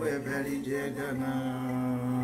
Jagana.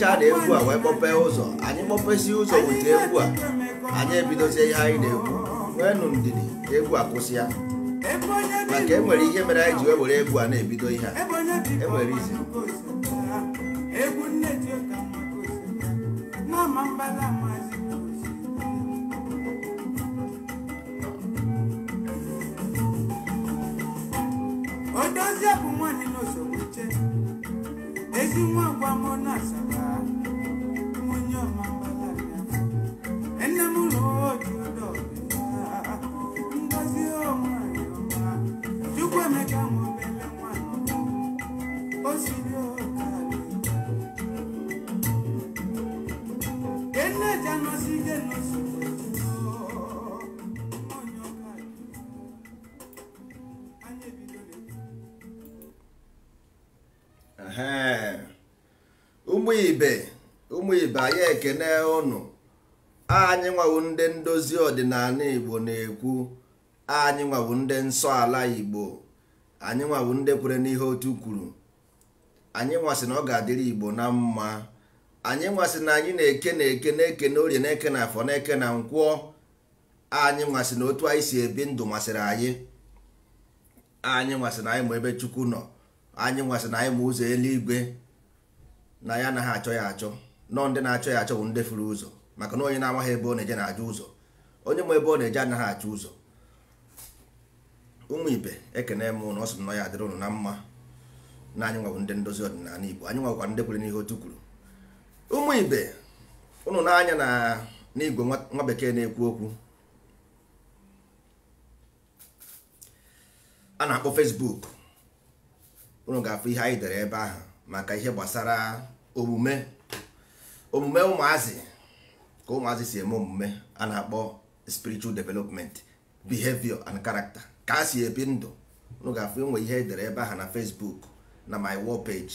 kpọpechaa na egwu a wee kpọpee ụzọ anyị kpọpesi ụzọ weta egwu a anyị ebidozie ihe anyị na wee nụ ndidi egwu a kwụsị ya maka enwere ihe mere anyị ji were egwu a na-ebido ihe a enwere izi na-ekene ụnụ anyị nwawu ndị ndozi ọdịnala igbo na-ekwu anyị nwawu ndị nsọ ala igbo anyị nwawu ndị kwere n'ihe otu kwuru anyị nwasị na ọ ga-adịrị igbo na mma anyị nwasị na anyị na-eke na-eke na-eke na orie na-eke na afọ na-eke na nkwụọ anyị nwasị na otu anyị si ebi ndụ masịrị anyị anyị nwasị na anyị ma ebe chukwu nọ anyị nwasị na anyị ma ụzọ eluigwe na ya anaghị achọ ya achọ nọ ndị na-achọ ya achọ bụ ndị furu ụzọ maka na onye na-amaghị ebe ọ na-eje na-ajụ ụzọ onye ma ebe ọ na-eje anaghị achụ ụzọ ụmụ ibe ekene m na ọ sị nọ ya adịrị ụnụ na mma na anyị nwabụ ndị ndozi ọdịnala Igbo anyị nwakwa ndị kwere n'ihe otu kwuru ụmụ ibe ụnụ na na n'igwe nwa bekee na-ekwu okwu a na-akpọ fesbuk ụnụ ga-afụ ihe anyị dere ebe ahụ maka ihe gbasara omume omume ụmụazị ka ụmụazị si eme omume a na-akpọ spiritual development behavior and character ka a si ebi ndụ unu nwe ihe e ihe edere ebe ahụ na Facebook na my wall page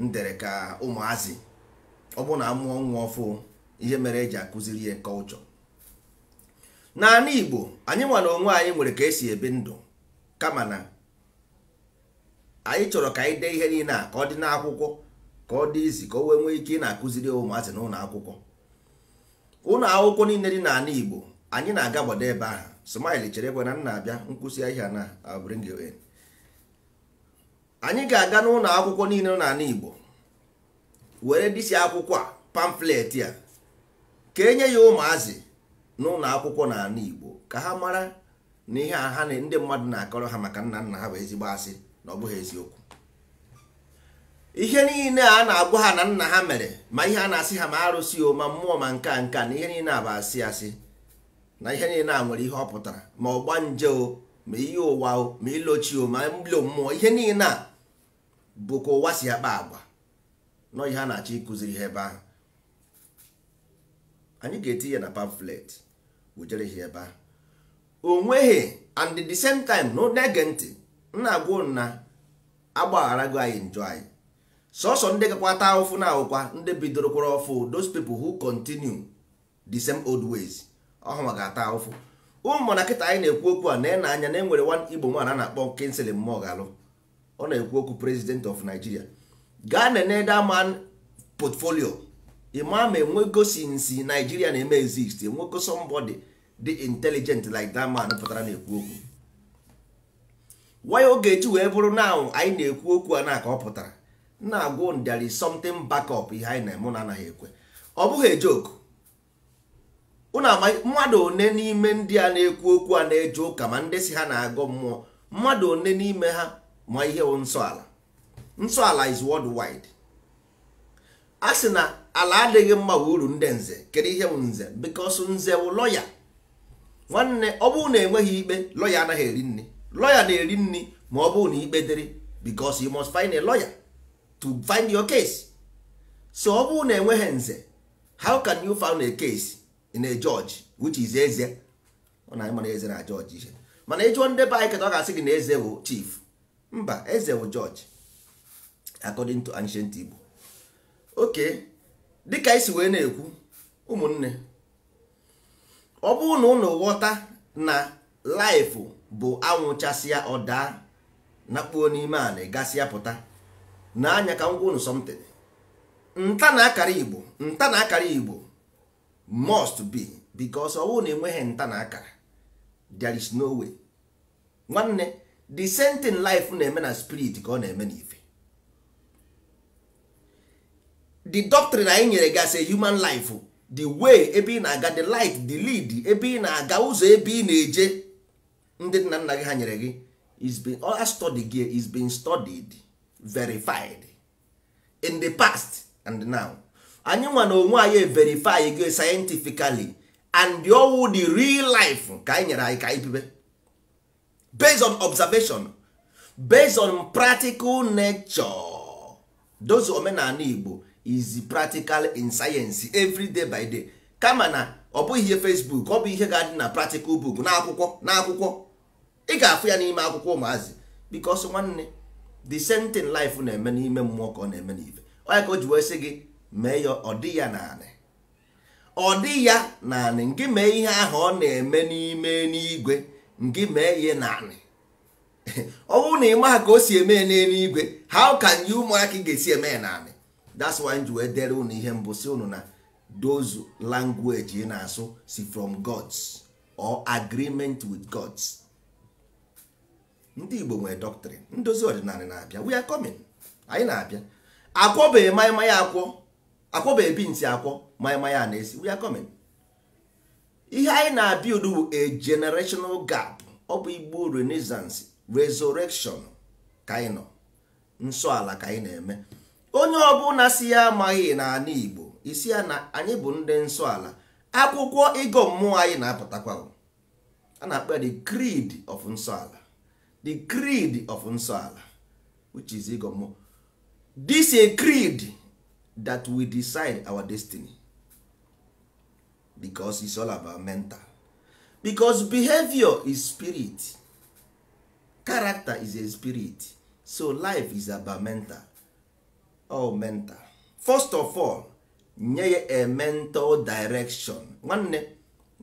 m dere ka ụmụazị ọ bụ na amụọ nwa ọfụ ihe mere eji akụziri ya kọlchọ naanị Igbo anyị nwa na onwe anyị nwere ka esi ebi ndụ kama na anyị chọrọ ka anyị dee ihe niile a ka ọ dị n'akwụkwọ ka ọ dị izi ka o wee nwee ike ị na-akụziri ụmụazị na ụlọ akwụkwọ ụlọ akwụkwọ niile dị n'ala Igbo anyị na-aga gbado ebe ahụ smile chere ekwe na nna abịa nkwụsị ahịa na uh, bring in anyị ga-aga n'ụlọ akwụkwọ niile n'ala Igbo were disi akwụkwọ a pamflet a ka enye ya ụmụazị n'ụlọ akwụkwọ n'ala Igbo ka ha mara na ihe a ha ndị mmadụ na-akọrọ ha maka nna nna ha bụ ezigbo asị na ọ bụghị eziokwu ihe niile a na-agwa ha na nna ha mere ma ihe a na-asị ha ma arụsị o ma mmụọ ma nka nka na ihe niile a bụ asị asị na ihe niile a nwere ihe ọ pụtara ma ọgba nje o ma ihe ụwa o ma ilochi o ma mbilo mmụọ ihe niile a bụ ka ụwa si akpa agwa nọ ihe a na-achọ ịkụziri ha ebe ahụ anyị ga-eti ya na pamflet wujere ha ebe ahụ o nweghị and the same time na ege ntị nna agwa na agbagharago anyị njọ anyị sọsọ ndị ata ahụfụ na ahụkwa ndị bidoro kwara ọfụ those people who continue the same old ways ọhụma ga-ata ahụfụ ụmụ na kịta anyị na-ekwu okwu a na na e anya na enwere nwa igbo nwaanyị a na-akpọ kinsley mmụọ galụ ọ na-ekwu okwu president of nigeria gaa nene daman portfolio ịma ma enwego sinsi nigeria na-eme exist enwego somebody dị intelligent like that man pụtara na-ekwu okwu waya oge eji wee bụrụ na anyị na-ekwu okwu a na ka ọ pụtara na-agwụ there is backup ihe anyị na-eme na anaghị ekwe ọ bụghị ejoku mmadụ one n'ime ndị a na-ekwu okwu a na-eje ụka ma ndị si ha na agụ mmụọ mmadụ one n'ime ha ma ihe nsọ ala nsọ ala is worldwide a sị na ala adịghị mma uru ndị nze kedu ihe nze because nze bụ lọya nwanne ọ bụụ na enweghị ikpe lọya anaghị eri nri lọya na-eri nri ma ọ bụụ na ikpe dịrị bikos you must find a lọya. to find your case so ọ bụrụ na enweghị nze how can you find a case in a judge which is eze ọ na na eze na george ihe mana ịjụọ ndị be anyị keta ọ ga-asị gị na eze bụ chief mba eze bụ george according to ancient Igbo okay dịka isi wee na-ekwu ụmụnne ọ bụrụ na ụnụ ghọta na laịfụ bụ anwụchasịa ọ daa nakpuo n'ime ala gasịa pụta na anya ka m unu something nta na akara igbo nta na akara igbo must be because ọwụ na enweghị nta na akara there is no way nwanne the same thing life na-eme na spirit ka ọ na-eme na ife the doctrine anyị nyere gị as human life the way ebe ị na-aga the light the lead ebe ị na-aga ụzọ ebe ị na-eje ndị nna nna gị ha nyere gị is being all study gị is being studied verified in the past and now anyị nwa na onwe anyị verify go scientifically and the owu the real life ka anyị nyere anyị ka anyị bibe based on observation based on practical nature those omenala Igbo is practical in science every day by day kama na ọ bụghị ihe Facebook ọ bụ ihe ga-adị na practical book n'akwụkwọ n'akwụkwọ ị ga-afụ ya n'ime akwụkwọ ụmụazị because nwanne the same thing life na-eme n'ime mmụọ ka ọ na-eme n'ife onye ka o ji wee sị gị mee ya ọ dị ya naanị ọ dị ya naanị ngị mee ihe ahụ ọ na-eme n'ime n'igwe ngị mee ya naanị ọ bụrụ na ị maha ka o si eme n'eluigwe how can you ụmụaka ị ga-esi eme ya naanị that's why ji wee dere unu ihe mbụ si unu na those language ị na-asụ si from gods or agreement with gods ndị igbo nwere dọktrin ndozi ọdịnala na-abịa we are coming anyị na-abịa akwọbeghị maịmaya akwọ akwọbeghị binti akwọ maịmaya na-esi we are coming ihe anyị na-abịa udu a generational gap ọ bụ igbo renaissance resurrection ka anyị nọ nsọ ala ka anyị na-eme onye ọbụla si ya amaghị n'ala igbo isi ya na anyị bụ ndị nsọ ala akwụkwọ ịgọ mmụọ anyị na-apụtakwa a na-akpa the creed of nsọ ala the creed of nsọala which is igomo this a creed that we decide our destiny because it's all about mental because behavior is spirit character is a spirit so life is about mental Oh, mental first of all nye ya a mental direction nwanne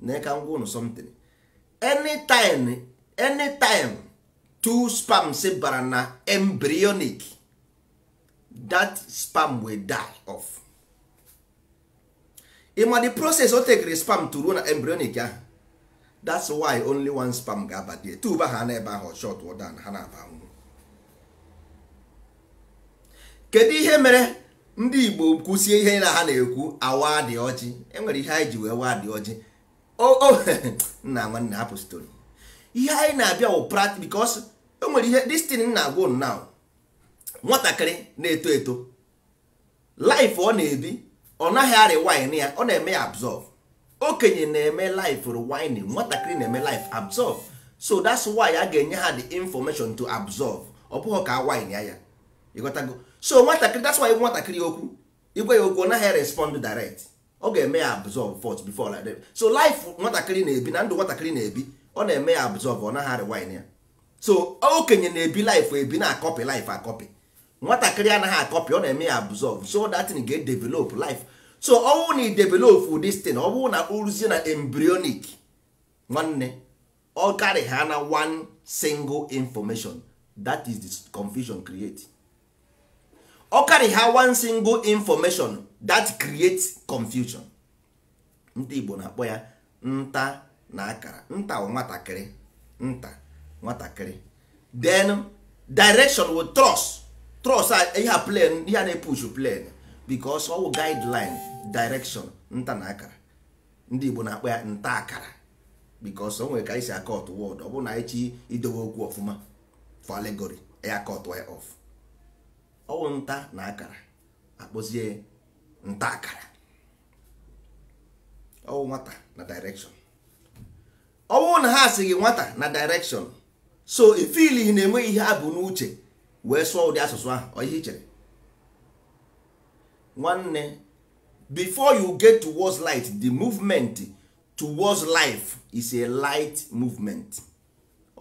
na ka ngwa ụnụ something anytime anytime two spams bara na embryonic that spam will die off ịma the process o tekere spam to ruo na embryonic ahụ that's why only one spam ga-aba die tuba ha ebe ahụ short wdan ha na-aba nwụ kedu ihe mere ndị Igbo kwụsie ihe na ha na-ekwu awa dị ọjị enwere ihe anyị ji wee waa dị ọjị o nna nwanne hapụ stori ihe anyị na-abịa wụ practice because e nwere ihe destin na agwụ now nwatakịrị na-eto eto life ọ na-ebi ọ naghị arị wine ya ọ na-eme ya absorb okenye na-eme life rewine nwatakịrị na-eme life absorb so that's why a ga-enye ha the information to absorb ọ bụghị ka wine ya ya ịghọtago so nwatakịrị that's why nwatakịrị okwu igwe ya okwu ọ naghị respond direct ọ ga-eme ya absorb first before like that so life nwatakịrị na-ebi na ndụ nwatakịrị na-ebi ọ na-eme ya absorb ọ naghị rewind ya so okenye na-ebi life ebi na-akọpị life akọpị nwatakịrị anaghị akọpị ọ na-eme ya absorb so that thing ga develop life so ọnwụ na idevelop this thing ọ bụrụ na uruzie na embryonic nwanne ọ karị ha na one single information that is the confusion create ọ karị ha one single information that creates confusion ndị Igbo na-akpọ ya nta na akara nta nwatakịrị nta nwatakịrị then direction with trust trust ihe a plan ihe a na-epush plan because ọwụ guideline direction nta na akara ndị Igbo na-akpọ ya nta akara because o nwere ka anyị si akọt wọd ọ bụrụ na anyị chi idowe okwu ọfụma for allegory e ya akọt ya off ọwụ nta na akara akpọzie nta akara ọwụ nwata na direction ọ bụrụ na ha si gị nwata na direction so ifili na-enwe ihe ha bụ n'uche wee sụọ ụdị asụsụ ahụ ihe chere nwanne before you get towards light the movement towards life is a light movement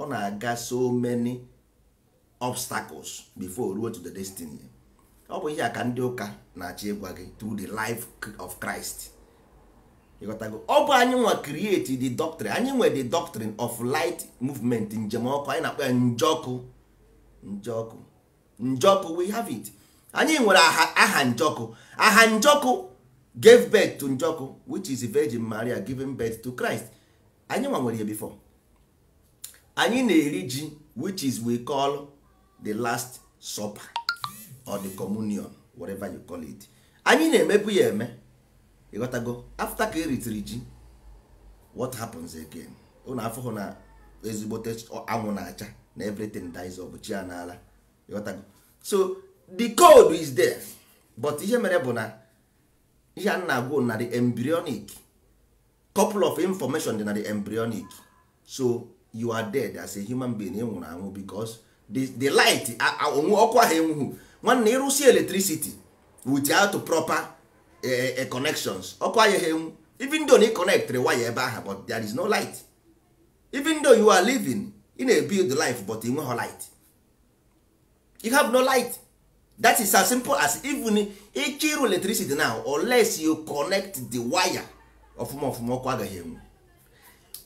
ọ na-aga so many obstacles before ruo to the destiny ọ bụ ihe a ka ndị ụka na-achọ ịgwa gị through the life of Christ ọ bụ anyị nwa create the doctrine anyị nwe the doctrine of light movement njem ọkụ anyị na-akpọ ya njọkụ njọkụ njọkụ we have it anyị nwere aha njọkụ aha njọkụ gave birth to njọkụ which is virgin maria giving birth to christ anyị nwa nwere ya bifọ. anyị na-eri ji which is we call the last supper or the communion whatever you call it anyị na-emebu ya eme ịghọtago after ka eritere ji what happens again ụnụ afụhụ na ezigbote anwụ na-acha na everything dies of chi n'ala ịghọtago so the code is there but ihe mere bụ na ihe a na-agwụ na the embryonic couple of information dị na the embryonic so you are dead as a human being ị anwụ because the, the light onwe ọkụ ahụ enwughụ nwanne ịrụsi electricity without proper connections ọkụ anyịghị even though na ịconnectịrị waya ebe ahụ but there is no light even though you are living ị na-ebuild life but ị nweghị light you have no light that is as simple as even ịchọ ịrụ electricity now unless you connect the wire ọfụma ọfụma ọkụ agaghị enwu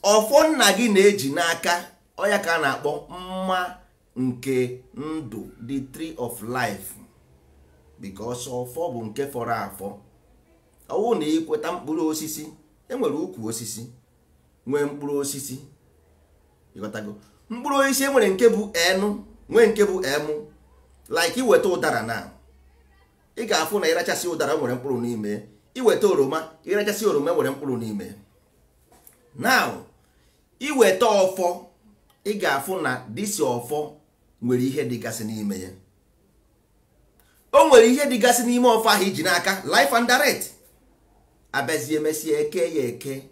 ọfọ nna gị na-eji n'aka ọya ka a na-akpọ mma nke ndụ the tree of life because ọfọ bụ nke fọrọ afọ ọwụ na ịkweta mkpụrụ osisi enwere ukwu osisi nwee mkpụrụ osisi ịghọtago mkpụrụ osisi enwere nke bụ enu nwee nke bụ emu like iweta ụdara na ị ga-afụ na ịrachasị ụdara nwere mkpụrụ n'ime iweta oroma ịrachasị oroma nwere mkpụrụ n'ime now iweta ọfọ ị ga-afụ na disi ọfọ nwere ihe dịgasị n'ime ya o nwere ihe dịgasị n'ime ọfọ ahụ iji n'aka life and direct abịazie emesịa eke ya eke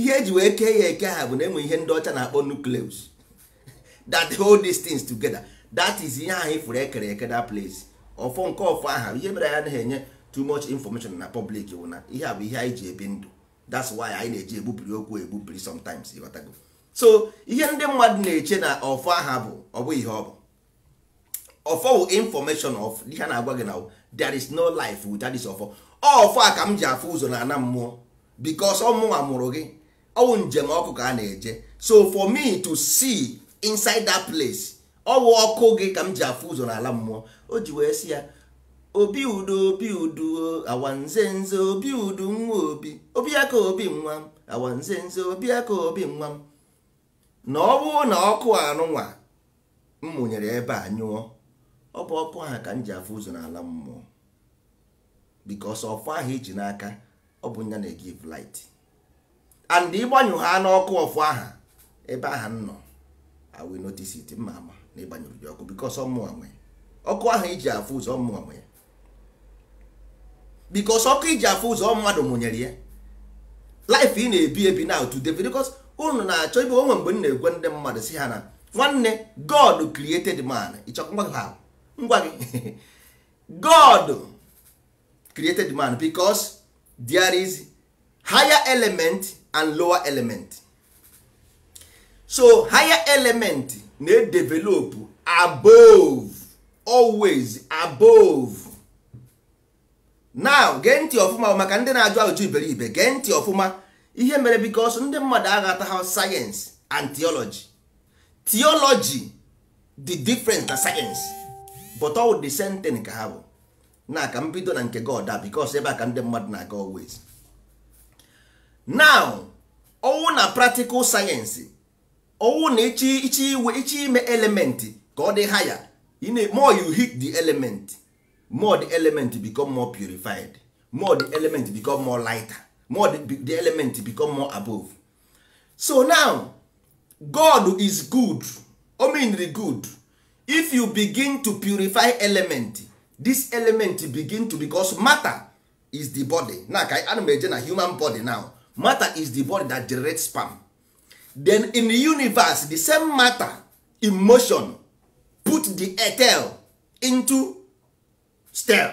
ihe eji wee kee ya eke ha bụ na enwe ihe ndị ọcha na-akpọ nucleus that hold these things together that is ihe ahụ ifuru ekere eke that place ọfọ nke ọfọ aha ihe mere ya anaghị enye too much information na public bụ na ihe a bụ ihe anyị ji ebi ndụ that's why anyị na-eji egbupiri okwu egbupiri sometimes ịghọtago so ihe ndị mmadụ na-eche na ọfọ aha bụ ọ bụ ihe ọ bụ ọfọ bụ information of ihe a na-agwa gị na there is no life without this ọfọ ọfọ a ka m ji afụ ụzọ na ana mmụọ ọ ọmụnwa mụrụ gị ọwụ njem ọkụ ka a na-eje so for me to see inside that place ọwụ ọkụ gị ka m ji afụ ụzọ na ala mmụọ o ji wee sị ya obi udo obi udo awanze nze obi udo nwa obi obi aka obi nwa m awanze nze obi aka obi nwa m na ọ bụrụ na ọkụ anụnwa m mụnyere ebe a nyụọ ọ bụ ọkụ ha ka m ji afụ ụzọ na ala mmụọ because ọfụ ahụ iji n'aka ọ bụ nya na-egive light and ịgbanyụ ha n'ọkụ ọfụ aha ebe aha m nọ I will notice it mma ama na ịgbanyụrụ gị ọkụ because ọmụwa nwe ọkụ ahụ iji afụ ụzọ ọmụwa nwe ya because ọkụ iji afụ ụzọ mmadụ mụnyere ya life ị na-ebi ebi na otu debe because unu na-achọ ibe onwe mgbe m na-egwe ndị mmadụ si ha na nwanne God created man ịchọkwa ngwa gị God created man because there is higher element and lower element so higher element na-edevelop above always above now gee ntị ọfụma maka ndị na-ajụ ajụjụ iberibe gee ntị ọfụma ihe mere bikos ndị mmadụ aghata science and theology theology the different na science but all the same thing ka ha bụ na ka mbido na nke god That because ebe a ka ndị mmadụ na-aga always now on na practical sayensị on na ichi ichi iwe ichi ime element ka ọ dị higher more you hit the element more the element become more purified more the element become more lighter more the, element become more above so now god is good the good if you begin to purify element this element begin to because matter is the body na ka ana m eje na human body now matter is the body that generates sperm then in the universe the same matter in motion put the etel into stem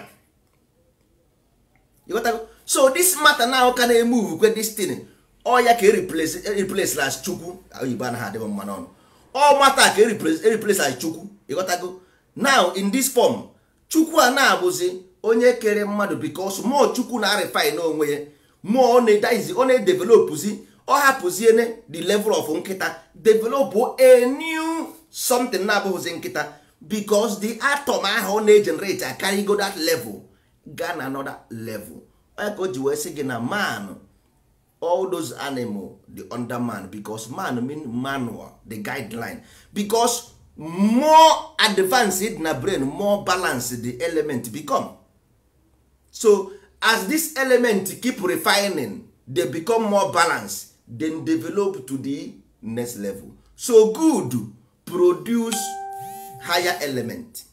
got so this matter now can move kwe this thing all ya ka replace eh, replace las chukwu oyibo anaghị adịghị mma n'ọnụ all matter ka replace eh, replace as chukwu I got go now in this form chukwu a na-abụzi onye kere mmadụ bikos mmụọ chukwu na-arịfin onwe ya mmụọ ọ na-edaizi ọ na-edevelopụzi ọ ne the level of nkịta developụ a new something na-abụghịzi nkịta bikos the atom ahụ ọ na-egenerate akarịgo that level gaa na another level ka o ji wee sị gị na man all those animal the under man bicos man mean manual the guideline bicos more advanced na brain more balanced the element become so as this element keep refining they become more balanced then develop to the next level so good produce higher element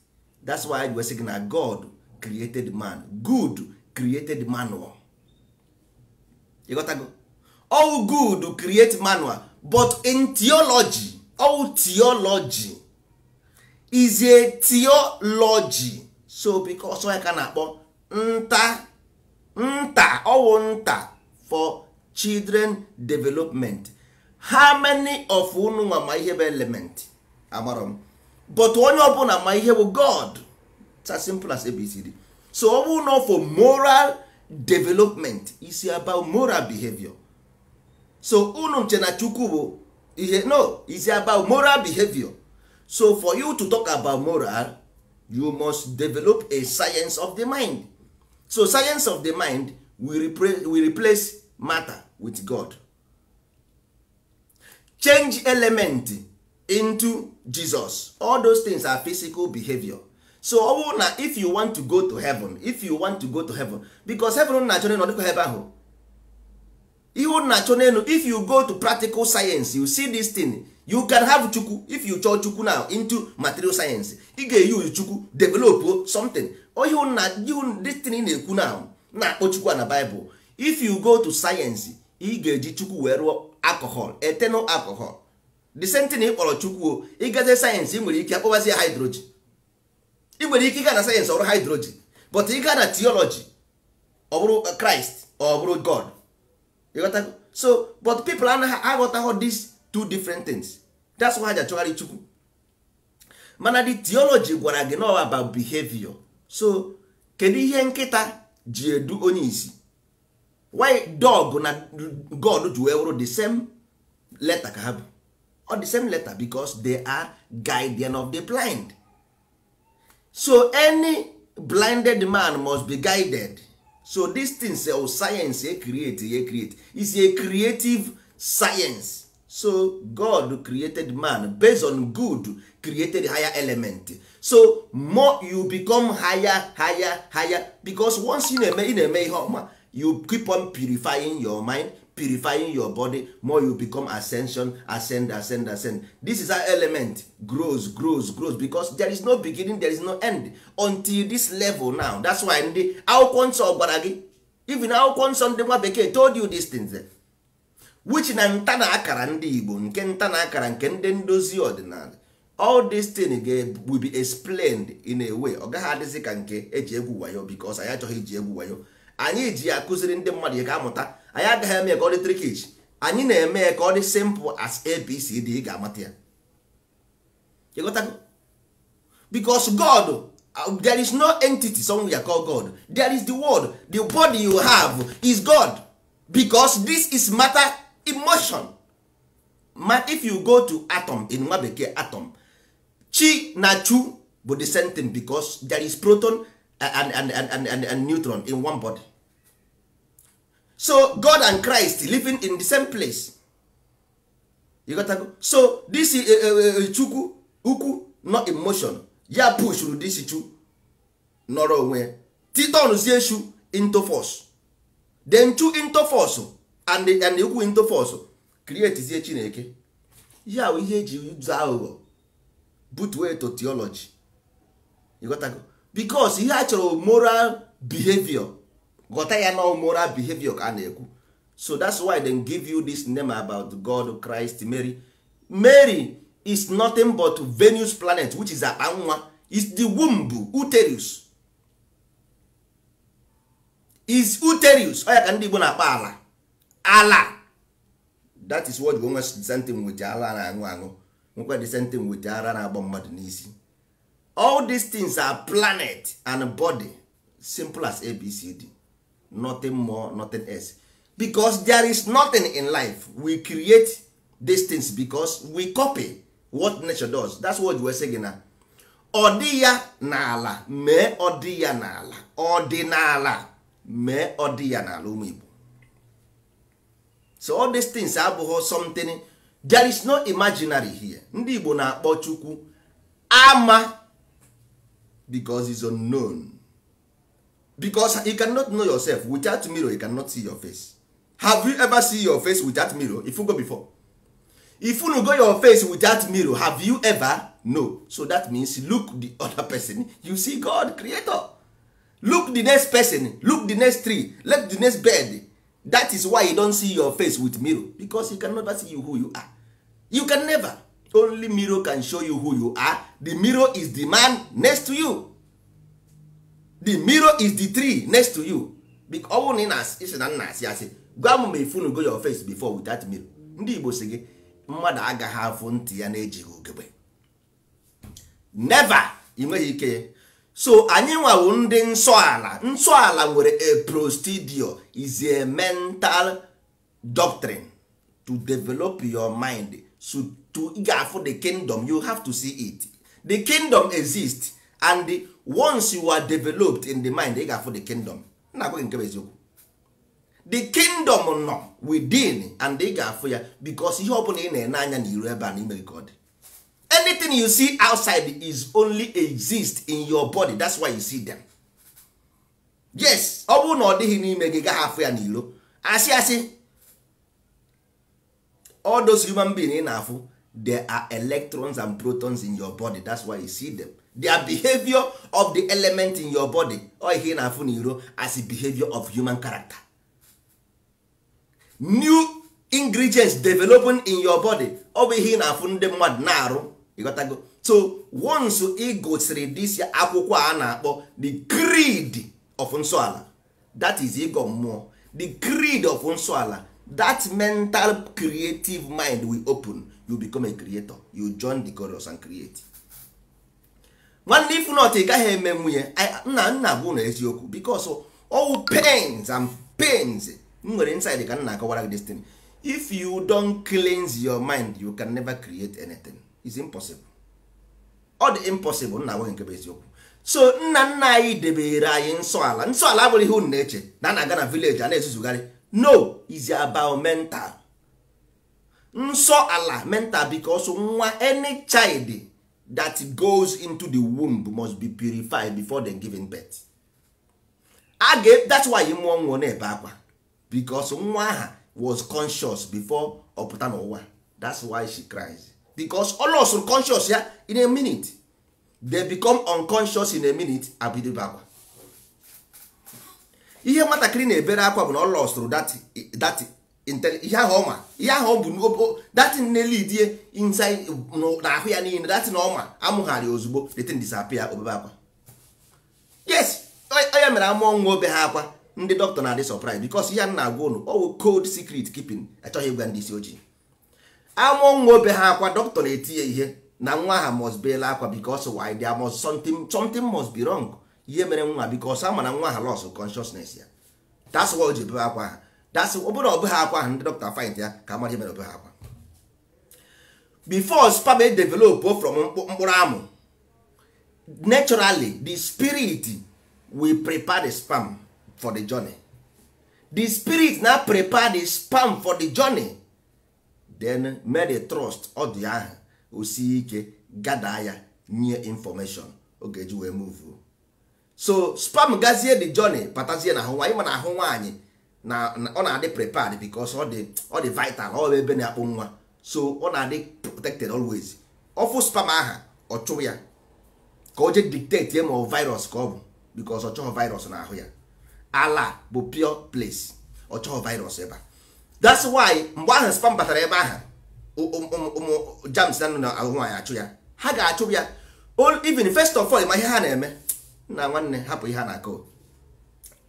that's why we say na god created man good created manual you got go all good create manual but in theology all theology is a theology so because onye ka na-akpọ nta nta ọwụ nta for children development how many of unu nwa ma ihe bụ element amarọ m but onye ọbụla ma ihe bụ god it's as simple as abcd so ọ bụrụ na for moral development is about moral behavior so unu nche na chukwu bụ ihe no is about moral behavior so for you to talk about moral you must develop a science of the mind so science of the mind will, will replace matter with god change element into jesus all those things are physical behavior so ọ bụrụ na if you want to go to heaven if you want to go to heaven because heaven na-achọ n'elu ọdịkwa ebe ahụ ihe na-achọ n'elu if you go to practical science you see this thing you can have chukwu if you chọọ chukwu now into material science ị ga-eyuzu chukwu develop something destiny na-ekwu na na-akpọ chukwu na Bible if you go to science ị ga-eji chukwu wee rụọ alcohol eternal alcohol the same thing ị kpọrọ chukwu o ịgaze sayensị ị nwere ike akpọbazi ya hydrogen ị nwere ike ịga na sayensị ọrụ hydrogen but ị gaa na theology ọ bụrụ Christ ọ bụrụ God so but people anaghị aghọtaghọ this two different things that's why ha ji achọgharị chukwu mana the theology gwara gị now about behavior so kedu ihe nkịta ji edu onye isi why dog na god ji wee wụrụ the same letter ka ha bụ or the same letter because they are guardian of the blind so any blinded man must be guided so this thing things eh, science e eh, create e eh, create is a creative science so god created man based on good created higher element so more you become higher higher higher because once you na-eme na na-eme ihe ọma you keep on purifying your mind purifying your body more you become ascension ascend ascend ascend this is how element grows grows grows because there is no beginning there is no end until this level now that's why ndị akwụkwọ nsọ gwara gị even akwụkwọ nsọ ndị nwa bekee told you these things which na nta na akara ndị igbo nke nta na akara nke ndị ndozi ọdịnala all this thing will be explained in a way ọ gaghị adịzi ka nke eji egwu wayo because anyị achọghị iji egwu wayo anyị ji ya akụziri ndị mmadụ ya ga-amụta anyị agaghị eme ka ọ dị trikich anyị na-eme ya ka ọ dị simple as abcd ị ga-amata ya ịghọtago because god uh, there is no entity somewhere call god there is the word the body you have is god because this is matter emotion ma if you go to atom in nwa bekee atom chi na chu bụ the same thing because there is proton and, and, and, and, and neutron in one body so god and christ living in the same place you got to go. so this eh, eh, eh, chukwu ukwu not emotion ya push ru this chu nọrọ onwe titonzie chu into force then chu into force and and ikwu into force chineke ihe ahụ ihe eji ụzọ aghụghọ butuo to theology ịghọtago because ihe a chọrọ moral behavior ghọta ya na moral behavior ka na-ekwu so that's why they give you this name about God Christ Mary Mary is nothing but Venus planet which is akpanwa is the womb uterus is uterus ọ ya ka ndị Igbo na-akpa ala ala that is what gonwe sentin wit ara na-aṅụ aṅụ nwekwa the sentin wit ara na-agba mmadụ n'isi all these things are planet and body simple as abcd nothing more nothing else because there is nothing in life we create these things because we copy what nature does that's what we say na ọ dị ya n'ala mee ọ na ya n'ala ọdịnala mee ọ dị ya n'ala ụmụ Igbo so all these things abụghị something there is no imaginary here ndị igbo na-akpọ chukwu ama because is unknown because you cannot know yourself without mirror you cannot see your face have you ever see your face without mirror if you go before if you go your face without mirror have you ever no so that means look the other person you see god creator look the next person look the next tree look the next bed that is why you don't see your face with mirror because you can never see you who you are you can never only mirror can show you who you are the mirror is the man next to you the mirror is the tree next to you ọnwụ na ị na-asị na nna asị asị gwa m ma go your face before without mirror ndị Igbo si gị mmadụ agaghị afụ ntị ya na-ejighị ugegbe never ị nweghị ike so anyị nwawo ndị nsọala nsọala nwere a prostudio is a mental doctrine to develop your mind so to ga-afụ the kingdom you have to see it the kingdom exist and the, once you are developed in the mind ị ga-afụ the kingdom na-agwaghị nke eziokwu the kingdom nọ within and ị ga-afụ ya because ihe ọ bụla ị na-ene anya na iru ebe a n'ime gị ka ọ dị anything you see outside is only exist in your body that's why you see them yes ọ bụrụ na ọ dịghị n'ime gị gaa afụ ya n'ilo asị asị all those human beings ị na-afụ there are electrons and protons in your body that's why you see them their behavior of the element in your body ọ ihe ị na-afụ n'iro as a behavior of human character new ingredients developing in your body ọ bụ ihe ị na-afụ ndị mmadụ na-arụ go. so once ị gosiri this akwụkwọ a na-akpọ the greed of nsọala that ego ịgọ mmụọ the greed of nsọala that mental creative mind will open you become a creator you join the chorus and create nwanne ifu not ị gaghị eme nwunye nna nna bụ na eziokwu because all pains and pains You nwere inside ka m na-akọwara gị this thing if you don't cleanse your mind you can never create anything is impossible ọ dị impossible nna nwoke nke bụ eziokwu so nna nna anyị debere anyị nsọ ala nsọ ala abụrụ ihe unu na-eche na a na-aga na vileji a na-ezuzugharị no is about mental nsọ ala mental because nwa any child that goes into the womb must be purified before the giving birth a ga that's why mụọ nwụọ na-ebe akwa because nwa aha was conscious before ọ pụta n'ụwa that's why she cries. because all of conscious ya in a minute they become unconscious in a minute abidobe akwa ihe nwatakịrị na-ebere akwa bụ na ọ lọsụrụ dat ihe ahụ ọma ihe ahụ bụ datin na-elidie inside na ahụ ya niile datin ọma amụgharị ozugbo detin disapia obebe akwa yes onye mere amụọ nwa obe ha akwa ndị dọkịta na-adị surprise because ihe a na-agwa ụnụ ọwụ cold secret keeping achọghị ịgwa ndị isi ojii amụọ nwa obe ha akwa dọkịta na etinye ihe na nwa ha must beela akwa because why there must something something must be wrong ihe mere nwa because ama na nwa ha lost consciousness ya that's why o ji bebe akwa ha that's obere ọbụ ha akwa ha ndị dọkịta find ya ka mara ihe mere obe ha akwa before spam e develop from mkpụrụ amụ naturally the spirit will prepare the spam for the journey the spirit na prepare the spam for the journey then mere trust ọ dị ahụ osie ike gada ya nye information ọ ga-eji wee move so spam gazie the journey patazie na ahụ nwaanyị ma na ahụ nwaanyị na ọ na-adị prepared because ọ dị ọ dị vital ọ ebe na-akpụ nwa so ọ na-adị protected always fụ spam aha ọ chụrụ ya ka o jee dictate ya ma ọ virus ka ọ bụ because ọ chọghị virus na-ahụ ya ala bụ pure place ọ chọghị virus ebe a that's why mgbe ahụ spam batara ebe ahụ ụmụ jams na nọ ahụ nwaanyị achụ ya ha ga-achụ ya even first of all ma ihe ha na-eme na nwanne hapụ ihe ha na-akọ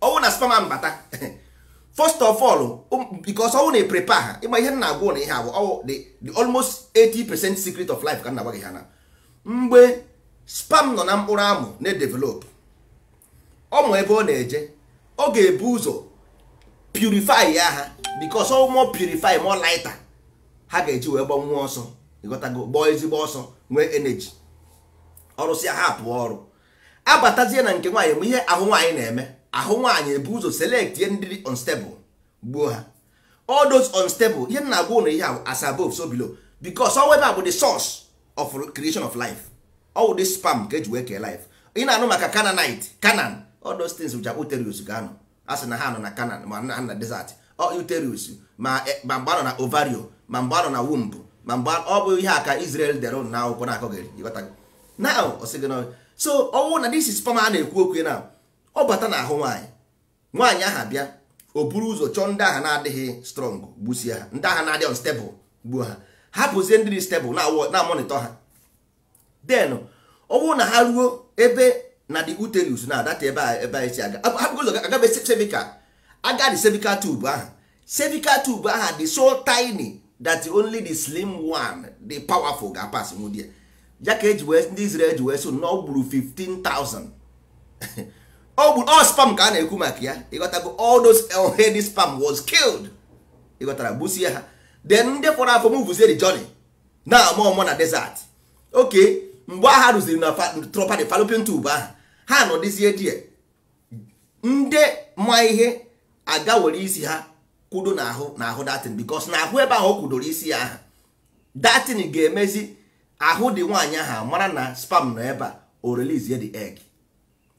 ọnwụ na spam ahụ bata first of all because ọnwụ na prepare ha ịma ihe na-agwụ na ihe agwụ the almost 80% secret of life ka nna agwa gị ha na mgbe spam nọ na mkpụrụ amụ na-edevelop ọ ma ebe ọ na-eje ọ ga-ebu ụzọ purify ya ha because ọ more purify more ha ga-eji wee gbanwuo ọsọ ịghọtago ezigbo ọsọ nwee energy ọrụsịa ha pụọ ọrụ abatazie na nke nwaanyị bụ ihe ahụ nwaanyị na-eme ahụ nwaanyị ebu ụzọ selekt ihe ndị unstable gbuo ha all those unstable ihe na agwa ụlọ ihe ahụ as above so below because bụ the source of creation of life ọ wụ spam ka eji wee kee life ị na-anụ maka Canaanite Canaan all those things which are uterus ga a sị na ha nọ na Canaan ma na desert uterus ma eh, ma anọ na ovario ma mgbe na womb ma mgba ọ bụ ihe aka ka Israel dere na akwụkwọ na-akọghị now so ọnwụ na this is sperm a na-ekwu okwu na ọ bata na ahụ nwaanyị nwaanyị aha bịa o buru ụzọ chọọ ndị agha na-adịghị strong gbusie ha ndị agha na-adịghị unstable gbuo ha hapụzie ndị dị stable na mọnịtọ ha then ọ na ha ruo ebe na the uterus na adata ebe a ebe anyị si aga ụzọ agabesevika agadi cervical tube ahụ cervical tube ahụ dị so tiny that only the slim one the powerful ga-apas nwụdị ya ka eji wee ndị Israel ji wee so na ọ gburu 15,000 ọ all spam ka a na-ekwu maka ya ịghọtago all those heady spam was killed ịghọtara gbusie ha then ndị fọrọ afọ m vuzie the journey na amụọmụ na desert oke mgbe agha rụziri na tropadi fallopian tube ahụ ha nọdịzie die ndị ma ihe aga were isi ha kwudo n'ahụ n'ahụ datin bikos na ahụ ebe ahụ o kwudoro isi ya aha datin ga-emezi ahụ dị nwaanyị ahụ mara na spam nọ ebe a o d eg egg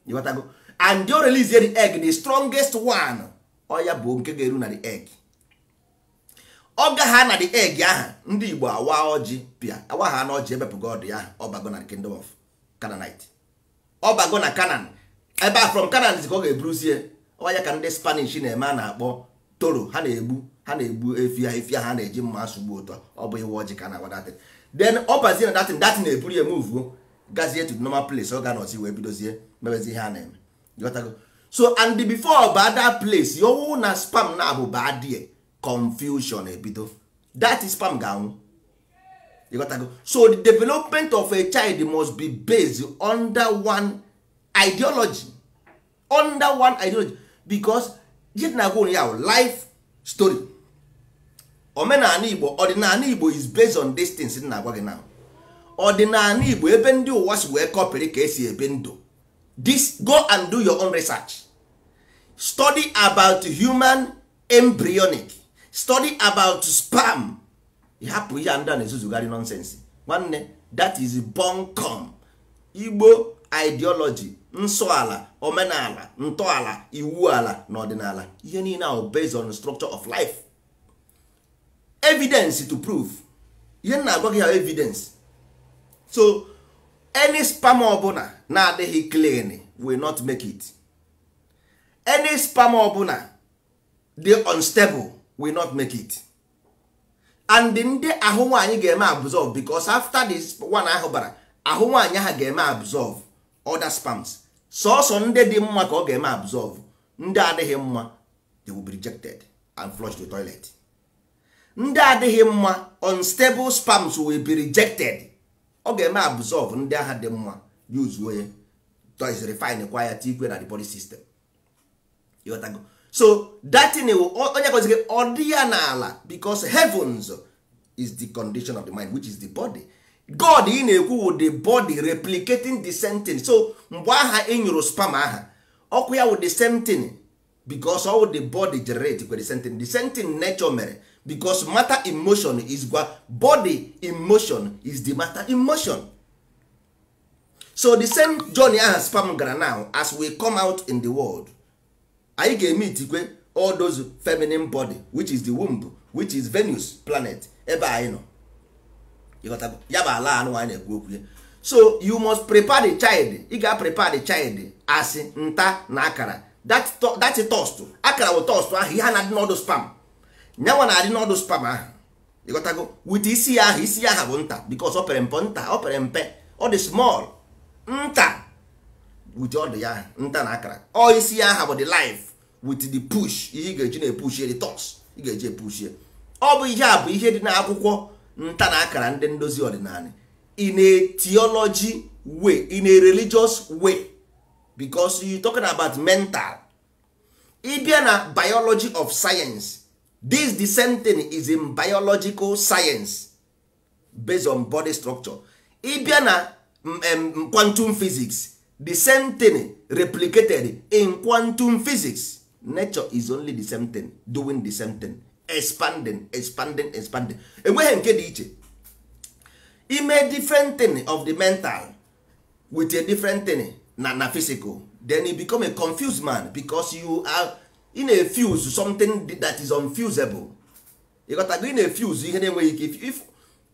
ịghọtago and o release the egg the strongest one ọya bụ nke ga-eru na the eg. ọ gaha na the eg aha ndị Igbo awa ọjị pịa awa ha na ọjị ebepụga ọdụ ya ọbago na kingdom of Canaanite ọbago na Canaan ebe a from Canaan ka ọ ga-eburuzie ọwa ya ka ndị spanish na-eme a na-akpọ toro ha na-egbu ha na-egbu efi ha efi ha na-eji mma asụgbu ụtọ ọ bụ iwe ọjị ka na-agwa datin then ọ bazie na datin datin na-eburu ya emuvuo oh, gazie to normal place ọ ga nọzi wee bidozie mebezi ihe a na-eme ịghọtago so and before ba place yowu na spam na abụ ba die confusion ebido that spam ga-anwụ ịghọtago so the development of a child must be based under one ideology under one ideology because ihe na agwa ya life story omenala igbo ọdịnala igbo is based on these na-agwa gị now ọdịnala igbo ebe ndị ụwa si wee kọpịrị ka esi ebe ndụ this go and do your own research study about human embryonic study about spam hapụ ihe ndị a na-ezuzugharị nonsense nwanne that is bunkum igbo ideology ala omenala ntọala iwu ala na ọdịnala ihe niile ahụ based on structure of life evidence to prove ihe nna na-agwa gị ha evidence so any spam ọbụla na-adịghị clean will not make it any spam ọbụla dey unstable will not make it and ndị ahụ nwaanyị ga-eme absorb because after this one ahụ bara ahụ nwaanyị ahụ ga-eme absorb other spams sọsọ ndị dị mma ka ọ ga-eme absorb ndị adịghị mma they will be rejected and flushed to toilet ndị adịghị mma unstable spams will be rejected ọ ga-eme absorb ndị agha dị mma yuzuo ya toys refine kwa ya tikwe na the body system ịghọtago so datin onye gozigị ọ dị ya n'ala because heavens is the condition of the mind which is the body god ị na-ekwu wụ the body replicating the sentence. so mgbe aha ị nyụrụ spam aha ọkụ ya wụ the same thing because all the body generate the sentence. the sentence nature mere because matter emotion is gwa body emotion is the matter emotion so the same journey aha spam gara now as we come out in the world anyị ga-eme itikwe all those feminine body which is the womb which is Venus planet ebe anyị nọ ya bụ ala anụ anyị na-ekwu okwu ya so you must prepare the child ị ga prepare the child as nta na akara that toast akara bụ toast ahụ ihe a na-adị n'ọdụ spam nyanwa na-adị n'ọdụ spam ahụ ịghọtago wit isi ya ahụ isi ya ahụ bụ nta because ọ pere mpe nta ọ pere mpe ọ dị small nta wit ọdụ ya nta na akara ọ isi ya ahụ bụ the life with the push ihe ị ga-eji na-epushie the toast ị ga-eji epushie ọ bụ ihe a bụ ihe dị n'akwụkwọ nta na akara ndị ndozi ọdịnala in a theology way in a religious way because you talking about mental ịbịa na biology of science this the same thing is in biological science based on body structure ịbịa na um, quantum physics the same thing replicated in quantum physics nature is only the same thing doing the same thing expanding expanding expanding enweghị nke dị iche ime different thing of the mental with a different thing na na physical then you become a confused man because you are in a fuse something that is unfusable you got to go in a fuse ihe na-enweghị ike if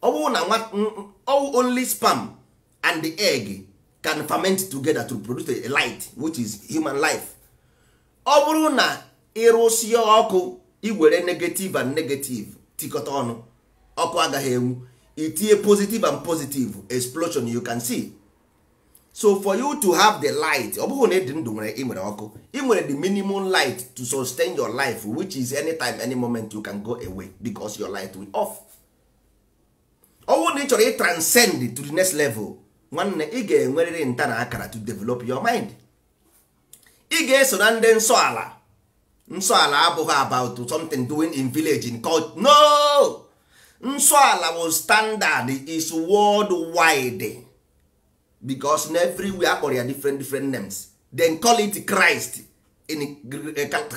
na nwa only sperm and the egg can ferment together to produce a light which is human life ọ bụrụ na ọkụ iwere negative and negative tikọta ọnụ ọkụ agaghị enwu itinye positive and positive explosion you can see so for you to have the light ọ bụghị na ịdị ndụ nwere ị nwere ọkụ i nwere the minimum light to sustain your life which is anytime any moment you can go away because your light will off ọnwụ na ị chọrọ ị transcend to the next level nwanne ị ga-enwerịrị nta na akara to develop your mind ị ga-eso na ndị nsọ ala nsọala abụghị about something doing in village in culture no nsọala bụ standard is worldwide because na everywhere akpọrọ ya different different names then call it Christ in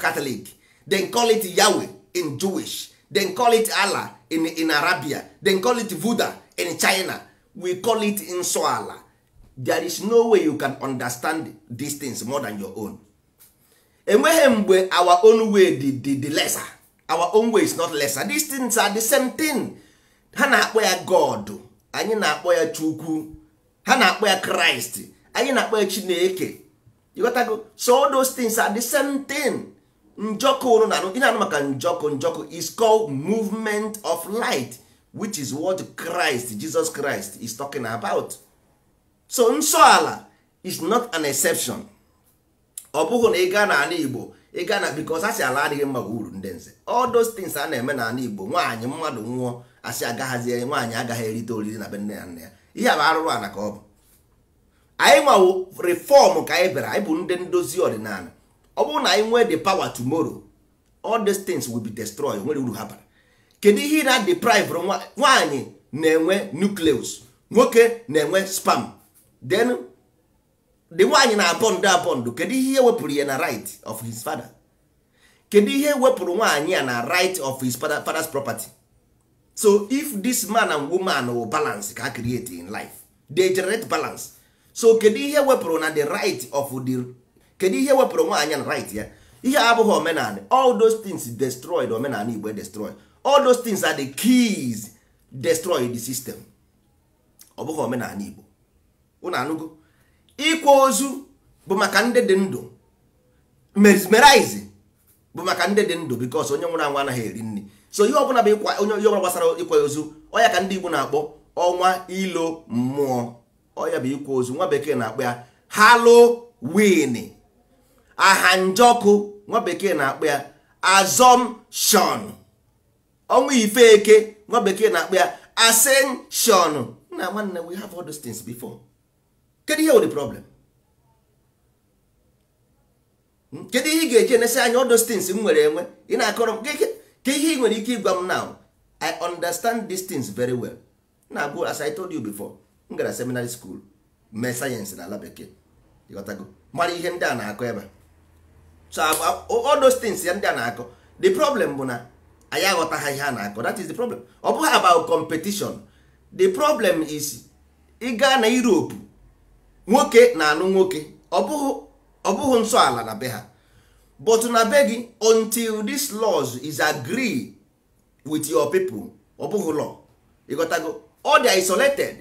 Catholic then call it Yahweh in Jewish then call it Allah in, in Arabia then call it Buddha in China we call it nsọala there is no way you can understand these things more than your own enweghị mgbe our own way di dị dị lesser our own way is not lesser these things are the same thing ha na-akpọ ya god anyị na-akpọ ya chukwu ha na-akpọ ya kraịst anyị na-akpọ ya chineke ịghọtago so all those things are the same thing njọkụ ụrụ na maka njọkụ njọkụ is called movement of light which is what christ jesus christ is talking about so nsọ ala is not an exception ọ bụghị na ị gaa n'ala Igbo ị gaa na because asị ala adịghị mma bụ uru ndị nze all a na-eme n'ala Igbo nwaanyị mmadụ nwụọ asị agaghazie nwaanyị agaghị erite oriri na be nne ya nna ya ihe bụ arụrụ ana ka ọ bụ anyị nwawo reform ka anyị bịara anyị bụ ndị ndozi ọdịnala ọ bụrụ na anyị nwee the power tomorrow all these things will be nwere uru ha bara kedu ihe na deprive nwaanyị na-enwe nucleus nwoke na-enwe spam then the nwaanyị na abọndụ abọndụ kedu ihe wepụrụ ya na right of his father kedu ihe wepụrụ nwaanyị ya na right of his father, father's property so if this man and woman will balance ka create in life they generate balance so kedu ihe wepụrụ na the right of the kedu ihe wepụrụ nwaanyị na right ya ihe abụghị omenala all those things destroyed omenala igbo destroy all those things are the keys destroy the system ọ bụghị omenala igbo unu anụgo ịkwa ozu bụ maka ndị dị ndụ mesmerize bụ maka ndị dị ndụ because onye nwụrụ anwụ anaghị eri nri so ihe ọbụla bụ ịkwa onye ihe ọbụla gbasara ịkwa ozu ọya ka ndị Igbo na-akpọ ọnwa ilo mmụọ ọya bụ ịkwa ozu nwa bekee na-akpọ ya Halloween ahanjọkụ nwa bekee na-akpọ ya assumption ọnwa ife eke nwa bekee na-akpọ ya ascension na nwanne we have all those things before kedu ihe wụ problem kedu ihe ị ga-eji enesị anya ọdụ stins m nwere enwe ị na-akọrọ m ka ihe ị nwere ike ịgwa m now i understand these things very well na-abụ as i told you before m gara seminary school mee sayensị na ala bekee ịghọtago mara ihe ndị a na-akọ ebe so ọdụ stins ya ndị a na-akọ the problem bụ na anyị aghọta ha ihe a na-akọ that is the problem ọ bụghị about competition the problem is ịga na Europe nwoke na alụ nwoke ọ bụghị nsọ ala na be ha but na be gị until this laws is agree with your people ọ bụghị law ịghọtago ọ dị isolated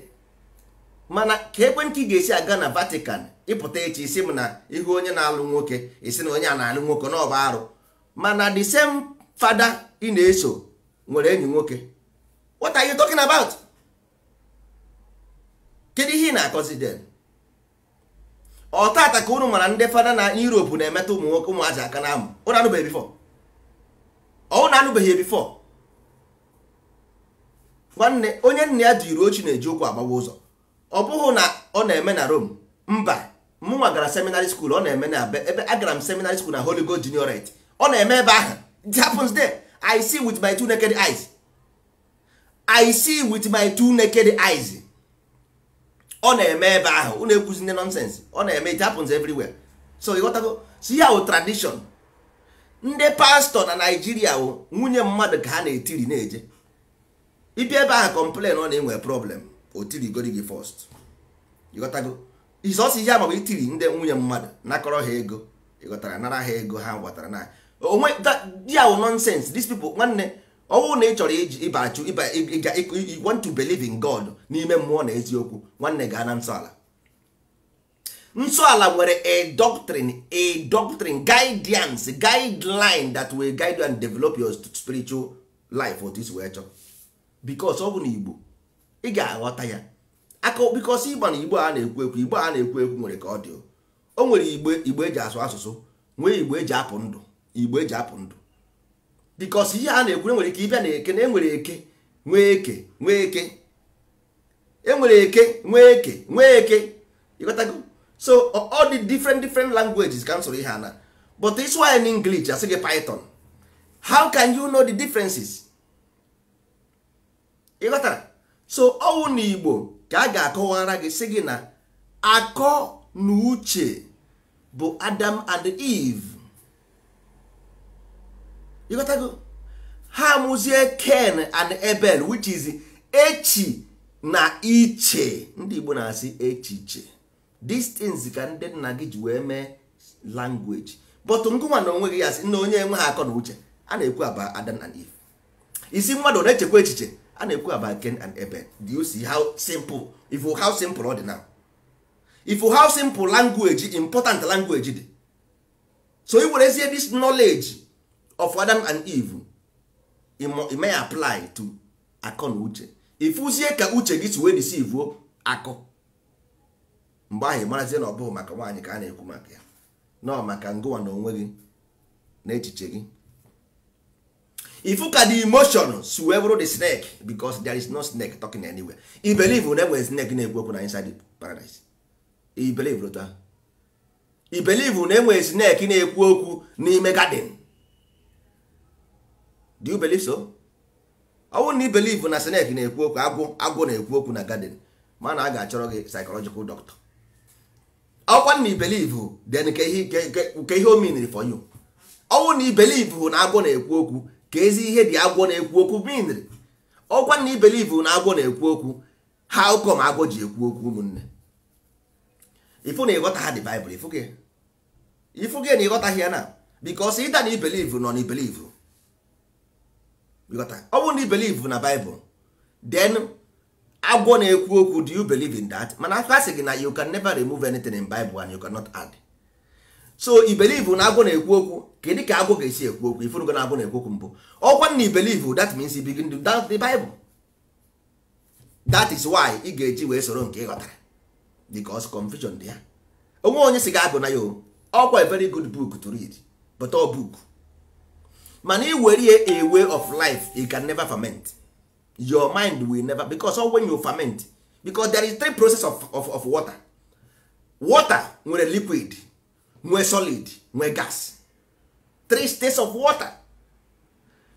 mana ka ekwentị ga-esi aga na Vatican ịpụta echi isi m na ihu onye na-alụ nwoke isi na onye a na-alụ nwoke na ọba arụ mana the same father ị na-eso nwere enyi nwoke what are you talking about kedu ihe ị na-akọzi den ọtata ka unu mara ndị fada na Europe na-emeta ụmụ nwoke ụmụazị aka na amụ ụnụ anụbeghị bifọ ọnwụ na anụbeghị bifọ nwanne onye nna ya jiri ochi na-eji ụkwụ agbawa ụzọ ọ bụghị na ọ na-eme na Rome mba mụnwa gara seminary school ọ na-eme na ebe agara m seminary school na Holy Ghost Juniorate ọ na-eme ebe ahụ it happens there I see with my two naked eyes I see with my two naked eyes ọ na-eme ebe ahụ unu ekwuzine nọnsens ọ na-eme it happens everywhere so ịghọtago so ya wụ tradishon ndị pastọ na naijiria wụ nwunye mmadụ ka ha na-etiri na-eje ịbịa ebe ahụ complain ọ na-enwe problem o tirigori gị first ịghọtago isọsi ihe amabụ itiri ndị nwunye mmadụ nakọrọ ha ego ịghọtara nara ha ego ha gwatara na onwe ya wụ nọnsens these people nwanne ọ bụrụ na ị chọrọ ịba achụ you want to believe in God n'ime mmụọ na eziokwu nwanne gaa na nsọala nsọala nwere a doctrine a doctrine guidance guideline that will guide you and develop your spiritual life otu isi wee chọọ because ọ bụ na Igbo ị ga-aghọta ya aka because ịgba na Igbo a na-ekwu ekwu Igbo a na-ekwu ekwu nwere ka ọ dị o nwere Igbo Igbo eji asụ asụsụ nwee Igbo eji apụ ndụ Igbo eji apụ ndụ bikos ihe e a na-ekwu enwere ike ịbịa na eke na enwere eke nwee eke nwee eke enwere eke nwee eke nwee eke ịghọtago so all the different different languages ka m ihe ana but is why in English asị gị python how can you know the differences ịghọtara so ọwụ na igbo ka a ga-akọwara gị sị gị na akọ na uche bụ adam and eve ịghọtago ha amụzie ken and ebel which is echi na iche ndị igbo na-asị echiche these ka ndị nna gị ji wee mee language but ngụnwa na onwe gị ya sị na onye enwe ha akọ na uche a na-ekwu aba Adam and Eve isi mmadụ na-echekwa echiche a na-ekwu aba ken and ebel do you see how simple if how simple ọ dị now if how simple language important language dị so i werezie this knowledge of Adam and Eve ị may apply to akọ na uche Ifuzie ka uche gị si wee deceive akọ mgbe ahụ ịmarazie na ọ bụghị maka nwaanyị ka a na-ekwu maka ya nọ maka ngụwa na onwe gị na echiche gị ifu ka the emotion si wee bụrụ the snake because there is no snake talking anywhere i believe na enwere snake na-ekwu okwu na inside paradise i believe na enwere snake na-ekwu okwu n'ime garden do you believe so? ọ wụ na ị believe na snake na-ekwu okwu agwụ agwụ na-ekwu okwu na garden mana a ga-achọrọ gị psychological doctor ọkwa na ibelive then ka ihe omeniri for you ọnwụ na ibelive na agwọ na-ekwu okwu ka ezi ihe dị agwọ na-ekwu okwu miniri ọkwa na ibelive na agwọ na-ekwu okwu ha ụkọ ma agwọ ji ekwu okwu ụmụnne ifu na ịghọta ha dị baịbụl ifu gị na ịghọtaghị ya na bikos ịda na ibelive nọ na ibelive ọ bụrụ na ị believe na Bible then agwọ na-ekwu okwu do you believe in that mana aka sị gị na you can never remove anything in Bible and you cannot add so i believe na agwọ na-ekwu okwu kedu ka agwọ ga-esi ekwu okwu ifurugo na agwọ na-ekwu okwu mbụ ọkwa na i believe that means you begin to doubt the Bible that is why ị ga-eji wee soro nke ịghọtara ghọtara because confusion dị ya onwe onye si gị agụ na ya ọkwa a very good book to read but book mana iwere a way of life you can never ferment your mind will never because all when you ferment because there is three process of, of, of water water nwere liquid nwee solid nwee gas three states of water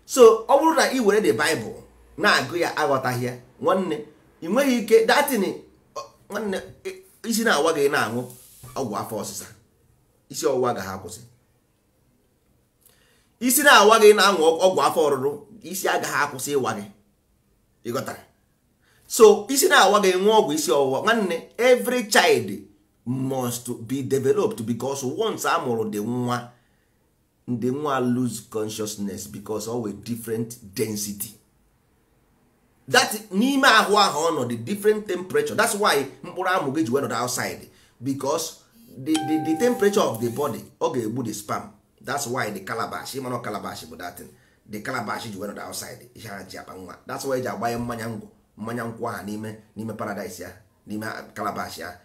so ọ bụrụ na ị were the bible na-agụ ya aghọtaghị ya nwanne ị nweghị ike datin nwanne isi na-awa gị na-aṅụ ọgwụ afọ ọsịsa isi ọwụwa agaghị akwụsị isi na-awa gị na-aṅụ ọgwụ afọ ọrụrụ isi agaghị akwụsị ịwa gị ịghọtara so isi na-awa gị ọgwụ isi ọwụwa nwanne every child must be developed because once a mụrụ dị nwa ndị nwa lose consciousness because ọ different density that n'ime ahụ ahụ ọnọdụ different temperature that's why mkpụrụ amụ gị ji wee outside because the, the, the temperature of the body ọ ga-egbu the sperm that's why the calabash ịmana calabash bụ datin the calabash ji outside ihe ha ji akpa nwa that's why ji agbanye mmanya ngwụ mmanya nkwụ aha n'ime n'ime paradise ya n'ime calabash ya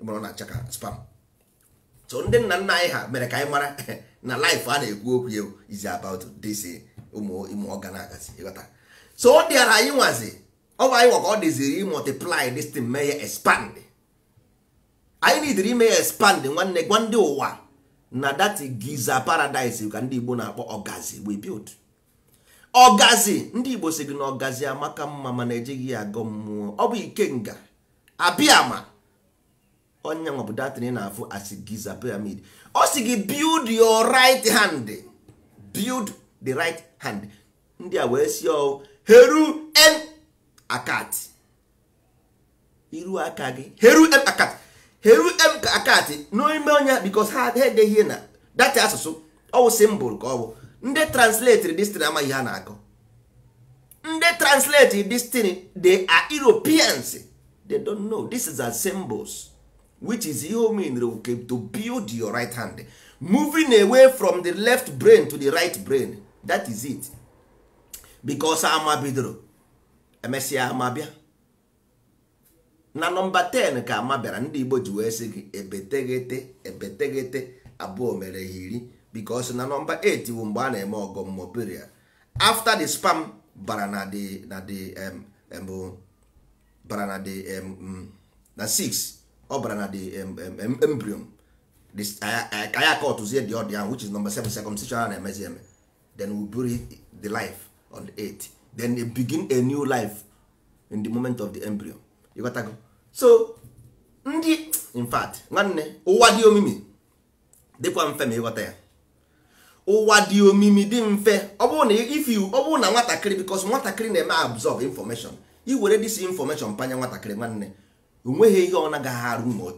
na spam so ndị nna nna anyị mere ka anyị mara na a na-ekwu okwu ka ọ dịziri mee ya anyị nidiri ime ya expand nwanne gwa ndị ụwa na that giza paradise ka ndị igbo na-akpọ ọgazi we build ọgazi ndị igbo si gị na ọgazi amaka mma mana ejighị ya agọ mmụọ ọ bụ ikenga abịama onye nwa bụ datịrị na-afụ asị giza pyramid ọ si gị build your right hand build the right hand ndị a wee si ọ heru en akat iru aka gị heru en akat ha eru akatị n'ime onye because ha edeghị na data asụsụ ọwụ simbụl ka ọ bụ ndị translate destin amaghị ha na-akọ ndị translate destin they are Europeans they don't know this is a symbols which is ihe mean to build your right hand moving away from the left brain to the right brain that is it because ama i emesịa a bịa na nọmba 10 ka ama bịara ndị igbo ji wee sị gị ebeteghete ebeteghete abụọ mere ha iri because na nọmba 8 bụ mgbe a na-eme ọgọ mmụọ period after the spam bara na the na the um, bara na the um, na 6 ọ bara na the um, embryon ka ya kọtụzie dị ọdị ahụ which is number 7 circumcision a na-emezi eme then we bury the life on the 8 then they begin a new life in the moment of the embryo ịghọtago so ndị in nwanne ụwa dị omimi dịkwa mfe ma ịghọta ya ụwa dị omimi dị mfe ọ bụrụ na ifi ọ bụrụ na nwatakịrị bikos nwatakịrị na-eme absorb information iwere dis information panye nwatakịrị nwanne onweghị ihe ọ nagaghị arụ ma o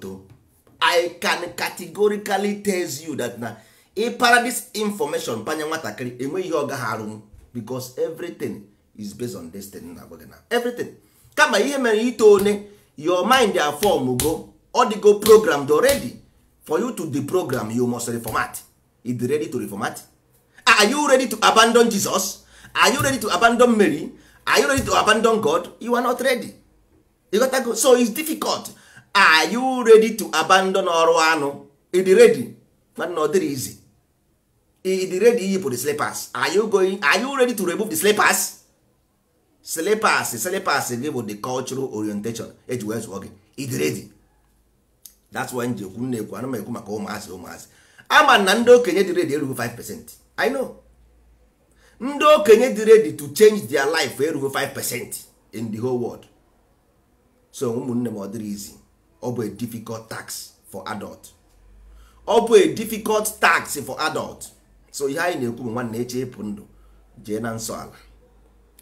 i can categorically tell you that na ịpara this information panye nwatakịrị enweghị ihe ọ gaghị arụ bikos everything is based on destiny na agwa na everything kama ihe mere ito one your mind are form go odigo programmed already for you to deprogram you must reformat is ready to reformat ah, are you ready to abandon jesus are you ready to abandon mary are you ready to abandon god you are not ready you got to go. so it's difficult are you ready to abandon ọrụ anụ is ready but not dịrị easy is ready iyipụ the slippers are you going are you ready to remove the slippers silipas silipas gị bụ the cultural orientation eji wee zụọ gị idiredi that's why nji ekwu na-ekwu ana ekwu maka ụmụazị ụmụazị ama na ndị okenye dị redi erughị 5% I know ndị okenye dị redi to change their life eh, erughị 5% in the whole world so ụmụnne m ọ dịrị izi ọ bụ a difficult tax for adult ọ bụ a difficult tax for adult so ihe anyị na-ekwu bụ nwanne eche ịpụ ndụ jee na nsọ ala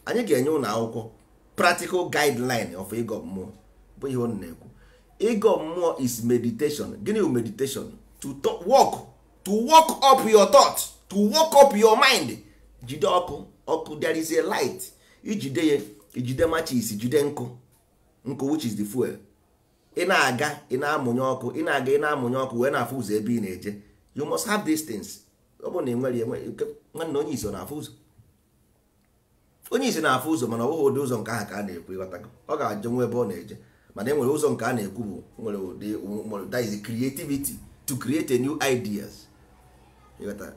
anyị ga-enye ụlọ akwụkwọ practical guideline of ego mmụọ bụ ihe ọ na-ekwu mmụọ is meditation gịnị bụ meditation to work. to work up your thought to work up your mind jide ọkụ ọkụ there is a light ijide ya ijide machis jide nkụ nkụ which is the fuel ị na-aga ị na-amụnye ọkụ ị na-aga ị na-amụnye ọkụ wee na-afụ ụzọ ebe ị na-eje you must have these things ọ bụrụ na ị nwere nwanne onye iso na-afụ ụzọ onye isi na-afụ ụzọ mana ọ bụghị ụdị ụzọ nke ahụ ka a na-ekwu ịghọta ọ ga-ajụ nwa ebe ọ na-eje mana e nwere ụzọ nke a na-ekwu bụ nwere ụdị that is creativity to create a new ideas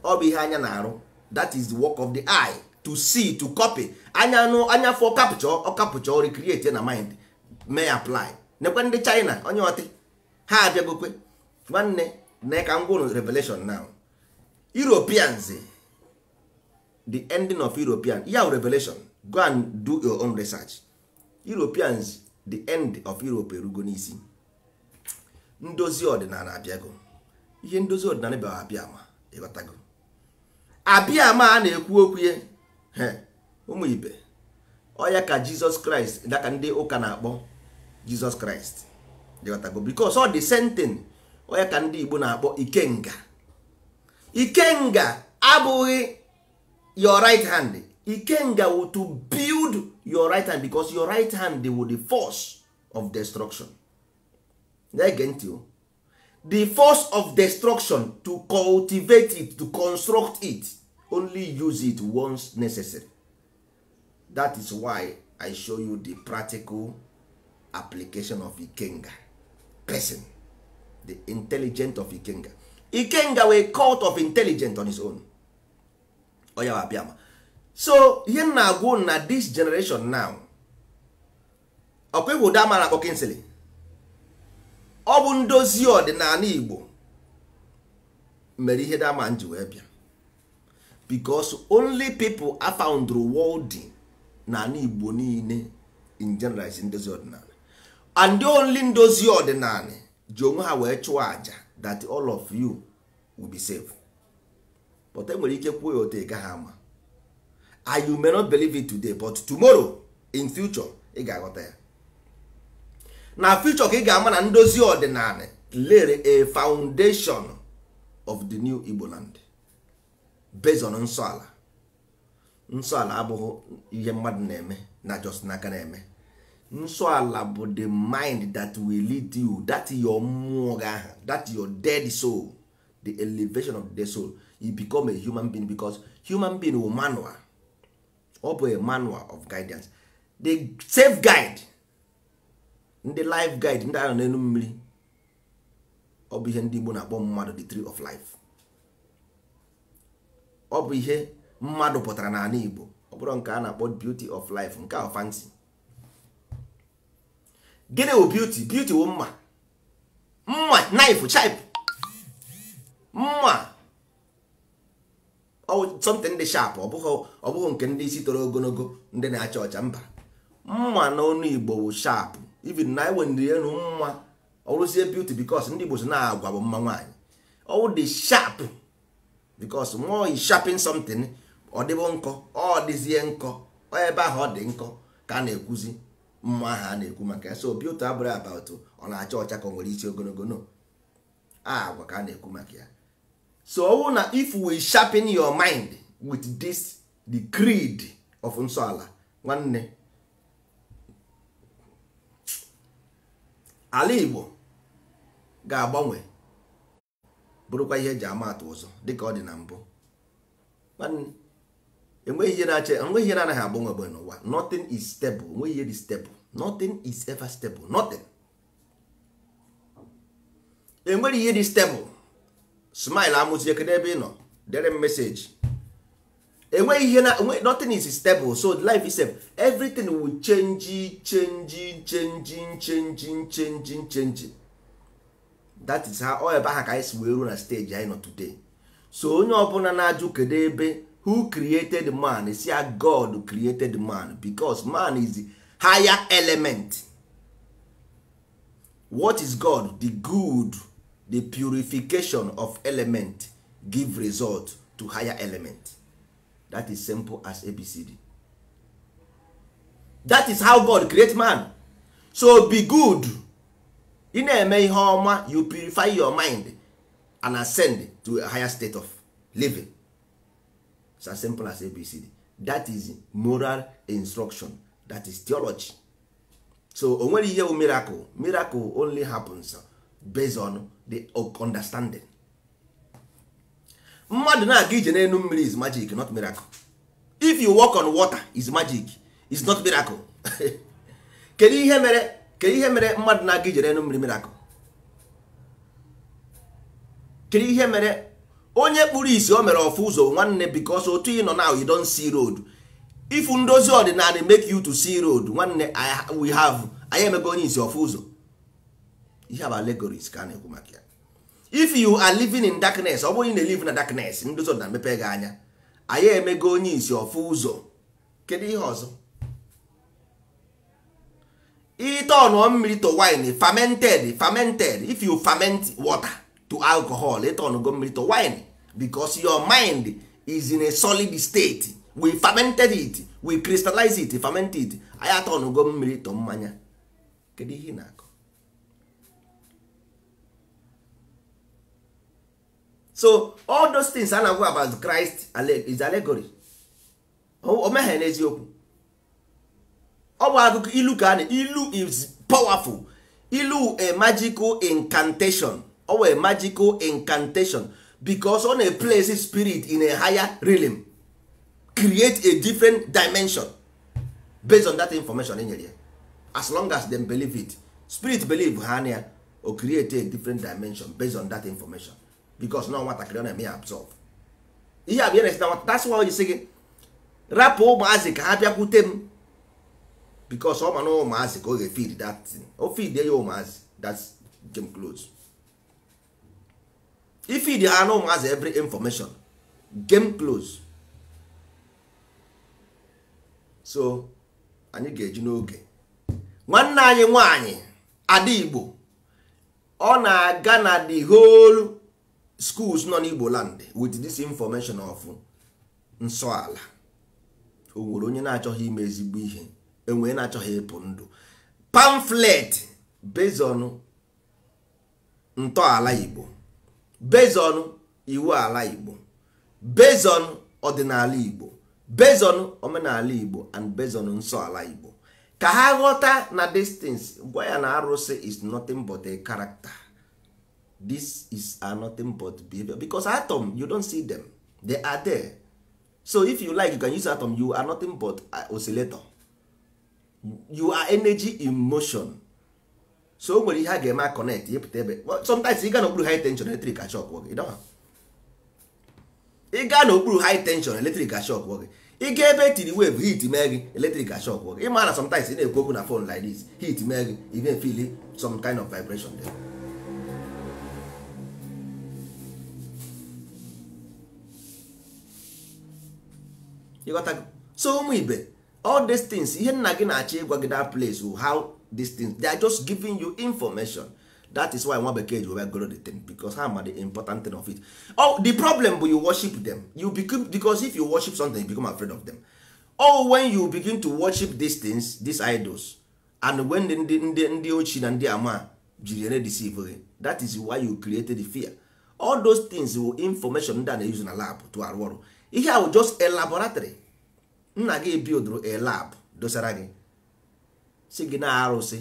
ọ bụ ihe anya na-arụ that is the work of the eye to see to copy anya nụ anya fọ kapchọ ọ kapchọ recreate na mind mee apply nekwe ndị China onye ọtị ha abịagokwe nwanne na ka m revelation now Europeans the ending of european ya revelation go and do your own research europeans the end of europe erugo n'isi ndozi ọdịnala abịago ihe ndozi ọdịnala bịara abịa ma ịghọtago abịa a na-ekwu okwu ya ụmụ ibe ọya ka jizọs kraịst daka ndị ụka na-akpọ jizọs kraịst ịghọtago bikos ọ dị sentin ọya ka ndị igbo na-akpọ ikenga ikenga abụghị your right hand ikenga will to build your right hand because your right hand will the force of destruction na get ntị the force of destruction to cultivate it to construct it only use it once necessary that is why i show you the practical application of ikenga person the intelligent of ikenga ikenga a cult of intelligent on his own ọ ya abịa ma so ihe m na-agwụ na this generation now ọkwa ịhụ ụda amara akpọ ọ bụ ndozi ọdịnala Igbo mere ihe dama ji wee bịa because only people a found n'ala Igbo niile in general is ndozi ọdịnala and the only ndozi ọdịnala ji onwe ha wee chụọ aja that all of you will be safe. but enwere ike kwuo ya otu ị ama I you may not believe it today but tomorrow in future ị ga-aghọta ya na future ka ị ga-ama na ndozi ọdịnala lere a foundation of the new Igbo land based on nsọala. Nsọala abụghị ihe mmadụ na-eme na just n'aka na-eme Nsọala bụ the mind that will lead you that your mmụọ gị that your dead soul the elevation of the soul He become a human being because human being will manual ọ bụ a manual of guidance the safe guide ndị life guide ndị anọ n'elu mmiri ọ bụ ihe ndị Igbo na-akpọ mmadụ the tree of life ọ bụ ihe mmadụ pụtara n'ala Igbo ọ bụrụ nke a na-akpọ beauty of life nke ahụ fancy gịnị wụ beauty beauty wụ mma mma knife chip mma something dị sharp ọ bụghị nke ndị isi toro ogologo ndị na-acha ọcha mba mma n'ọnụ igbo bụ sharp even na iwenrienu mma ọrụzie beauty because ndị igbo so na-agwa bụ mma nwaanyị ọwụ dị sharp because nwa oyi sharpin something ọ dịbụ nkọ ọ dịzie nkọ ebe ahụ ọ dị nkọ ka a na-ekwuzi mma ha a na-ekwu maka ya so beauty abụrị abat ọ na-acha ọcha ka ọ nwere isi ogologo no agwa ka a na-ekwu maka ya so ọwụ na if we sharpen your mind with this the creed of nsọala nwanne ala igbo ga-agbanwe bụrụkwa ihe eji ama atụ ụzọ dịka ọ dị na mbụ enweghị ihe na-ache enweghị ihe na-anaghị agbanwe agbanwe n'ụwa nothing is stable enweghị ihe dị stable nothing is ever stable nothing enweghị ihe dị stable smile I kedu ebe ị nọ dere m meseji enweghị ihe na nothing is stable so life is stable everything will change change change change change change that is how all ebe aha ka anyị si wee ruo na stage anyị nọ today so onye ọbụla na-ajụ kedu ebe who created man is a god created man because man is the higher element what is god the good the purification of element give result to higher element that is simple as abcd that is how god create man so be good ị na-eme ihe ọma you purify your mind and ascend to a higher state of living it's as simple as abcd that is moral instruction that is theology so o nwere ihe bụ miracle miracle only happens based on the understanding mmadụ na-aga ije n'elu mmiri is magic not miracle if you walk on water is magic is not miracle kedu ihe mere kedu ihe mere mmadụ na-aga ije n'elu mmiri miracle kedu ihe mere onye kpụrụ isi o mere ofu ụzọ nwanne because otu ị nọ now you don see road ifu ndozi ọdịnala make you to see road nwanne we have anyị emego onye isi ofu ụzọ ihe bụ allegories ka a na-ekwu maka ya if you are living in darkness ọ bụrụ ị na-elive na darkness ndị ụzọ na-emepe gị anya anyị emego onye isi ọfụ ụzọ kedu ihe ọzọ ọnụọ mmiri to wine fermented fermented if you ferment water to alcohol ịtọnụgo mmiri to wine because your mind is in a solid state we fermented it we crystallize it ferment it anyị atọnụgo mmiri to mmanya kedu ihe na-akọ so all those things a na-agwa about Christ is allegory o meghị n'eziokwu ọ bụ akụkọ ilu ka na ilu is powerful ilu a eh, magical incantation or a magical incantation because ọ na-place spirit in a higher realm create a different dimension based on that information as long as them believe it spirit believe ha na ya o create a different dimension based on that information because na nwatakịrị ọ na-eme ya absorb ihe a bụ ihe na-esita nwata that's why o ji sị gị rapụ ụmụazị ka ha bịakwute m because ọ ma na ụmụazị ka ọ ga-efid that thing o ya ụmụazị that's game close ifid ha na ụmụazị every information game close so anyị ga-eji n'oge nwanne anyị nwanyị ada igbo ọ na-aga na the whole schools nọ n'igbo land with this information of nsọ o nwere onye na-achọghị ime ezigbo ihe enwee na-achọghị ịpụ ndụ pamflet bezon ntọala igbo bezon iwu ala igbo bezon ọdịnala igbo bezon omenala igbo and bezon nsọ ala igbo ka ha ghọta na distance gwa ya na arụsị is nothing but a this is are nothing but behavior because atom you don't see them they are there so if you like you can use atom you are nothing but uh, oscillator you are energy in motion so o nwere ihe a ga-eme connect ịpụta ebe sometimes ị gaa n'okpuru high tension eletrik ashok gị ị gaa n'okpuru high tension electric shock gị ị gaa ebe etiri wave heat mee gị eletrik ashok gị ịma sometimes ị na-ekwu okwu na phone like this heat mee gị some kind of vibration there. so ụmụ ibe all these things ihe nna gị na-achọ ịgwa gị that place how these things they are just giving you information that is why nwa bekee ji were goro the thing because ha ma the important thing of it oh, the problem bụ you worship them you become, because if you worship something you become afraid of them oh when you begin to worship these things these idols and when ndị ndị ndị ochie na ndị ama jiri ere deceive gị that is why you created the fear all those things will information ndị a na-use na lab to arụ ọrụ ihe ahụ just a laboratory nna gị bildụrụ a lab dosara gị si gị na arụsị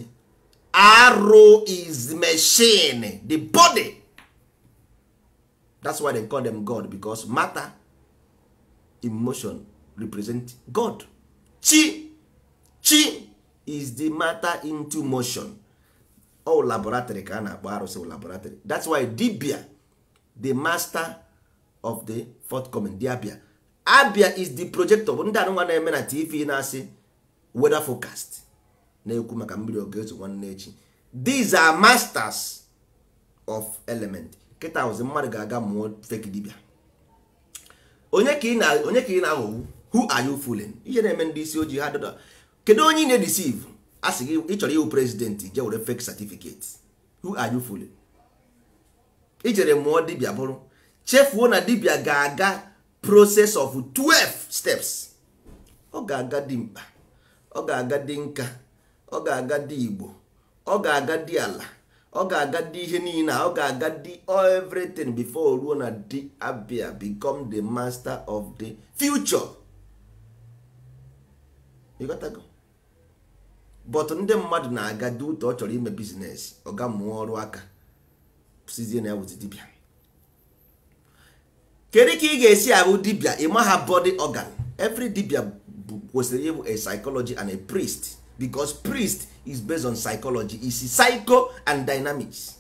arụ is machine the body that's why they call them god because matter emotion represent god chi chi is the matter into motion all laboratory ka a na-akpọ arụsị laboratory that's why dibia the master of the forthcoming the abia abia is the projector bụ ndị anụnwa na-eme na tv na-asị weather forecast na-ekwu maka mmiri ọ ga-ezo nwanne echi these are masters of element kịta ụzi mmadụ ga-aga mụọ fake dibia onye ka ị na-aghọgbu who are you fooling ihe na-eme ndị isi ojii ha dada kedu onye ị na-edisiv a sị gị ị chọrọ ịhụ prezidentị je were fake certificate who are you fooling ijere mụọ dibia bụrụ chefuo na dibia ga-aga process of 12 steps ọ ga-aga dị mkpa ọ ga-aga di nka ọ ga-aga di igbo ọ ga-aga di ala ọ ga-aga dị ihe niile ọ ga-aga di everything before ruo na di abia become the master of the future but ndị mmadụ na-aga dị ụtọ ọ chọrọ ime biznes ọ ga mụọ ọrụ aka sizie na ya wụzi dibia kedu ka ị ga-esi abụ dibia ịmaha body organ every dibia kwesịrị ịbụ a psychology and a priest because priest is based on psychology is psycho and dynamics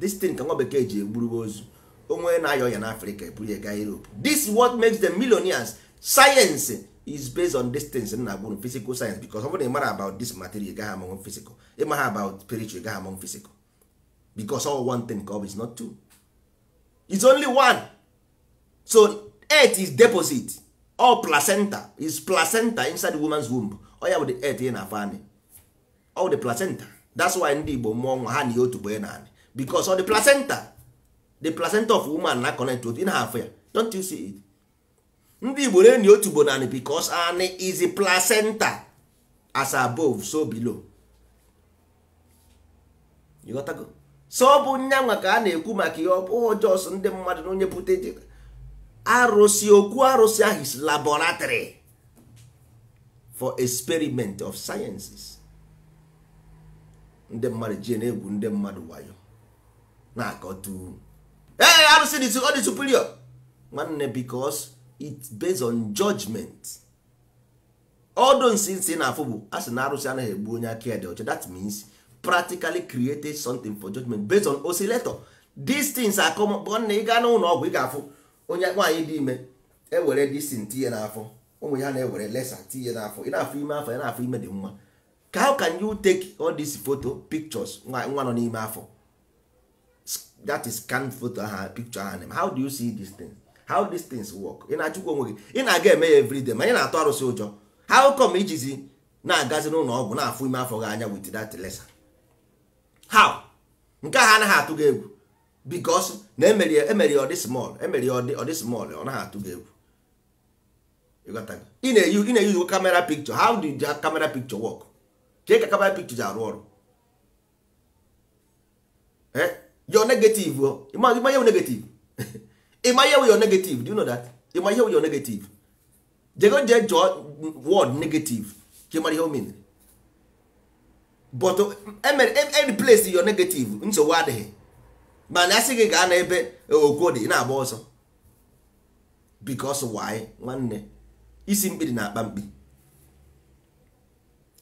this thing ka nwa bekee ji egburugo ozu onwe na-ayọ ya n'afrịka eburu ya gaa europe this is what makes them millionaires science is based on distance na agwụrụ physical science because ọ bụrụ na ịmara about this material gaghị among physical ịmaha about spiritual gaghị among physical because all one thing ka ọ bụ is not two is only one so earth is deposit all placenta is placenta inside woman's womb ọ ya bụ the earth ị na-afọ anị all the placenta that's why ndị Igbo mụọ nwa ha na otu bụ na anị because all the placenta the placenta of woman na connect otu ị na-afọ ya don't you see it ndị Igbo na-enyi otu bụ na naanị because anị is a placenta as above so below you got go so ọ bụ nyanwa ka a na-ekwu maka ihe ọ bụ jọs ndị mmadụ na onye pụta arụsị okwu arụsị ahụ is laboratory for experiment of sciences ndị mmadụ ji na-egwu ndị mmadụ wayo na-akọtu ee arụsị dị ọ dị superior nwanne because it's based on judgment odo nsi nsi na-afụ bụ a sị na arụsị anaghị egbu onye aka ya dị ọcha that means practically created something for judgment based on oscillator these things are common ị gaa n'ụlọ ọgwụ ị ga-afụ onye nwaanyị dị ime ewere disin tinye n'afọ ụmụ ya na-ewere lesa tinye n'afọ ị na afọ ime afọ ya na afọ ime dị mma ka how can you take all these photo pictures nwa nọ n'ime afọ that is scan photo aha picture aha how do you see these things how these things work ị na-achụkwa onwe gị ị na-aga eme ya everyday ma ị na-atụ arụsị ụjọ how come ijizi na-agazi n'ụlọ ọgwụ na-afụ ime afọ gị anya with that lesa how nke ahụ anaghị atụ gị egwu because na emere ọ dị small emere to give you got that? In a you in a you camera picture how did the camera picture work Take a camera picture ji Eh? You're negative oh. ịma ihe negative ịma ihe your negative do you know that ịma you're negative jego je jụọ word negative ka ịmara ihe o menere but emere replace your negative nsogbu adịghị mana asị gị gaa n'ebe e, okwo dị na-agba ọsọ because why nwanne isi mkpi dị na-akpa mkpi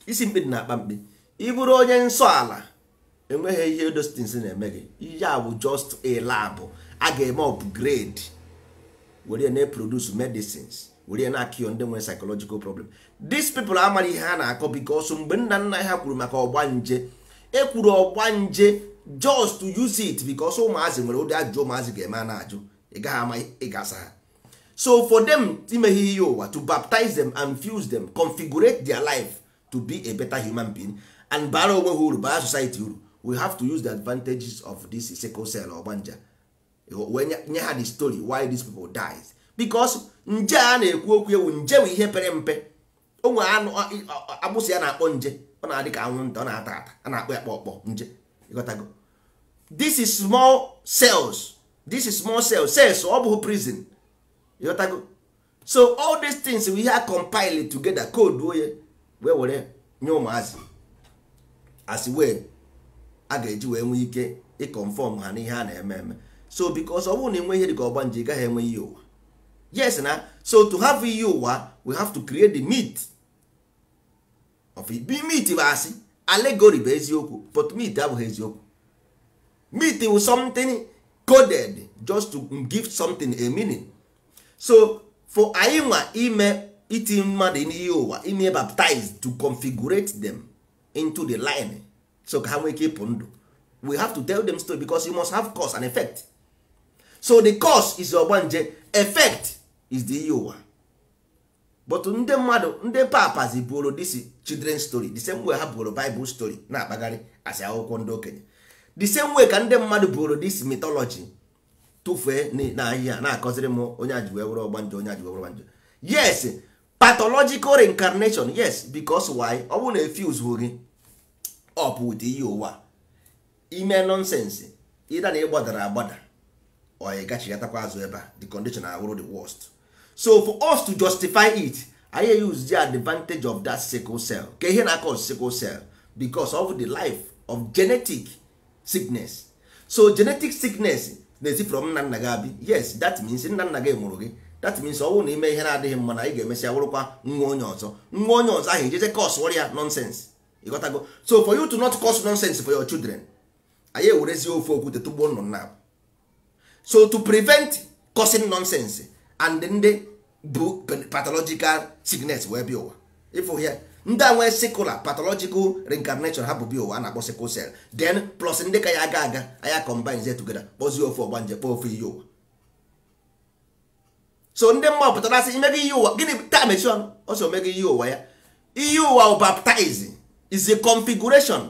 isi mkpi dị na-akpa mkpi ị onye nsọ ala enweghị ihe dostins na-eme gị ihe a bụ just a lab a ga-eme upgrade were na-eproduce medicines were na-akịọ ndị nwere psychological problem dis people amaghị ihe ha na-akọ ọsọ mgbe nna nna ha kwuru maka ọgbanje ekwuru ọgbanje just to use it because ụmụazị nwere ụdị ajụjụ ụmụazị ga-eme a na-ajụ ị gaghị ama ịgasa ha so for them imeghe ihe ụwa to baptize them and fuse them configurate their life to be a better human being and bara onwe ha uru bara society uru we have to use the advantages of this sickle cell ọgbanja wee nye ha the story why these people dies because nje a na-ekwu okwu ewu nje bụ ihe pere mpe onwe agbụsị ya na-akpọ nje ọ na-adị ka anwụ nta ọ na-ata ata a na-akpọ ya kpọ ọkpọ nje go. this is small cells this is small cells cells ọ bụghị prison ịghọtago so all these things we have compiled together code onye oh, wee were nye ụmụazị as wee a ga-eji wee nwee ike ịconfọm ha n'ihe a na-eme eme so because ọ bụrụ na enwe ihe dịka ọgbanje ị gaghị enwe ihe ụwa yes na so to have ihe ụwa we have to create the meat of it. Be meat bụ asị allegory bụ eziokwu but myth abụghị eziokwu myth wụ something coded just to give something a meaning so for anyị nwa ime iti mmadụ n'ihe ụwa ime baptized to configurate them into the line so ka ha nwee ike ịpụ ndụ we have to tell them story because you must have cause and effect so the cause is ogbanje effect is the ihe ụwa but ndị mmadụ ndị papazi buoro this children story the same way ha buoro Bible story na-akpagharị asị akwụkwọ ndị okenye the same way ka ndị mmadụ buoro this mitology tụfee n'ahịhịa na-akọziri m onye aji wee were ọgbanjọ onye aji wee were ọgbanjọ yes pathological reincarnation yes because why ọ bụrụ na efuse gị up with ihe ụwa ime nonsense ịda na ịgbadara agbada ọ gachigatakwa azụ ebe a the condition awụrụ the worst so for us to justify it anyị use the advantage of that sickle cell ka ihe na-akọ sickle cell because of the life of genetic sickness so genetic sickness na-esi from nna nna gị yes that means nna nna gị mụrụ gị that means ọ bụrụ na ime ihe na-adịghị mma na ị ga-emesịa wụrụkwa nwa onye ọzọ nwa onye ọzọ ahụ cos nonsense ịghọtago so for you to not cause nonsense for your children anyị ewerezie ofe okwute tụgbuo nnụnụ now. so to prevent causing nonsense and ndị bụ pathological sickness wee bịa ụwa ịfụ ya ndị a nwee sikular pathological reincarnation ha bụ bịa ụwa a na-akpọ sickle cell then plus ndị ka ya aga aga anya combine ze together kpọzie ofe ọgbanje kpọọ ofe iyi ụwa so ndị mma pụtara asị imeghe iyi ụwa gịnị taa mechi ọnụ ọsọ omego iyi ụwa ya iyi ụwa baptize is a configuration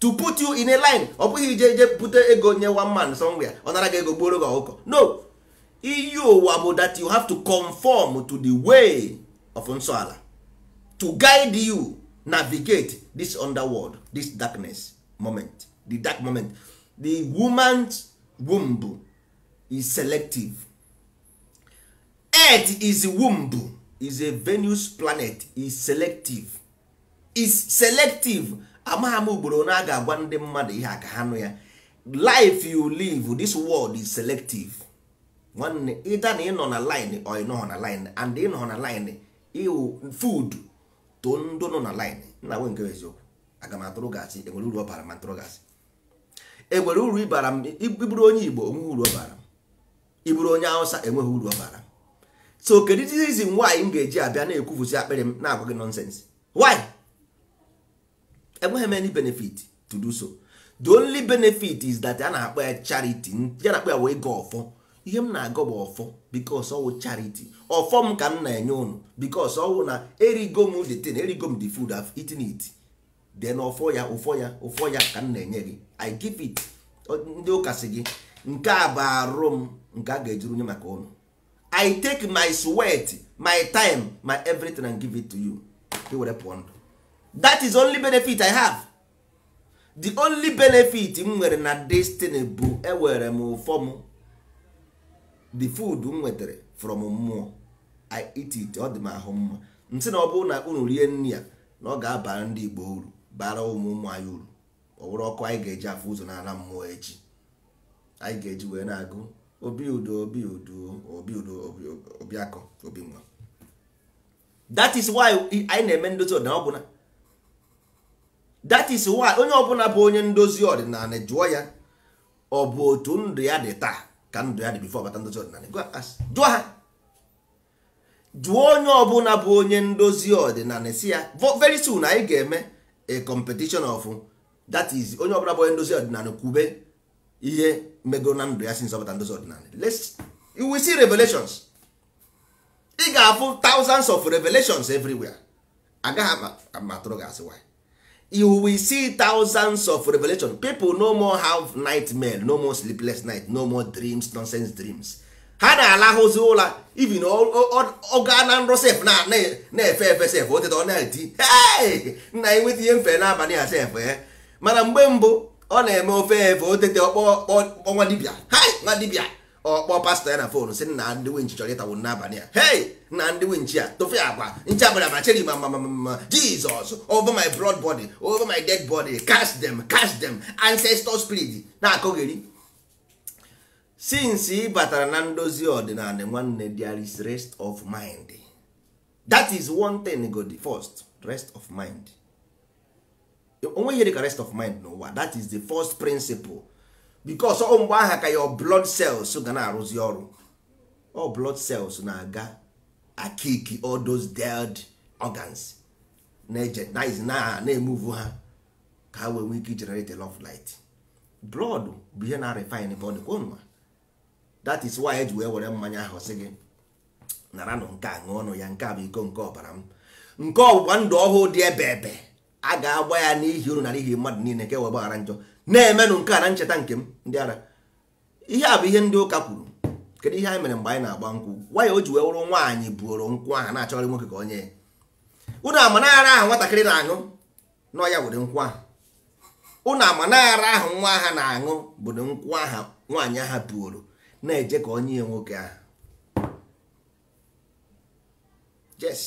to put you in a line ọ bụghị ije ije bute ego nye one man somewhere ọ nara gị ego gbuoro gị ọkụkọ no iyi ụwa that you have to conform to the way of nsọala to guide you navigate this underworld this darkness moment the dark moment the woman's womb is selective earth is womb is a venus planet is selective is selective amagha m ugboro na a agwa ndị mmadụ ihe ha nụ ya life you live this world is selective nwanne ịda na ịnọ na line ọ ịnọghọ na line and ịnọ na line iwu food to ndụ nọ na line na nwe nke eziokwu aga m atụrụ gasị enwere uru ọ bara ma ntụrụ gasị enwere uru ịbara m ịbụrụ onye igbo enweghị uru ọ bara m iburu onye Awụsa enweghị uru ọ bara m so kedu reason nwaanyị m ga-eji abịa na-ekwufusi akpịrị m na-agwa gị nonsense why enweghị m any benefit to do so the only benefit is that a na-akpọ ya charity ya na-akpọ ya wee ịga ọfọ ihe m na-agọ bụ ọfọ bikos ọwụ chariti ọfọ m ka m na-enye ụnụ bikos ọwụ na erigo m the thing erigo m the food I've eaten then ọfọ ya ụfọ ya ụfọ ya ka m na-enye gị i give it ndị ụka si gị nke a bụ arụ m nke a ga-ejuru nye maka ụnụ i take my sweat my time my everything and give it to you i were pụọ ndụ that is only benefit i have the only benefit m nwere na destiny bụ enwere m ụfọ m the food m nwetara from mmụọ i eat it ọ dị m ahụ mma nsị na ọ bụrụ na unu rie nri ya na ọ ga-abara ndị igbo uru bara ụmụ ụmụ anyị uru ọ bụrụ ọkụ anyị ga-eji afọ ụzọ na-ala mmụọ echi anyị ga-eji wee na-agụ obi udo obi udo obi udo obi akọ obi nwa that is why anyị na-eme ndozi ọdịnala ọbụla that is why onye ọbụla bụ onye ndozi ọdịnala jụọ ya ọ bụ otu ndụ ya dị taa ka ndụ ya dị bifo bata ndozi ọdịnala jụọ ha jụọ onye ọbụla bụ onye ndozi ọdịnala si ya very soon anyị ga-eme a competition of that is onye ọbụla bụ onye ndozi ọdịnala kwube ihe megoro na ndụ ya si nzọpụta ndozi ọdịnala you will see revelations ị ga-afụ thousands of revelations everywhere agaghị amatụrụ gị asị why you will see thousands of revelation people no more have nightmare no more sleepless night no more dreams nonsense dreams ha na-alahụzi ụla even ọga na alahuzi you even oga na nro sef na-efe efe sef oteta ọ na-eti nna ya nweta ihe mfe n'abalị a sef e eh. mana mgbe mbụ ọ na-eme ofe efe otete ọkpọ ọnwa dibịa nwa ọ kpọọ pastọ ya na fon sị na ndị winchi chọrọ ịtawo n'abalị a hei na ndị winchi a tofe agwa nche abara macheri ma ma ma jizọs over my broad body over my dead body cast them cast them ancestor spirit na-akọgheri since ị batara na ndozi ọdịnala nwanne there is rest of mind that is one thing go the first rest of mind onweghị dịka rest of mind n'ụwa that is the first principle bikos ọ mgbe aha ka your blood cells ga na-arụzi ọrụ ọ blood cells na-aga akiki all those dead organs na-emuvu ha ka ha wee nwee ike generate love light blood bụ ihe na-refine body kwa that is why eji wee were mmanya ahụ sị gị nụ nke a ṅụọ ọnụ ya nke a bụ iko nke ọbara m nke ọgbụgba ndụ ọhụụ dị ebe ebe a ga-agba ya n'ihi uru na n'ihi mmadụ niile nke wee gbaghara njọ na-emenụ nke a na ncheta nke m ndị ara ihe a bụ ihe ndị ụka kwuru kedu ihe anyị mere mgbe anyị na-agba nkwụ nwaanyị o ji wee wụrụ nwaanyị buoro nkwụ ahụ na-achọrọ nwoke ka onye ụnụ amanara ahụ nwatakịrị na-aṅụ n'ọya were nkwụ ahụ ụnụ amanara ahụ nwa ha na-aṅụ bụ nkwụ aha nwaanyị aha buoro na-eje ka onye nwoke ahụ yes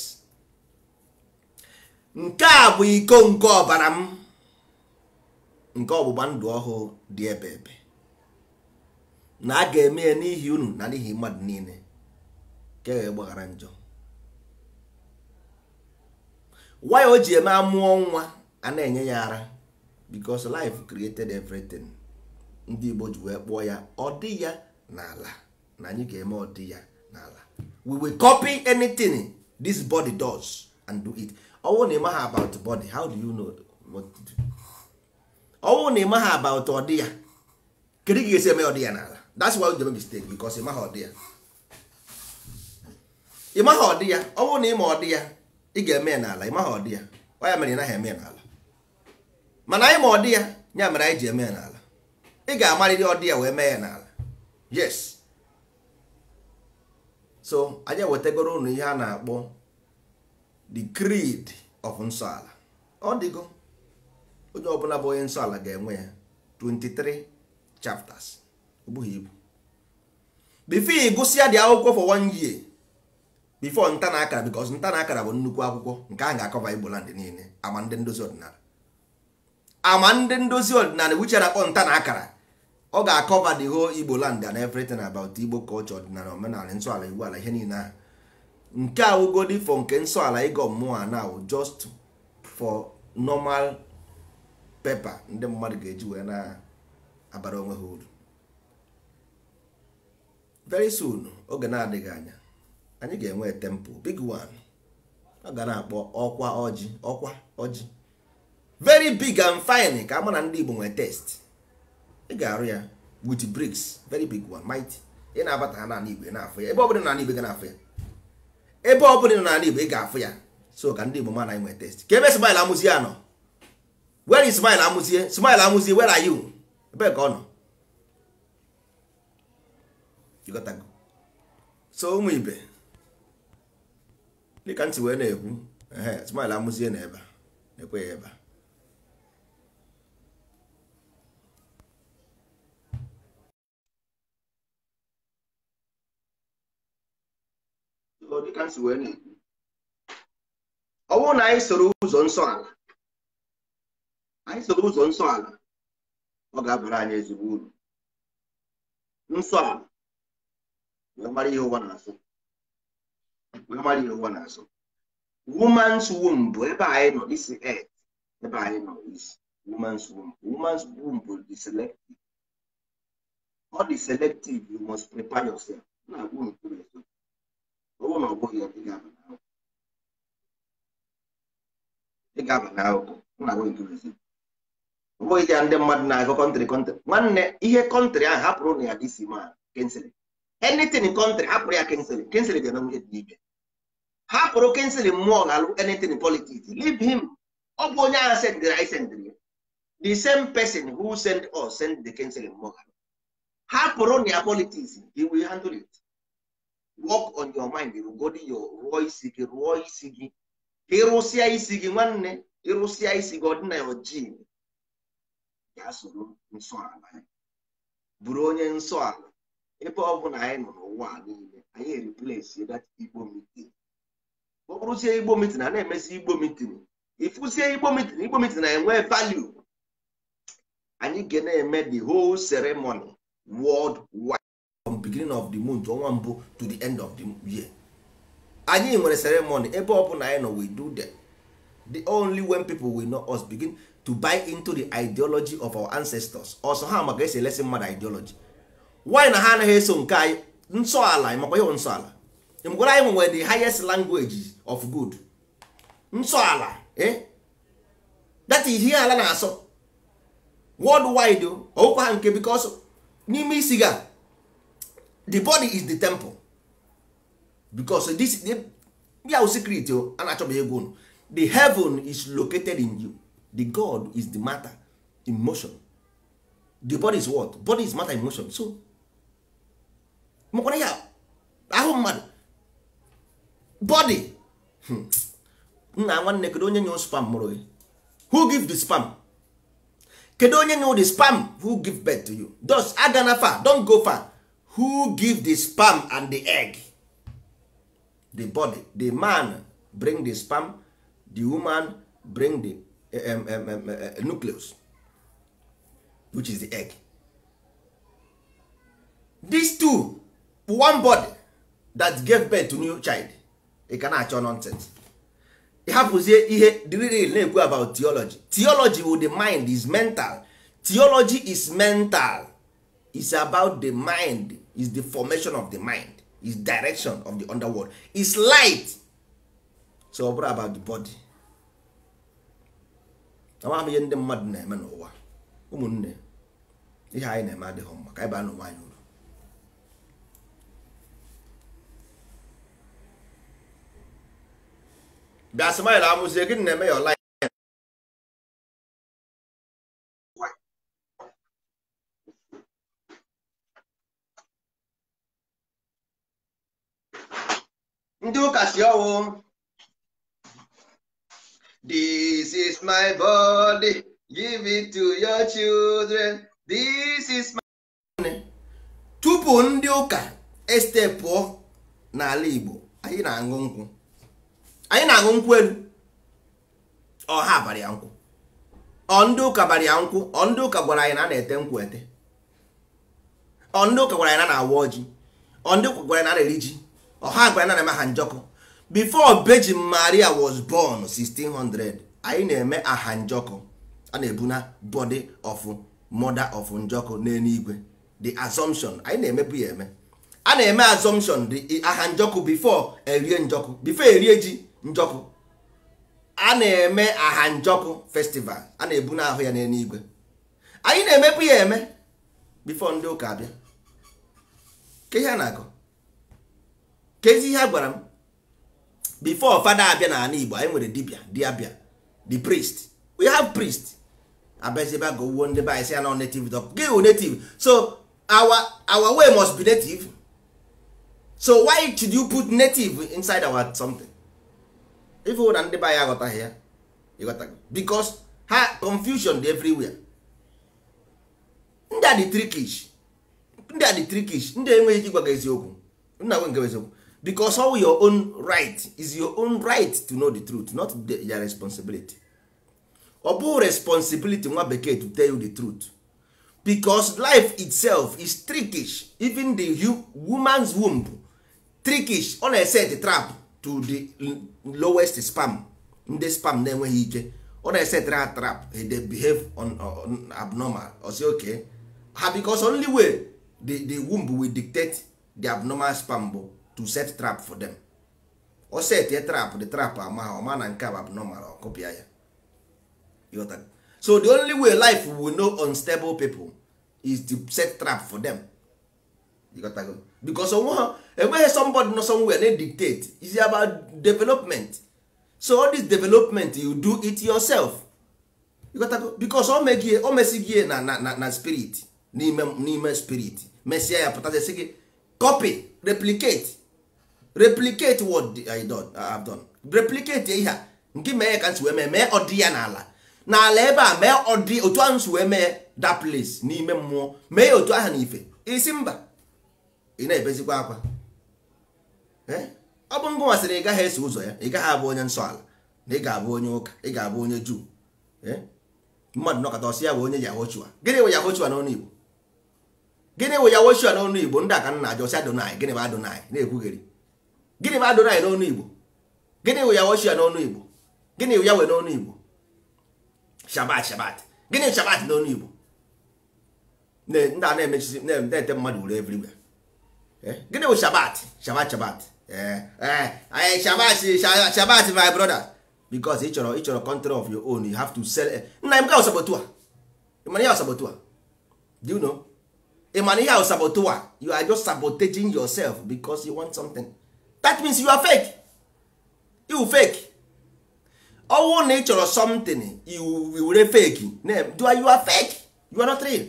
nke a bụ iko nke ọbara m nke ọgbụgba ndụ ọhụụ dị ebe ebe na a ga-eme ya n'ihi unu na n'ihi mmadụ niile ka e gbaghara njọ Why o ji eme amụọ nwa a na-enye ya ara because life created everything ndị Igbo ji wee kpụọ ya ọ dị ya n'ala na anyị ga-eme ọ dị ya n'ala we will copy anything this body does and do it ọ bụrụ na ị maghị about body how do you know ọnwụ na ịmaghị aba ụtọ dị ya kedu ga esi eme ọ dị ya n'ala that's why you mistake because ịmaghị ọ dị ya ịmaghị ọ dị ya ọnwụ na ịma ọ dị ya ị ga-eme ya n'ala ịmaghị ọ dị ya ọ ya mere ịnaghị eme n'ala mana anyị ma ọ dị ya ya mere anyị ji eme ya n'ala ị ga-amarịrị ọ dị ya wee mee ya n'ala yes so anya wetagoro unu ihe a na-akpọ the creed of nsọ ala ọ dịgo onye ọbụla bụ onye nsọ ala ga-enwe ya 23 chapters ogbughị ibu before ị gụsịa dị akwụkwọ for one year before nta na akara because nta na akara bụ nnukwu akwụkwọ nke a ga-akọba Igbo land niile ama ndị ndozi ọdịnala ama ndị ndozi ọdịnala wiche na-akpọ nta na akara ọ ga-akọba the whole Igbo land and everything about Igbo culture ọdịnala omenala nsọ ala Igbo ala ihe niile ahụ nke awụgodi fọ nke nsọ ala ịgọ mmụọ a now just for normal pepa ndị mmadụ ga-eji wee na-abara onwe ha uru very soon oge na-adịghị anya anyị ga-enwe tempo big one ọ ga na-akpọ ọkwa ọjị ọkwa ọjị very big and fine ka ama na ndị Igbo nwee test ị ga-arụ ya with bricks very big one mighty ị na-abata ha n'ala Igbo ị na-afụ ya ebe ọbụla n'ala Igbo ị na-afụ ya ebe ọbụla n'ala Igbo ị ga-afụ ya so ka ndị Igbo ma na anyị nwee test ka ebe sibaila amụzi ya where is smile amuzie? smile amuzie where are you ebe ka ọ nọ so ụmụ ibe dịka ntị wee na-ekwu ehe smile amuzie na ebe na-ekwe ya ebe ọ bụrụ na anyị soro ụzọ nsọ ala anyị soro ụzọ nsọ ala ọ ga-abụrụ anyị ezigbo uru nsọ ala wee mara ihe ụwa na-asụ wee mara ihe ụwa na-asụ woman's womb bụ ebe anyị nọ isi et ebe anyị nọ isi woman's womb woman's womb bụ the ọ dị selective you must prepare yourself na agwụ nkuru eto ọ na ọ bụghị ya ị ga-aba n'ahụhụ na agwụ bụghị ya ndị mmadụ na-agụ kọntrị kọntrị nwanne ihe kọntrị ahụ hapụrụ na ya dc ma kensịl enitin kọntrị hapụrụ ya kensịl kensịl dị na nwunye dị n'ibe hapụrụ kensịl mmụọ na-alụ enitin politiks leave him ọ bụ onye agha sendịrị anyị sendịrị ya the same person who send us send the kensịl mmụọ hapụrụ na ya politiks he will handle it work on your mind rugodi yo rụọ isi gị rụọ isi gị ịrụsịa isi gị nwanne ịrụsịa isi gị ọdịna ojii ya soro nsọala ya bụrụ onye nsọala ebe ọ na anyị nọ n'ụwa niile anyị eriplesi dat igbo mitin ọ bụrụzie igbo mitin a na-emesi igbo mitin ịfụzie igbo mitin igbo mitin na-enwe value anyị ga na-eme the whole ceremony world wide from beginning of the month ọnwa mbụ to the end of the year anyị nwere ceremony ebe ọ na anyị nọ we do them the only when people will know us begin to buy into the ideology of our ancestors ọsọ ha maka esi elesi mmadụ ideology why na ha anaghị eso nke anyị nsọala makwa ihe nsọala mgwara anyị nwere the highest language of good nsọala eh that is ihe ala na-asọ worldwide ọwụkwa ha nke because n'ime isi ga the body is the temple because this ya secret a na-achọbeghị egwu the heaven is located in you the god is the matter in motion the body is what body is matter in motion so makwara ya ahụ mmadụ body hmm. nna nwanne kedu onye nye spam mụrụ gị who give the spam kedu onye nye the spam who give birth to you thus agana far Don't go far who give the spam and the egg the body the man bring the spam the woman bring the um, um, um, uh, uh, nucleus which is the egg these two one body that gave birth to new child ị ka na-achọ nonsense ị ihe dril na-ekwu about theology theology with the mind is mental theology is mental is about the mind is the formation of the mind is direction of the underworld is light so ọ bụrụ about the body amaghị m ihe ndị mmadụ na-eme n'ụwa ụmụnne ihe anyị na-eme adịghị mma ka anyị baa n'ụwa anyị uru bịa smile amụzie gịnị na-eme ya ọla ndị ụka si ọwụ This is my body, give it to your children. This is my. Tupu ndị ụka este pụọ n'ala Igbo, anyị na-aṅụ nkwụ. Anyị na-aṅụ nkwụ elu. Ọ ha ya nkwụ. Ọ ndị ụka bara ya nkwụ, ọ ndị ụka gwara anyị na a na-ete nkwụ ete. Ọ ndị ụka gwara anyị na a na-awa ọjị. Ọ ndị ụka gwara anyị na a na-eri ji. Ọ gwara anyị na a na-eme ha njọkụ. before Virgin Maria was born 1600 anyị na-eme aha njọkụ a na-ebu na body of mother of njọkụ n'eluigwe the assumption anyị na-emebu ya eme a na-eme assumption the aha njọkụ before erie njọkụ before erie ji njọkụ a na-eme aha njọkụ festival a na-ebu na ahụ ya n'eluigwe anyị na-emebu ya eme before ndị ụka abịa ke ihe a na-akọ kezi ihe a gwara m before fada abịa na ala igbo anyị nwere dibia diabia the priest we have priest abeziba go wuo ndị banyị si ya na native dog gị wụ native so our our way must be native so why should you put native inside our something If ife na ndị banyị aghọtaghị ya ịghọtago because ha confusion dị everywhere ndị a dị trickish ndị a dị trickish ndị enweghị ike ịgwa gị eziokwu nna nwe nke eziokwu because all your own right is your own right to know the truth not their responsibility ọ bụ responsibility nwa bekee to tell you the truth because life itself is trickish even the woman's womb trickish ọ na-ese the trap to the lowest spam ndị spam na-enweghị ike ọ na-ese tra trap eh, they behave on, on abnormal or say okay ha ah, because only way the, the womb will dictate the abnormal spam bụ to set trap for them o set a trap the trap ama ah, ha ọma na nke a bụ abnormal ọkụpịa ya ịghọta so the only way life will know unstable people is to set trap for them ịghọtago because onwe ha enweghị somebody nọ somewhere na dictate is about development so all this development you do it yourself ịghọtago because o megie o mesigie na na na spirit n'ime n'ime spirit mesịa ya pụtazie sị gị copy replicate replicate what I done, I have done replicate ihe a nke mee ka nsi wee mee mee ọdị ya n'ala n'ala ebe a mee ọdị otu ahụ nsi wee mee that place n'ime mmụọ mee ya otu ahụ n'ife ife isi mba ị na-ebezikwa akwa eh? ọ bụ ngụ masịrị ị gaghị eso ụzọ ya ị gaghị abụ onye nsọ ala na ị ga-abụ onye ụka ị ga-abụ onye juu eh? mmadụ nọkọta ọsị ya bụ onye yahochua gịnị wụ yahochua n'ọnụ igbo gịnị wụ yahochua n'ọnụ igbo ndị aka nna ajọsi adonai gịnị bụ adonai na-ekwugheri gịnị bụ adonai n'ọnụ igbo gịnị wụ ya woshia n'ọnụ igbo gịnị wụ ya wee n'ọnụ igbo shabat shabat gịnị shabat n'ọnụ igbo ndị a na-emechisi na-ete mmadụ ure everywhere eh? gịnị wụ shabat shabat shabat shabat eh, eh, shabat my brother because ị chọrọ ị chọrọ control of your own you have to sell nna m ga ọsọbọtu a ịmana ihe ọsọbọtu a do you know ịmana ihe ọsọbọtu a you are just sabotaging yourself because you want something that means you are fake you fake ọnwụ na ị chọrọ something you were fake name do you are fake you are not real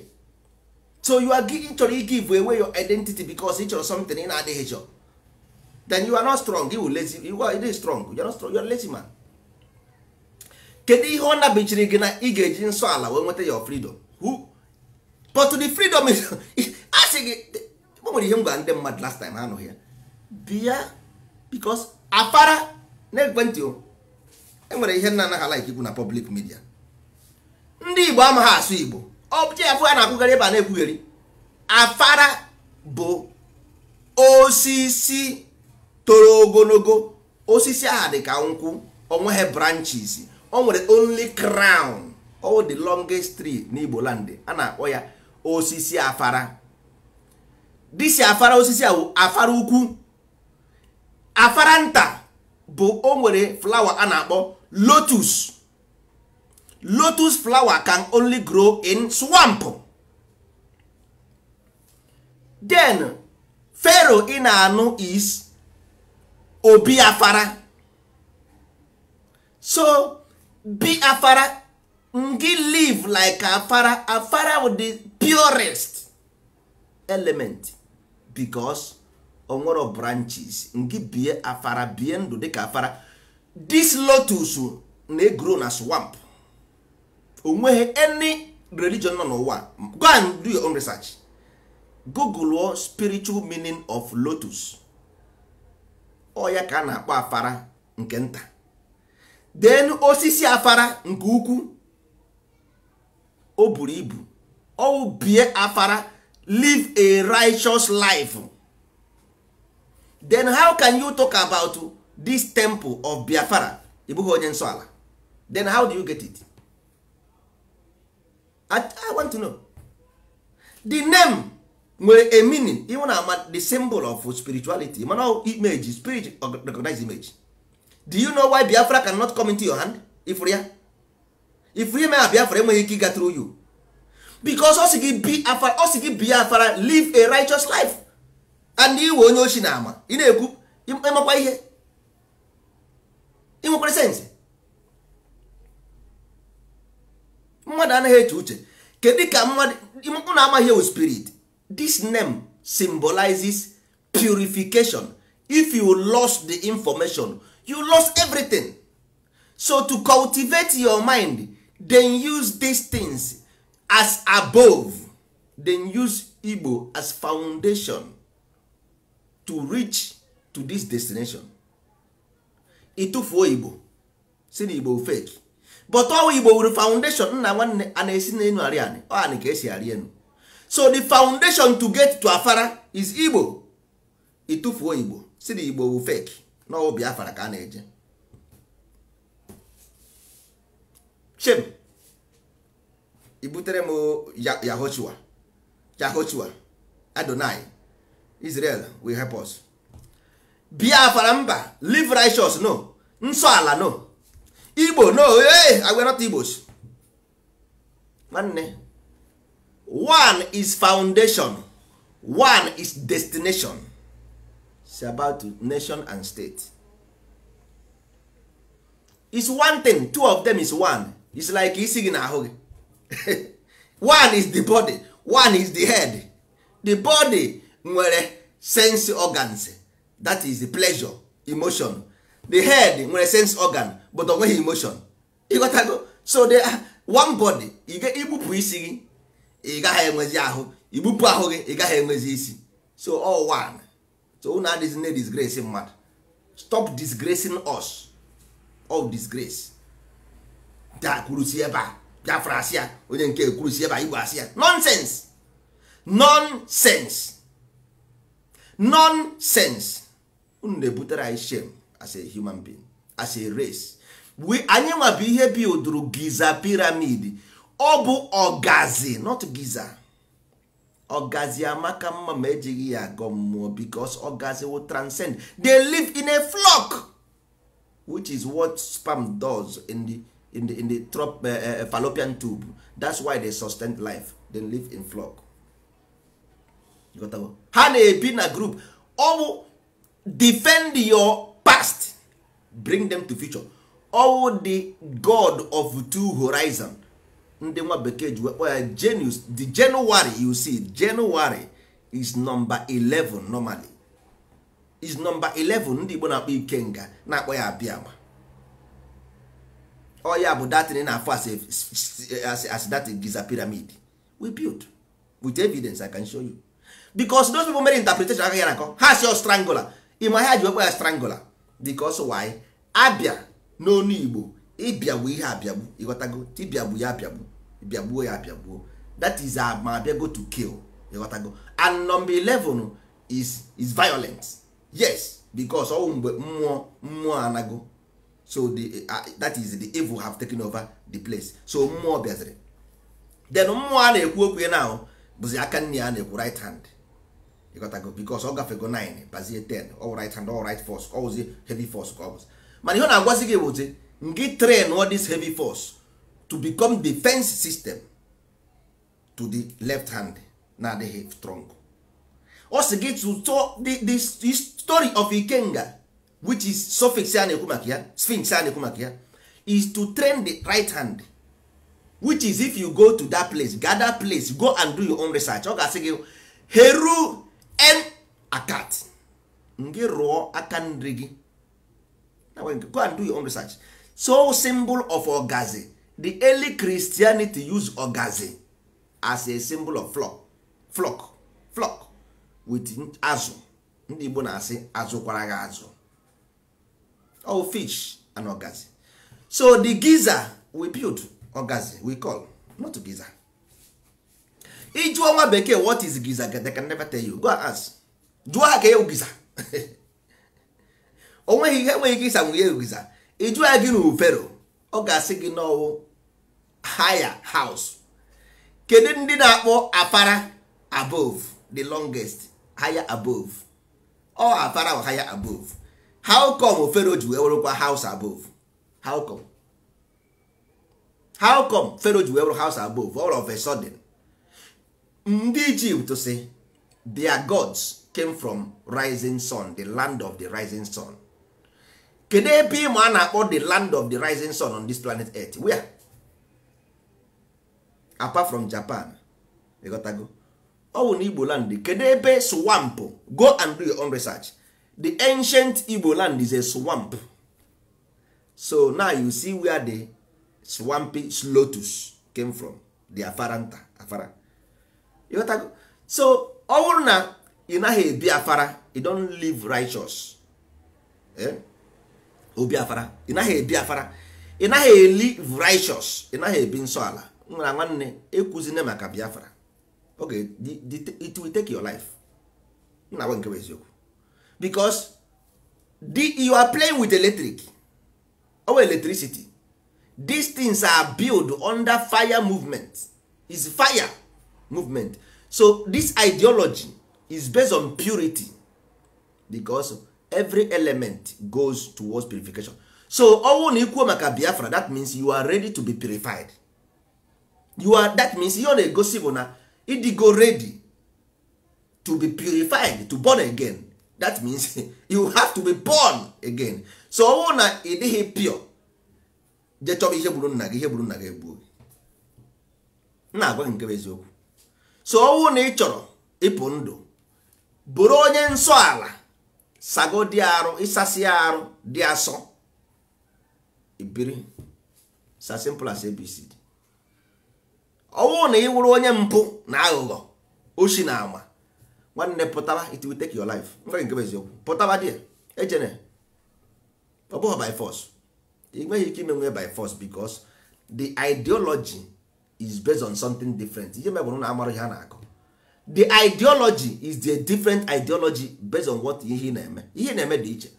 so you are giving, chọrọ give away your identity because ị chọrọ something in na na-adịghị chọ then you are not strong you lazy you are not strong you are not strong you are lazy man kedu ihe ọ nabichiri gị na ị ga-eji nsọ ala wee nweta your freedom who but the freedom is asking. sị gị o nwere ihe m gwara ndị mmadụ last time ha anụghị ya bịa because afara na ekwentị enwere ihe nna anaghị alaik ikwu na public midia ndị igbo amaghị asụ igbo ọbụcha ya a na-akwụgharị ebe a na-ekwugheri afara bụ osisi toro ogologo osisi aha dị ka nkwụ onweghị branches o nwere only crown o the longest tree n'igbo landị a na-akpọ ya osisi afara disi afara osisi a afara ukwu afaranta bụ o nwere flower a na-akpọ lotus lotus flower can only grow in swamp then pharaoh ị na-anụ is obi afara so be afara ngị live like afara afara with the purest element because onwere branches nke bie afara bie ndụ dịka afara this lotus na-egro na swamp onweghị any religion nọ n'ụwa go and do your own research google spiritual meaning of lotus ọ ya ka a na-akpọ afara nke nta then osisi afara nke ukwu o buru ibu ọ bie afara live a righteous life then how can you talk about this temple of biafra ị bụghị onye nsọ ala then how do you get it I, i want to know the name nwere a meaning ịhụ na ama the symbol of spirituality mana image spirit recognize image do you know why biafra cannot come into your hand ifụrụ ya ifụrụ ime a biafra enweghị ike ịga through you because ọ sị biafra live a righteous life and iwe onye ochi na ama ị na-ekwu ịmakwa ihe ịnwekwara sensị mmadụ anaghị eche uche kedu ka mmadụ na-amaghị ewu spirit this name symbolizes purification if you lost the information you lost everything so to cultivate your mind then use these things as above then use Igbo as foundation to reach to this destination ịtụfuo igbo si na igbo fake but ọwa igbo wuru foundation nna nwanne a na-esi n'elu arị anị ọanị ka esi arị enu so the foundation to get to afara is igbo ịtụfuo igbo si na igbo wu fake n'ọwụ biafara ka a na-eje shem ibutere m yahochua yahochua adonai Israel will help us. Biafra mba live righteous no nsọ ala no Igbo no hey, I not Igbos. Nwanne one is foundation one is destination It's about nation and state. It's one thing two of them is one It's like isi gị n'ahụ gị one is the body one is the head the body nwere sense organs that is the pleasure emotion the head nwere sense organ but onweghị emotion ịghọtago so they are ah, one body igbupụ isi gị ị gaghị enwezi ahụ igbupụ ahụ gị ị gaghị enwezi isi so all one so na adịghị na disgrace mmadụ stop disgracing us all disgrace da kwurusi ebe a biafra asị ya onye nke kwurusi ebe a igbo asị ya nonsense nonsense nonsense unu na-ebutere anyị shame as a human being as a race we anyị nwa bụ ihe bilduru giza piramid ọ bụ ọgazi not giza ọgazi amaka mma ma ejighị ya agọ mmụọ because ọgazi will transcend they live in a flock which is what sperm does in the, in the, in the trop, uh, fallopian tube that's why they sustain life they live in flock ha na-ebi na group ọ bụ defend your past bring them to future ọwụ the god of two horizon ndị nwa bekee ji wekpọ ya genius the january you see january is number 11 normally is number 11 ndị igbo na-akpọ ikenga na-akpọ ya abịama oya bụ datin na-afọ as, as that giza pyramid we built with evidence i can show you because those people mere interpretation aka ya na nkọ ha si ọ strangular ịma ha ji wekwa ya strangular because why abịa n'onu igbo ịbịagbu ihe abịagbu ịghọtago tibịagbu ya abịagbu bịagbuo ya abịagbuo that is ma bịago to kill ịghọtago and number 11 is is violent yes because ọwụ oh, mgbe mmụọ mmụọ anago so the, uh, uh, that is the evil have taken over the place so mmụọ bịaziri then mmụọ a na-ekwu okwu ya na bụzi aka nne ya na-ekwu right hand Because bikos ọ gafego 9 bazie 10 all right hand all right force ọwụzi heavy force ka ọ bụzi mana ihe ọ na-agwazi gị ngị train all this heavy force to become defense system to the left hand na-adịghị strong ọ sị gị to the story of ikenga which is suffix a na-ekwu maka ya sphinx a na-ekwu maka ya is to train the right hand which is if you go to that place gather place go and do your own research ọ ga-asị gị heru en akat gị rụọ aka nri gị go and do your own research so symbol of ogazi the early christianity use ogazi as a symbol of flock flock flock with azụ ndị igbo na-asị azụkwara gị azụ oh fish and ogazi so the giza we build ogazi we call not giza ịjụọ nwa bekee what is giza they can never tell you go ask jụọ ha ka ewu giza onweghị ihe enweghị ike ịsa nwunye e giza ịjụọ ya gị n'ufero ọ ga-asị gị n'ọwụ higher house kedu ndị na-akpọ apara above the longest higher above ọ apara o higher above how come fero ji wee werụkwa house above how come how come fero ji wee were house above all of a sudden ndị ijipt si their gods came from rising sun the land of the rising sun kedu ebe ịma a na-akpọ the land of the rising sun on this planet earth where apart from japan go. ọwụ na igbo land kedu ebe swamp go and do your own research the ancient igbo land is a swamp so now you see where the swampy lotus came from the afaranta afara so ọ bụrụ na ị naghị ebi afara you don't live righteous eh? obi afara ị naghị ebi afara ị naghị eli righteous ị naghị ebi nsọ ala nwere nwanne ekwuzine maka biafra oge it will take your life nna nwe nke eziokwu because you are playing with electric or electricity these things are built under fire movement is fire movement so this ideology is based on purity because every element goes towards purification so ọnwụ na ikwuo maka biafra that means you are ready to be purified you are that means ihe ọ na-egosi bụ na ịdịgo ready to be purified to born again that means you have to be born again so ọnwụ na ị dịghị pure je ihe gburu nna gị ihe gburu nna gị egbuo na na-agwa gị nke bụ eziokwu so ọnwụ na ị chọrọ ịpụ ndụ bụrụ onye nsọ ala sago dị arụ ịsasị arụ dị asọ ibiri sa simple as abc ọnwụ na ị wụrụ onye mpụ na aghụghọ oshi na ama nwanne pụtara it will take your life nwere nke eziokwu pụtara dị ejene ọ bụghị by force ị nweghị ike imenwe by force because the ideology is based on something different ihe mebụrụ na amara ihe a na-akọ the ideology is the different ideology based on what ihe na-eme ihe na-eme dị iche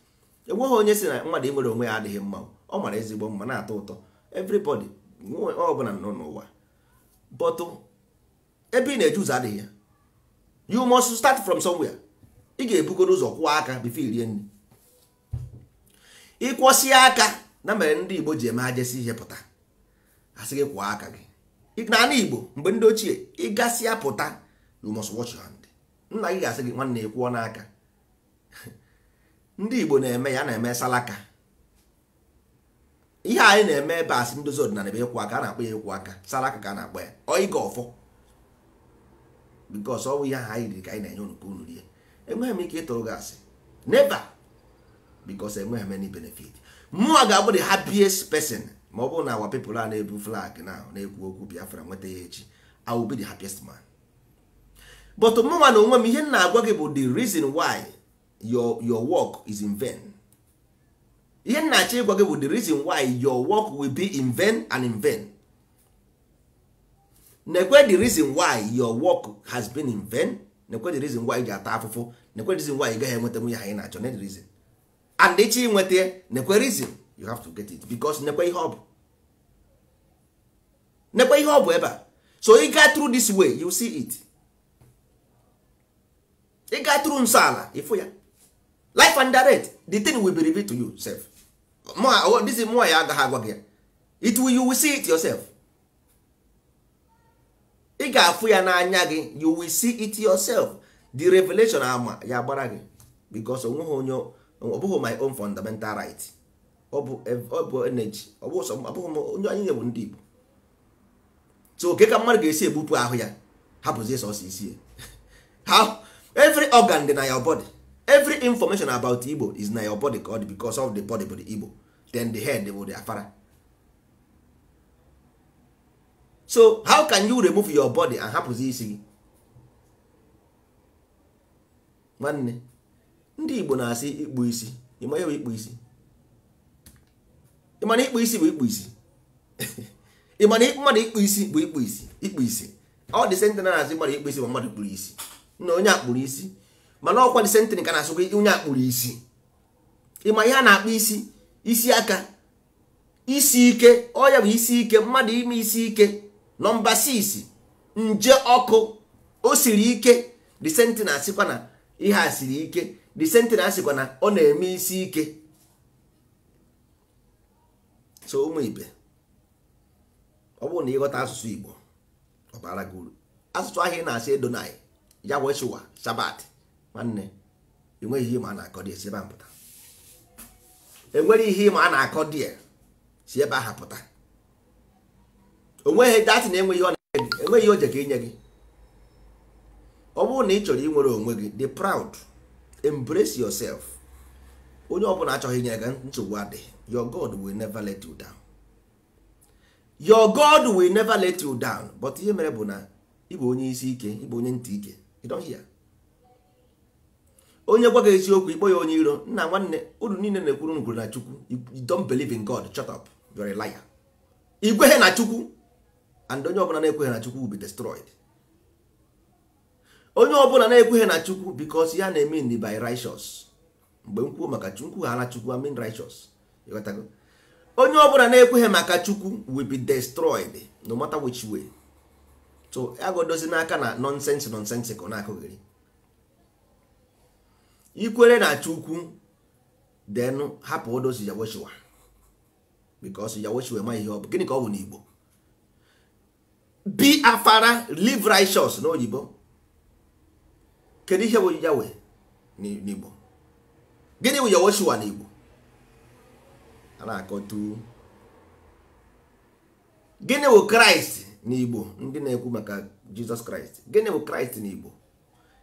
enweghị onye si na mmadụ nwere onwe ya adịghị mma ọ mara ezigbo mma na-atọ ụtọ everybody ọbụla nọ n'ụwa but ebe ị na-eje ụzọ adịghị ya you must start from somewhere ị ga-ebugoro ụzọ kwụọ aka bifo irie nri ịkwọsie aka na mere ndị Igbo ji eme ajesi ihe pụta asị gị kwụọ aka gị n'ala igbo mgbe ndị ochie ịgasị ya pụta you must watch nna gị ga-asị gị nwanne kwụọ n'aka ndị igbo na-eme ya na-eme salaka ihe anyị na-eme ebe asị ndozi ọdịnala ebe ekwu aka a na-akpọ ya ekwu aka salaka ka a na-akpọ ya ọịga ọfọ bikos ọ bụ ihe aha anyị riri ka anyị na-enye unu ka unu rie enweghị m ike ịtụrụ gị asị neba bikos enweghị m any benefit mụnwa ga-abụ the happiest person ma ọ bụrụ na awa pepụl a na-ebu flag na-ekwu okwu biafra nweta ya echi I will the happiest man but mụnwa na onwe m ihe m na-agwa gị bụ the reason why your your work is in vain ihe m na-achọ ịgwa gị bụ the reason why your work will be in vain and in vain nekwe the reason why your work has been in vain nekwe the reason why ị ga-ata afụfụ nekwe the reason why ị gaghị enweta nwunye ha ị na-achọ na the reason and ịchọ ya nekwe reason you have to get it because nekwe ihe ọ bụ nekwe ihe ọ bụ ebe a so you got through this way you see it you got through nsọ ala ịfụ ya life and direct the thing will be revealed to you self oh, this is more ya agaghị agwa gị it will you will see it yourself ị ga-afụ ya n'anya gị you will see it yourself the revelation ama ya gbara gị because onweghị onye ọ bụghị my own fundamental right ọ bụ energy ọ bụ sọ abụghị onye anyị bụ ndị Igbo so oke ka mmadụ ga-esi ebupụ ahụ ya hapụzie sọsọ isi ya every organ dị na your body every information about Igbo is na your body ka ọ because of the body bụ the Igbo then the head bụ the afara so how can you remove your body and hapụzi isi gị nwanne ndị Igbo na-asị ikpu isi ịma ya ikpu isi ịmana ikpu isi bụ ikpu isi ịmana mmadụ ikpu isi bụ ikpu isi ikpu isi ọ dị sentị na na-asị mmadụ ikpu isi bụ mmadụ kpuru isi na onye akpụrụ isi mana ọkwa dị sentin ka na-asụkwa onye akpụrụ isi ịma ihe a na-akpụ isi isi aka isi ike ọya bụ isi ike mmadụ ime isi ike nọmba 6 nje ọkụ o siri ike sentị na-asịkwa na ihe a siri ike dị sentị na-asịkwa na ọ na-eme isi ike so ụmụ ibe ọ bụrụ na ịghọta asụsụ igbo ọ bara gị uru asụsụ ahịa ị na-asị edonai ya weshuwa shabat nwanne enweghị ihe ma a na-akọ dị ebe a pụta enwere ihe ịma a na-akọ dị e si ebe ahụ pụta onweghị datị na-enweghị ọ na-enye gị enweghị oje ka inye gị ọ bụrụ na ị chọrọ inwere onwe gị dị proud embrace yourself onye ọ bụla achọghị inye gị nsogbu adịghị your god will never let you down your god will never let you down but ihe mere bụ na ịbụ onye isi ike ịbụ onye ntị ike you don't hear onye gwa gị eziokwu ikpọ ya onye iro nna nwanne uru niile na-ekwuru ngwuru na chukwu you don't believe in god shut up you're a liar igwehe na chukwu and onye ọbụla na-ekweghị na chukwu will be destroyed onye ọbụla na-ekweghị na chukwu because ya na-eme by righteous mgbe m kwuo maka nkwughala chukwu amin righteous onye ọbụla na-ekweghị maka chukwu will be destroyed no matter which way so agodozi n'aka na nonsense nonsense ka ọ na-akụghịrị ikwere na chukwu then hapụ odozi Yawochiwa. because Yawochiwa ma ihe ọ bụ gịnị ka ọ bụ Igbo? be afara live righteous oyibo. kedu ihe bụ yawe n'igbo gịnị bụ na Igbo? a na-akọtu gịnị bụ kraịst n'igbo ndị na-ekwu maka jizọs kraịst gịnị bụ kraịst n'igbo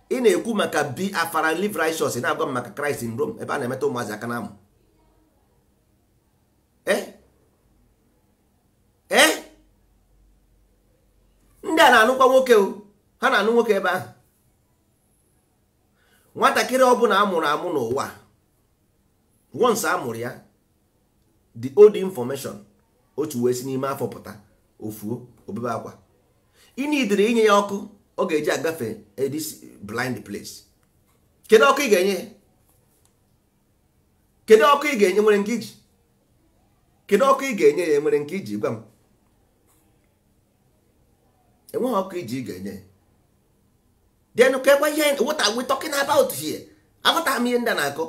ị na-ekwu maka bi afara live righteous na-agwa m maka kraịst in rome ebe a na-emeta ụmụazị aka na amụ ee ndị a na-anụkwa nwoke ha na-anụ nwoke ebe ahụ nwatakịrị ọbụla amụrụ amụ n'ụwa once amụrụ ya the old information otu wee si n'ime afọ pụta ofuo obebe akwa inidiri inye ya ọkụ ọ ga-eji agafe this blind place kedu ọkụ ị ga-enye kedu ọkụ ị ga-enye nwere nke iji kedu ọkụ ị ga-enye ya nwere nke iji gwa m enweghị ọkụ iji ị ga-enye ya then kekwa ihe what are we talking about here agụta m ihe ndị na-akọ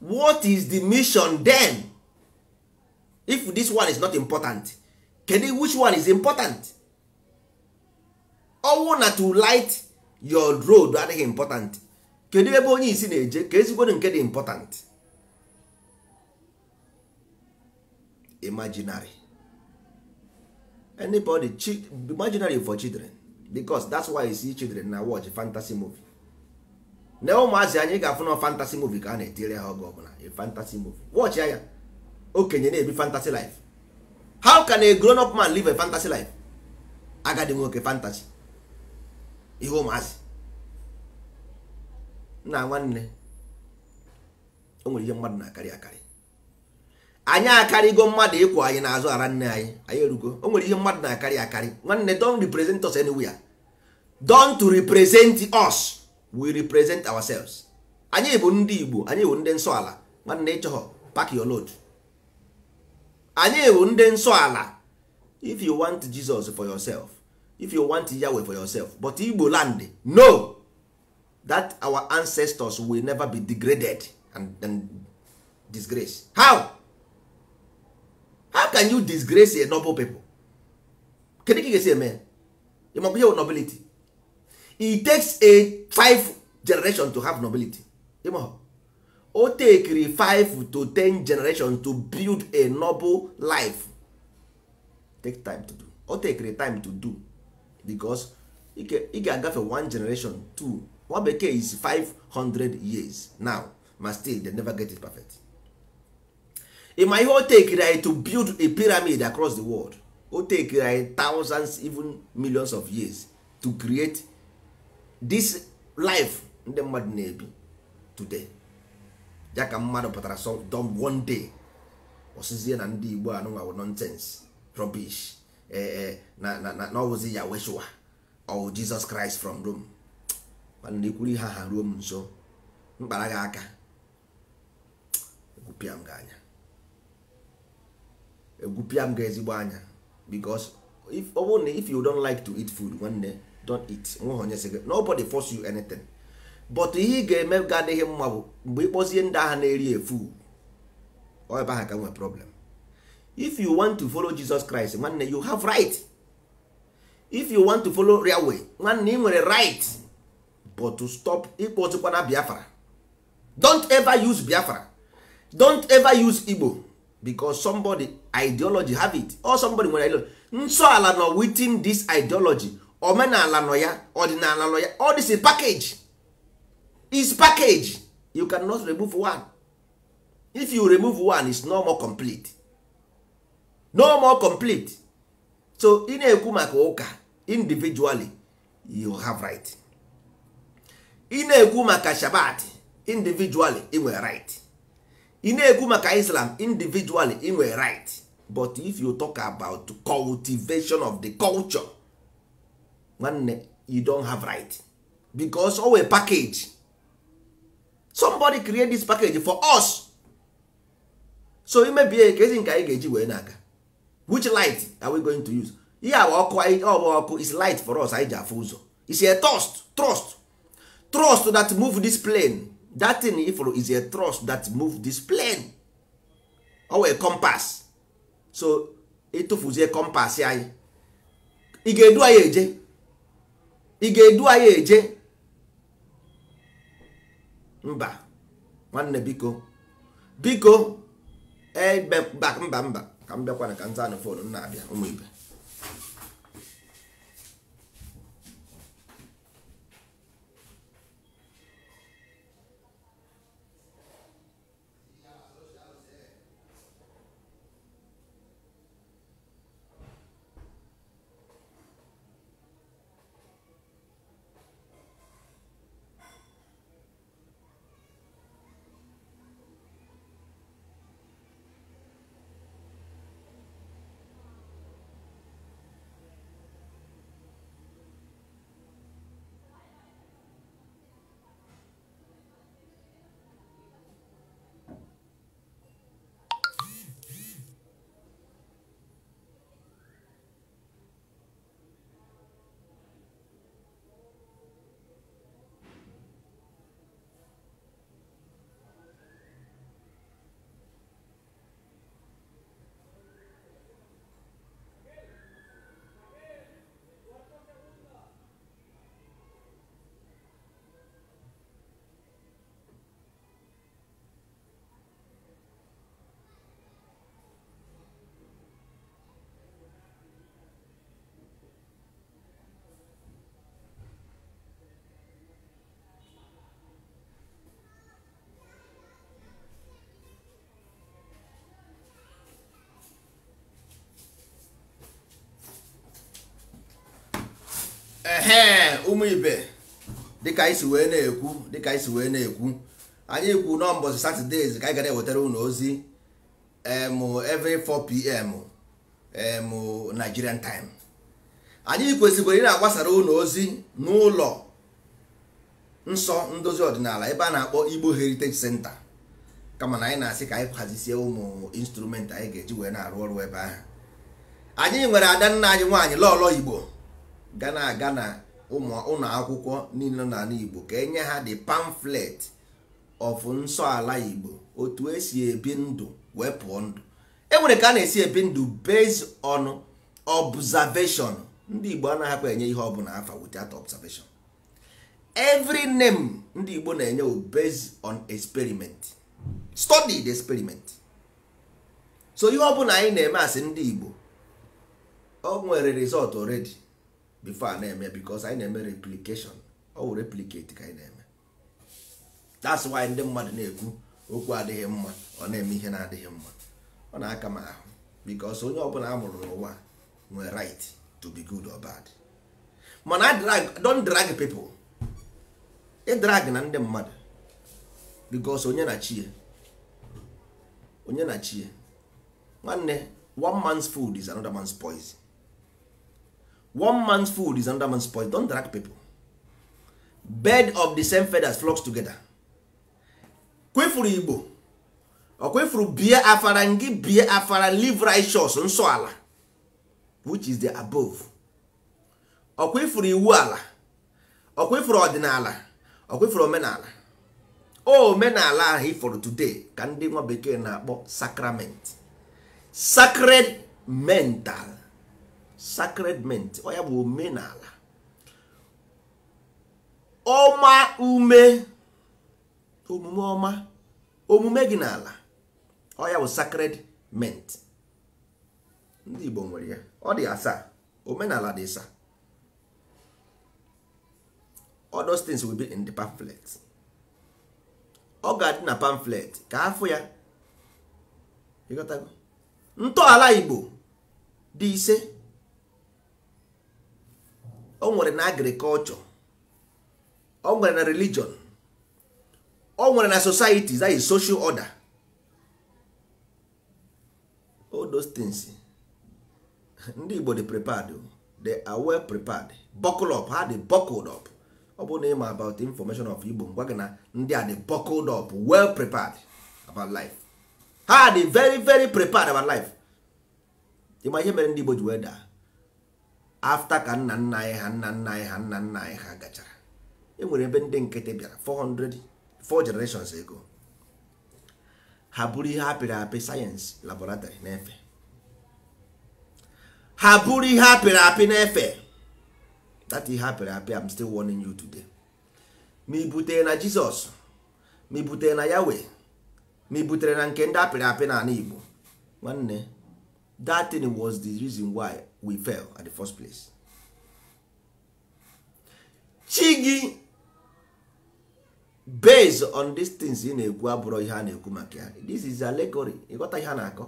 what is the mission then? if this one is not important you which one is important ọnwụ na to light your road adịghị important kedu ebe onye isi na-eje ka ezigbodo nke dị important imaginary anybody imaginary for children because that's why you see children na watch fantasy movie na ụmụazị anyị ga-afụ na fantasy movie ka a na-etire ha oge ọbụla fantasy movie watch ya okenye na-ebi fantasy life how can a grown up man live a fantasy life agadi nwoke fantasy ihe ụmụazị nna nwanne o nwere ihe mmadụ na-akarị akarị anyị akarịgo mmadụ ịkwụ anyị n'azụ ara nne anyị anyị erugo o nwere ihe mmadụ na-akarị akarị nwanne don't represent us anywhere don't represent us we represent ourselves anyị bụ ndị Igbo anyị bụ ndị nsọ ala nwanne ịchọghọ pak your load anyị bụ ndị nsọ ala if you want jesus for yourself if you want yahweh for yourself but igbo land no that our ancestors will never be degraded and, and disgrace how how can you disgrace a noble people kedu ka ị ga-esi eme ịmakwa ihe nobility it takes a five generation to have nobility ịmahụ o tekiri 5 to 10 generation to build a noble life take time to do o tekiri time to do because ị ga-agafe one generation two nwa bekee is 500 years now ma still they never get it perfect ịma ihe o tekiri anyị to build a pyramid across the world o tekiri anyị thousands even millions of years to create this life ndị mmadụ na-ebi today ya ka mmadụ pụtara sọdọm one day osizie na ndị igbo anụnwa wụ nonsense rubbish eh, eh, na na ọwụzi ya weshua ọwụ oh, jizọs kraịst from rome mana ikwuru ha ha ruo m nso mkpara gị aka egwupịa m gị anya egwupịa m ga ezigbo anya because if ọ bụrụ na if you don like to eat food nwanne don't eat nweghị onye sị gị nobody force you anything but ihe ị ga-eme ga adịghị mma bụ mgbe ịkpọzie ndị agha na-eri efu ebe ahụ ka nwee problem if you want to follow Jesus Christ nwanne you have right if you want to follow real way nwanne ị nwere right but to stop a Biafra don't ever use Biafra don't ever use Igbo because somebody ideology have it or somebody nwere ideology nsọ ala nọ within this ideology omenala nọ ya ọdịnala nọ ya all this is package is package you cannot remove one if you remove one it's no more complete no more complete so ị na-ekwu maka ụka individually you have right ị na-ekwu maka shabat individually ị nwere right ị na-ekwu maka islam individually ị nwere right but if you talk about cultivation of the culture nwanne you don't have right because owe package somebody create this package for us so imebie ka ezi nke anyị ga-eji wee na-aga which light are we going to use ihe awa ọkụ ọbụ ọkụ is light for us anyị ji afụ ụzọ is a trust trust trust that move this plane that thing ifụrụ is a trust that move this plane ọ wee compass so ịtụfuzie compass anyị ị ga-edu anyị eje ị ga-edu anyị eje mba nwanne biko biko mba mba ka m bịakwana ka nza anụ fonu na-abịa ehe ụmụ ibe dịka anyị si wee na-ekwu dịka anyị si wee na-ekwu anyị kwu n'ụbọchị satọdee ka anyị gara ewetara unu ozi em 4 pm em Nigerian time anyị kwesịkwara ị na-agbasara ụlọ ozi n'ụlọ nsọ ndozi ọdịnala ebe a na-akpọ Igbo Heritage Center kama na anyị na-asị ka anyị hazisie ụmụ instrument anyị ga-eji wee na-arụ ọrụ ebe ahụ anyị nwere ada nna anyị nwaanyị lọlọ Igbo ga na-aga na ụlọ akwụkwọ niile na Igbo ka enye ha the pamflet of nsọ ala Igbo otu esi ebi ndụ wee pụọ ndụ enwere ka a na-esi ebi ndụ based on observation ndị Igbo anaghịkwa enye ihe ọbụla afa without observation every name ndị Igbo na-enye based on experiment study the experiment so ihe ọbụla anyị na-eme asị ndị Igbo o nwere result already before a na-eme because anyị na-eme replication ọ wụ ka anyị na-eme that's why ndị mmadụ na-ekwu okwu adịghị mma ọ na-eme ihe na-adịghị mma ọ na-aka m ahụ because onye ọbụla a mụrụ n'ụwa nwere right to be good or bad mana drag don drag i ịdrag na ndị mmadụ because onye na chie onye na chie nwanne one man's food is another man's poison one man's food is another man's poison don't drag people Bed of the same feathers flocks together kwefuru igbo ọ kwefuru bie afara ngị bie afara live righteous nsọ ala which is the above ọ kwefuru iwu ala ọ kwefuru ọdịnala ọ kwefuru omenala oh, omenala ahụ ifọrọ today ka ndị nwa bekee na-akpọ sacrament sacred mental sacredment ọ ya bụ omenala ọma ume omume ọma omume gị n'ala ọ ya bụ mint ndị Igbo nwere ya ọ dị asaa omenala dị asaa all things will be in the pamphlet ọ ga-adị na pamphlet ka afụ ya ntọala Igbo dị ise o nwere na agrikọlchọ o nwere na religion o nwere na society that is social order all those things ndị Igbo dị prepared they are well prepared buckle up ha dị buckled up ọ bụ na ịma about the information of Igbo ngwa gị na ndị a dị buckled up well prepared about life ha dị very very prepared about life ịma ihe mere ndị Igbo ji wee daa afta ka nna nna anyị ha nna nna anyị ha nna nna anyị ha gachara enwere ebe ndị nkịtị bịara 400 4 generations ago ha bụrụ ihe apịrị apị sayensị laboratory na-efe ha bụrụ ihe apịrị apị na-efe that ihe apịrị apị I'm still warning you today ma i butere na Jizọs ma i butere na Yahweh ma i butere na nke ndị apịrị apị n'ala Igbo nwanne that was the reason why we fell at the first place chi gị based on these things ị na-ekwu abụrụ ihe a na-ekwu maka ya this is allegory ịghọta ihe a na-akọ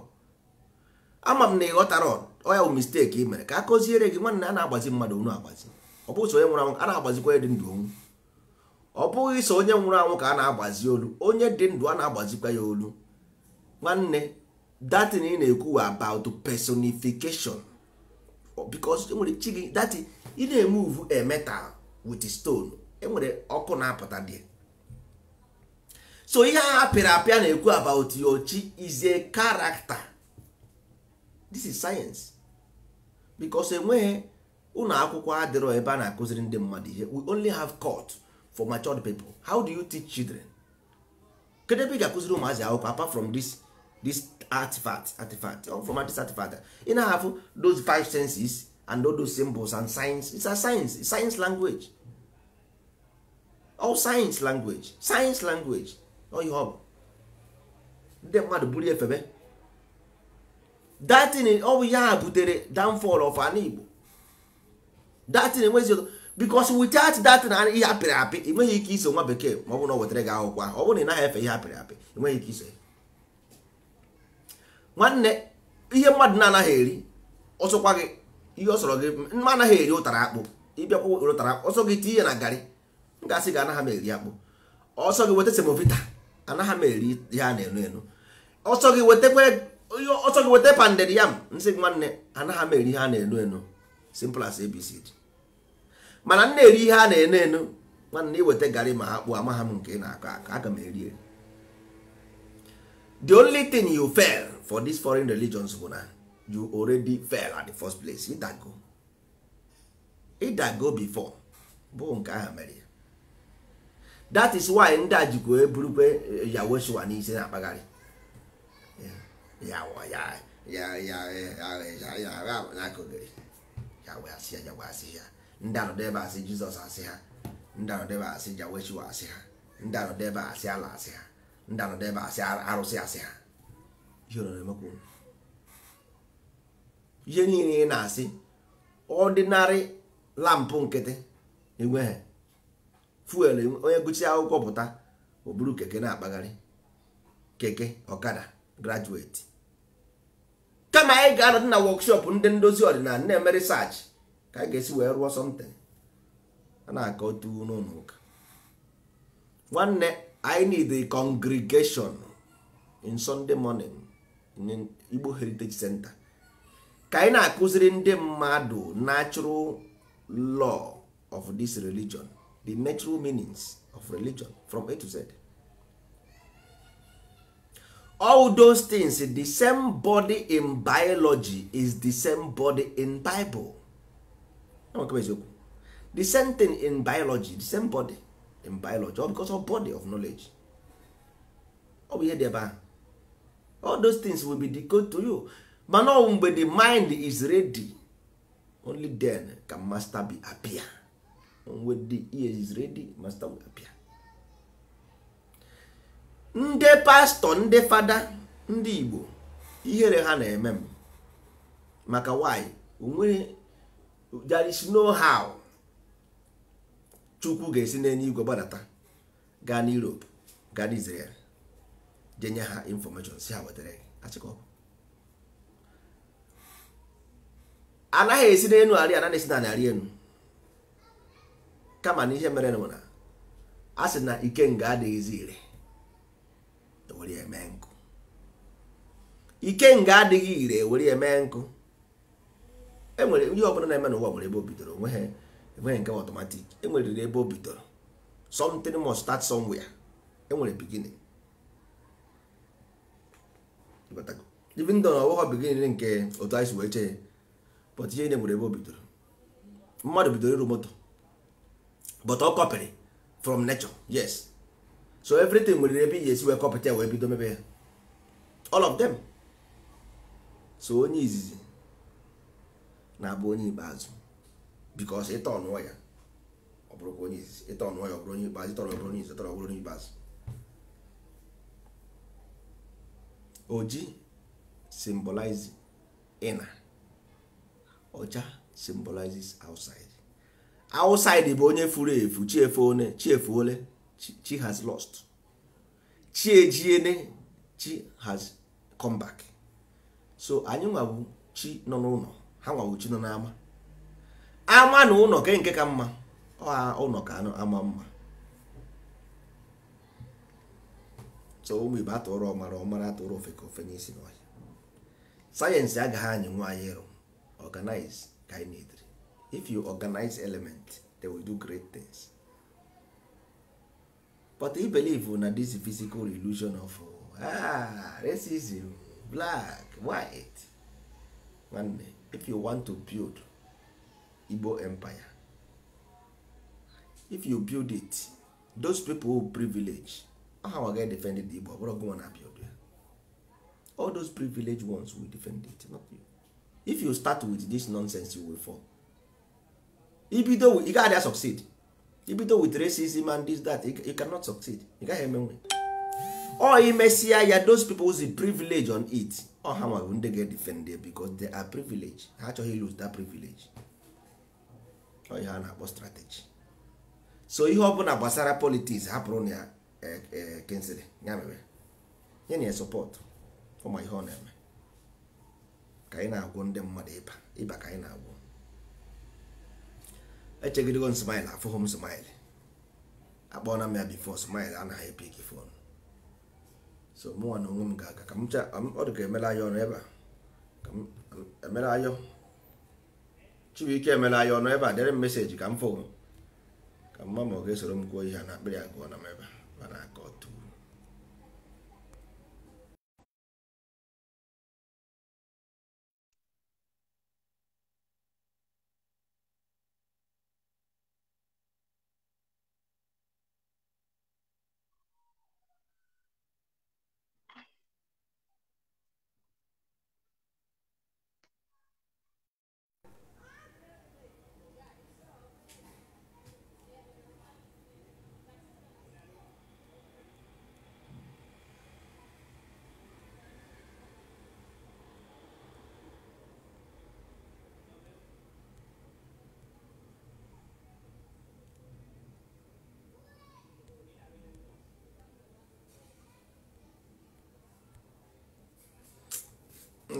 ama m na ịghọtara ọya bụ mistake ị mere ka a kụziere gị nwanne a na-agbazi mmadụ onu agbazi ọ bụghị so onye nwụrụ anwụ a na-agbazikwa onye dị ndụ onwu ọ bụghị so onye nwụrụ anwụ ka a na-agbazi olu onye dị ndụ a na-agbazikwa ya olu nwanne datin ị na-ekwu about personification because enwere chi gị that ị na-emuvu a metal with stone enwere ọkụ na-apụta dị so ihe a apịrị apịa na-ekwu about your chi is a character this is science because enweghị ụlọ akwụkwọ adịrọ ebe a na-akụziri ndị mmadụ ihe we only have court for matured people how do you teach children kedu ebe ị ga-akụziri ụmụazị akwụkwọ apart from this this artifact artifact or from artifact ị na-ahafụ those five senses and all those symbols and signs it's a science it's science language all science language science language all you have ndị mmadụ buru efebe datin ọ bụ ya butere downfall of an Igbo datin enwezi ọzọ because without that na ihe apịrị apị enweghị ike iso nwa bekee ma ọ bụ na ọ wetara gị akwụkwọ ọ bụrụ na ị naghị efe ihe apịrị apị enweghị ike iso ya nwanne ihe mmadụ na-anaghị eri ọsọkwa gị ihe ọsọrọ gị mma anaghị eri ụtara akpụ ịbịakwa ụtara akpụ ọsọ gị tinye na garị m gị anaghị m eri akpụ ọsọ gị weta semovita anaghị m eri ihe a na-enu enu ọsọ gị weta panded yam nsị nwanne anaghị m eri ihe a na-enu enu simple as abc mana m na-eri ihe a na-enu enu nwanne iweta garị ma akpụ amaghị m nke ị na-akọ aka aga m eri eri the only thing you fail for these foreign religions bụ na you already fell at the first place ịdago ịdago before bụ nke ahụ mere that is why ndị a jikwa eburukwe yaweshua n'isi na-akpagharị ndị anọdebe asị jizọs asị ha ndị anọdebe asị yaweshua asị ha ndị anọdebe asị ala asị ha ndị anọdebe asị arụsị asị ha ihe niile ị na-asị ọdịnarị lampụ nkịtị enweghị fuel onye gụchi akwụkwọ pụta o buru keke na-akpagharị keke ọkada grajueti kama anyị ga-anọdị na wọkshọp ndị ndozi ọdịnala na-eme ka anyị ga-esi wee rụọ sọmtin a na-akọ otu n'ụlọ ụka nwanne I need a congregation in Sunday morning igbo heritage center ka anyị na-akụziri ndị mmadụ natural law of this religion the natural meanings of religion from a to z all those things the same body in biology is the same body in bible the same thing in biology the same body in biology all because of body of knowledge ọ bụ ihe dị ebe ahụ all those things will be decoded to you mana ọwụ mgbe the mind is ready only then can master be appear when the ear is ready master will appear ndị pastọ ndị fada ndị igbo ihere ha na-eme m maka why onwere there is no how chukwu ga-esi n'enye igwe gbadata gaa n'europe gaa n'israel je nye ha infọmeshọn si ha wetara achịkọ anaghị esi n'enu arị anaghị esi na narị enu kama na ihe mere nụ na a sị na ikenga adịghịzi ire ewere eme nkụ ikenga adịghị ire ewere eme nkụ enwere ihe ọbụla na-eme n'ụwa nwere ebe o bidoro onweghị enweghị nke ọtọmatik enwere ebe o bidoro something must start somewhere enwere beginning ibindọ na ọwụghọ bigin nke otu anyị si wee chee but ihe nwere ebe o bidoro mmadụ bidoro iru moto but ọ kọpịrị from nature yes so everything nwere ebe ihe esi wee kọpịta ya wee bido mebe ya all of them so onye izizi na-abụ onye ikpeazụ because ịtọ ọnụọ ya ọ bụrụkwa onye izizi ịtọ ọnụọ ya ọ bụrụ onye ikpeazụ ịtọ ọnụọ ya ọ bụrụ onye izizi ịtọ ọ bụrụ onye ikpeazụ oji symbolize inner ọcha symbolizes outside outside bụ onye furu efu chi efuone chi chi has lost chi ejiene chi has come back so anyị nwabụ chi nọ n'ụlọ ha nwabụ chi nọ n'ama ama na ụlọ ke nke ka mma ụlọ ka ama mma so ụmụ Igbo atụrụ ọmara ọmara atụrụ ofe ka ofe n'isi n'ọhịa sayensị agaghị anyị nwe ịrụ organize ka if you organize element they will do great things but i believe na this physical illusion of ah, racism black white nwanne if you want to build Igbo empire if you build it those people who privilege ahawa ga defend the igbo ọbụrụ gụnwa na-apịa all those privileged ones will defend it not you if you start with this nonsense you will fall ibido ị gaghị a succeed ibido with racism and this that you cannot succeed ị gaghị emenwe ọ imesịa ya those people who's privilege on it ọha nwa bụ ndị ga defend because they are privilege ha achọghị lose that privilege ọ ihe a na-akpọ strategy so ihe ọ bụla gbasara politics hapụrụ na ya Kingsley ya mere nye na sọpọtụ ụmụ ihe ọ na-eme ka anyị na agwụ ndị mmadụ ịba ịba ka anyị na-agwọ echegidego m smile afụghị m smile akpọọla m ya bifo smile anaghị epi gị fon so mụnwa na onwe m ga-aga ka m cha ọ dị ka emela anya ọnụ ebe a ka m emela ayọ Chibuike emela anya ọnụ ebe a dere m meseji ka m fụ ka mma ma ọ ga-esoro m gụọ ihe a na akpịrị ya gụọ na m ebe a para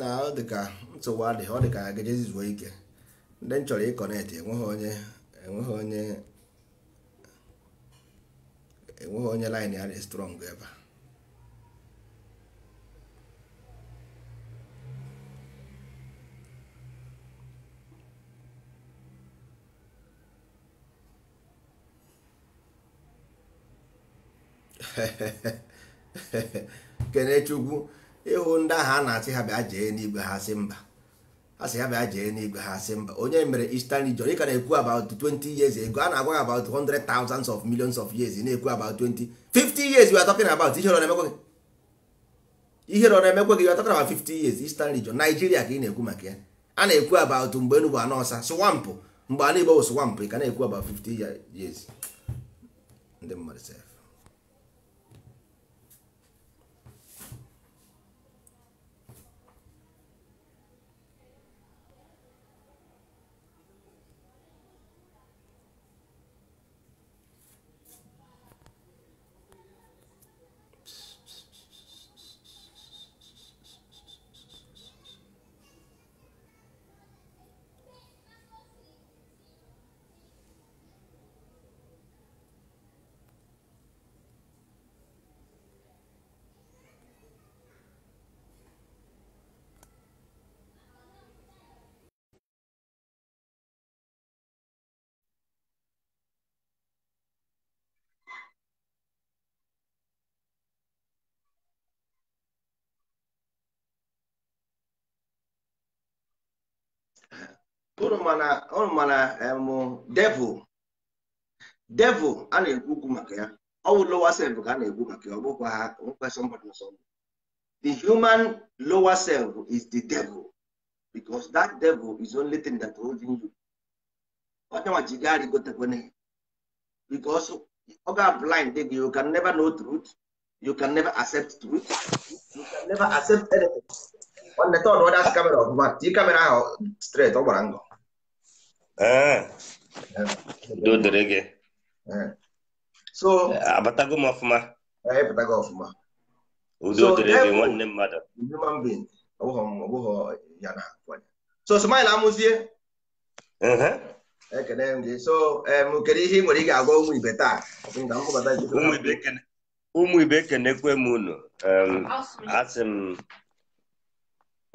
na ọ ka nsogbu adịghị ọ dị ka gejezi zuo ike ndị m chọrọ ịkọnetị enweghị onye enweghị onye enweghị onye line ya dị strong ebe kenechukwu ịhụ ndị ahụ a na-asị ha bịa jee n'igwe ha sị mba mba onye mere Eastern region ị ka na-ekwu about 20 years ago a na-agwa about thousands of millions of years na-ekwu about 20 50 years we talking about ihe na-emekwa gị ihe na-emekwa gị we 50 years Eastern region Nigeria ka ị na-ekwu maka ya a na-ekwu about mgbe Enugu anọọsa swampụ mgbe ala Igbo bụ swampụ ị ka na-ekwu about 50 years devil devil lower self ha somebody the human lower self is the devil because that devil is only thing that holding you because you are blind you can never know truth you can never accept truth you can never accept anything straight ee udo dịrị gị so abatago m ọfụma ịpụtago ọfụma udo dịrị gị nwanne mmadụ so smile amụzie ekene m gị so kedu ihe ị nwere ị ga ụmụ ibe taa ụmụ ibe unu asị m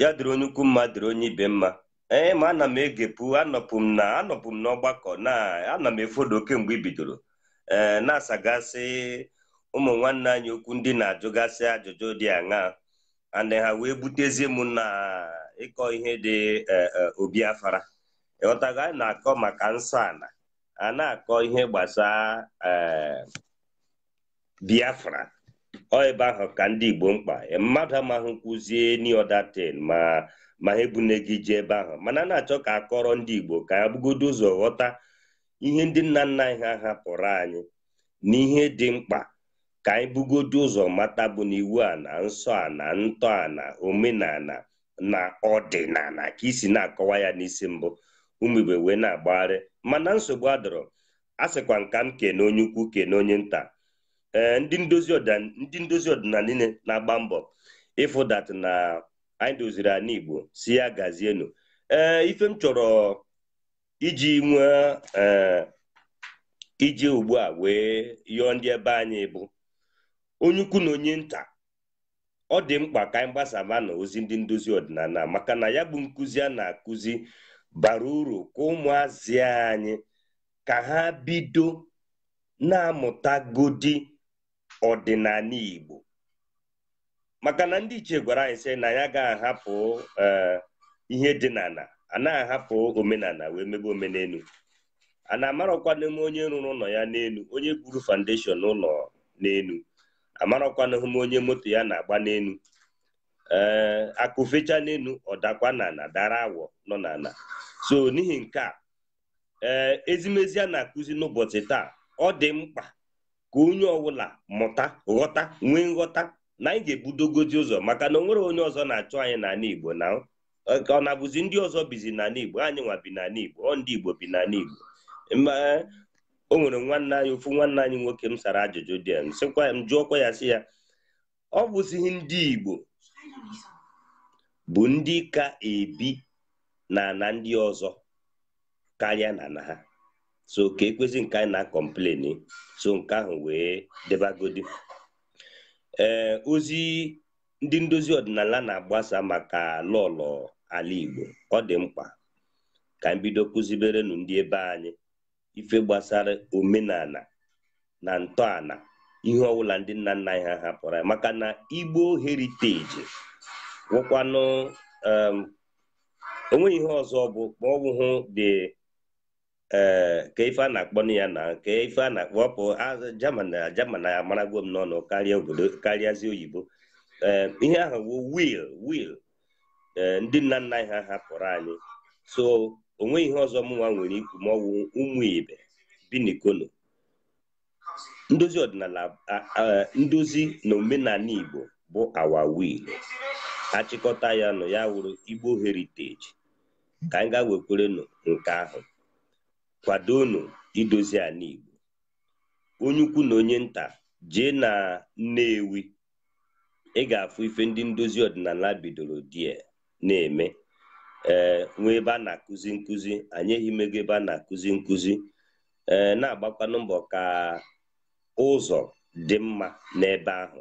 ya onye ukwu mma onye ibe mma ee ma ana m egepụ anọpụ m na anọpụ m n'ọgbakọ na ana m efodo kemgbe ibidoro bidoro ee na-asagasị ụmụ nwanne anyị okwu ndị na-ajụgasị ajụjụ dị aṅa andị ha wee butezie m na ịkọ ihe dị e, e, obi afara ịghọtago anyị na-akọ maka nsọ ala a na-akọ ihe gbasaa e, biafra ọ ebe ahụ ka ndị igbo mkpa mmadụ amaghị kwuzie niodatin ma ma ha ebune gị jee ebe ahụ mana a na-achọ ka akọrọ ndị Igbo ka ha bugodo ụzọ ghọta ihe ndị nna nna anyị ha hapụrụ anyị na ihe dị mkpa ka anyị bugodo ụzọ mata bụ na iwu a na nsọ a na ntọ a na omenala na ọdịnala ka isi na-akọwa ya n'isi mbụ ụmụ wee na-agbagharị mana nsogbu adọrọ a sịkwa nka m kene onye ukwu kene onye nta ee ndị ndozi ọdịnala niile na-agba mbọ ịfụdat na anyị doziri anyị igbo si ya gazienu ee ife m chọrọ iji nwee iji ugbu a wee yọọ ndị ebe anyị bụ onye ukwu na onye nta ọ dị mkpa ka anyị gbasaba na ozi ndị ndozi ọdịnala maka na ya bụ nkuzi a na-akụzi bara uru ka ụmụazị anyị ka ha bido na-amụtagodi ọdịnala Igbo maka na ndị ichie gwara anyị sị na ya agaghị ahapụ eh, ihe dị n'ala ana ahapụ omenala wee mebe omenelu a na-amarakwa n'ime onye rụrụ ụlọ ya n'elu onye buru foundation ụlọ n'elu amarakwanahụ m onye moto ya na-agba n'elu ee eh, akụfecha n'elu ọ dakwa n'ala dara awọ nọ n'ala so n'ihi nke a ee eh, ezimezi a na-akụzi n'ụbọchị taa ọ dị mkpa ka onye ọbụla mụta ghọta nwee nghọta na anyị ga ebudogozi ụzọ maka na o nwere onye ọzọ na-achụ anyị n'ala Igbo na ọ na-abụzi ndị ọzọ bizi n'ala Igbo anyị nwa bi n'ala Igbo ọ ndị Igbo bi n'ala Igbo o nwere nwanne anyị ofu nwanne anyị nwoke m sara ajụjụ dị ya m jụọkwa ya sị ya ọ bụzighị ndị Igbo bụ ndị ka ebi na na ndị ọzọ karịa na na ha so ka ekwezi nke anyị na-akọmpleni so nke ahụ wee debagodi ee eh, ozi ndị ndozi ọdịnala na-agbasa maka lọlọ ala Igbo ọ dị mkpa ka mbido bido n'ụdị ndị ebe anyị ife gbasara omenala na ntọala ihe ọbụla ndị nna nna anyị ha hapụrụ maka na Igbo heriteji wụkwanụ onweghị ihe ọzọ bụ ma dị. ee ka ife a na-akpọ na ya na nke ife a na-akpọ ọpụ jaman na jaman na ya maragwo m n'ọnụ karịa obodo karịazi oyibo ee ihe ahụ bụ wil wil ndị nna nna anyị ha hapụrụ anyị so onwe ihe ọzọ mụnwa nwere ikwu ma ọwụ ụmụ ibe bi n'ikono ndozi ọdịnala ndozi na omenala igbo bụ awa wil achịkọta ya nụ ya wụrụ igbo heriteji ka anyị ga-wekwerenụ nke ahụ kwadonu idozi ala Igbo onye ukwu na onye nta jee na Nnewi ị ga-afụ ife ndị ndozi ọdịnala bidoro die na-eme ee eh, nwee ebe a na-akụzi nkụzi anyị ego ebe a na-akụzi nkụzi ee eh, na-agbakwanụ mbọ ka ụzọ dị mma n'ebe ahụ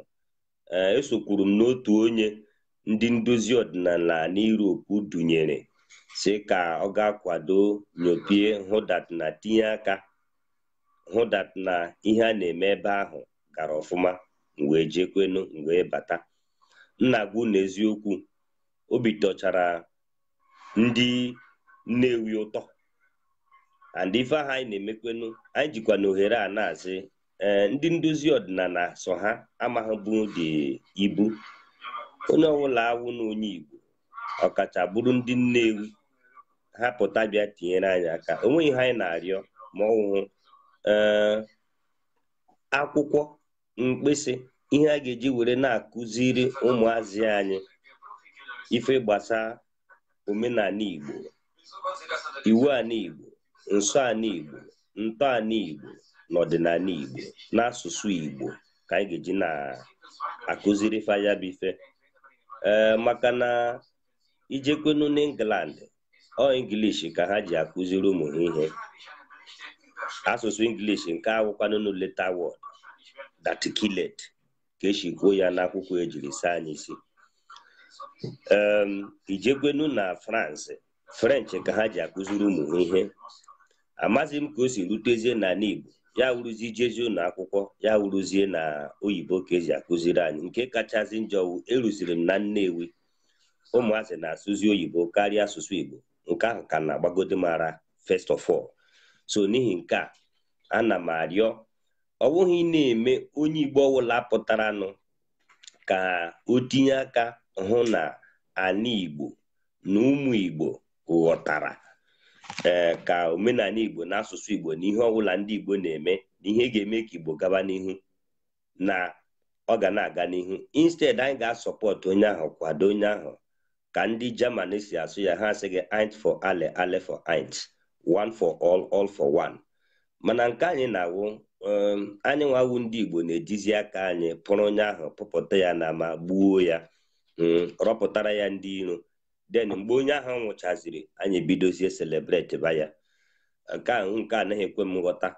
ee eh, esokwuru m n'otu onye ndị ndozi ọdịnala na Europe dunyere si ka ọ ga-akwado nyopie hụdat na tinye aka hụdat na ihe a na-eme ebe ahụ gara ọfụma mgbe jekwenu mgbe bata nna gwu n'eziokwu obi tọchara ndị nnewi ụtọ and ife ahụ anyị na-emekwenu anyị jikwa na ohere a na-asị ndị ndozi ọdịnala so ha amaghịbụ dị ibu onye ọbụla awụ na onye igbo ọkacha bụrụ ndị Nnewi ha pụta bịa tinyere anyị aka onweghị ihe anyị na-arịọ ma ọwụhụ eh, akwụkwọ mkpịsị ihe a ga-eji were na-akụziri ụmụazị anyị ife gbasaa omenala Igbo iwu ala Igbo nsọ ala Igbo ntọala Igbo na ọdịnala Igbo n'asụsụ Igbo ka anyị ga-eji na-akụziri faya ee eh, maka na ijekwenu n'England ọ English ka ha ji akụziri ụmụ ha ihe asụsụ English nke awụkwanụnụ leta word daticulate ka esi kwuo ya n'akwụkwọ ejiri saa anyị isi ijekwenu na France French ka ha ji akụziri ụmụ ha ihe amaghị m ka o si rutezie na Igbo ya wuruzie ijezi ụlọ akwụkwọ ya wuruzie na oyibo ka eji akụziri anyị nke kachasị njọ e eruziri m na Nnewi ụmụazị na-asụzi oyibo karịa asụsụ Igbo nke ahụ ka na-agbagode mara first of all so n'ihi nke a ana m arịọ ọ bụghị na-eme onye Igbo ọwụla pụtaranụ ka o tinye aka hụ na ana Igbo na ụmụ Igbo ghọtara ee eh, ka omenala Igbo na asụsụ Igbo na ihe ọbụla ndị Igbo na-eme na ihe ga-eme ka Igbo gaba n'ihu na ọ ga na-aga n'ihu instead anyị ga-asọpọtụ onye ahụ kwado onye ahụ ka ndị German si asụ ya ha asịghị int for ale ale for int one for all all for one mana nke um, anyị na-awụ anyị nwawu ndị Igbo na-ejizi aka anyị pụrụ onye ahụ pụpụta ya na ma gbuo ya hmm, rọpụtara ya ndị iro den mgbe onye ahụ nwụchaziri anyị bidozie celebrate ba ya nke ahụ nke anaghị ekwe m nghọta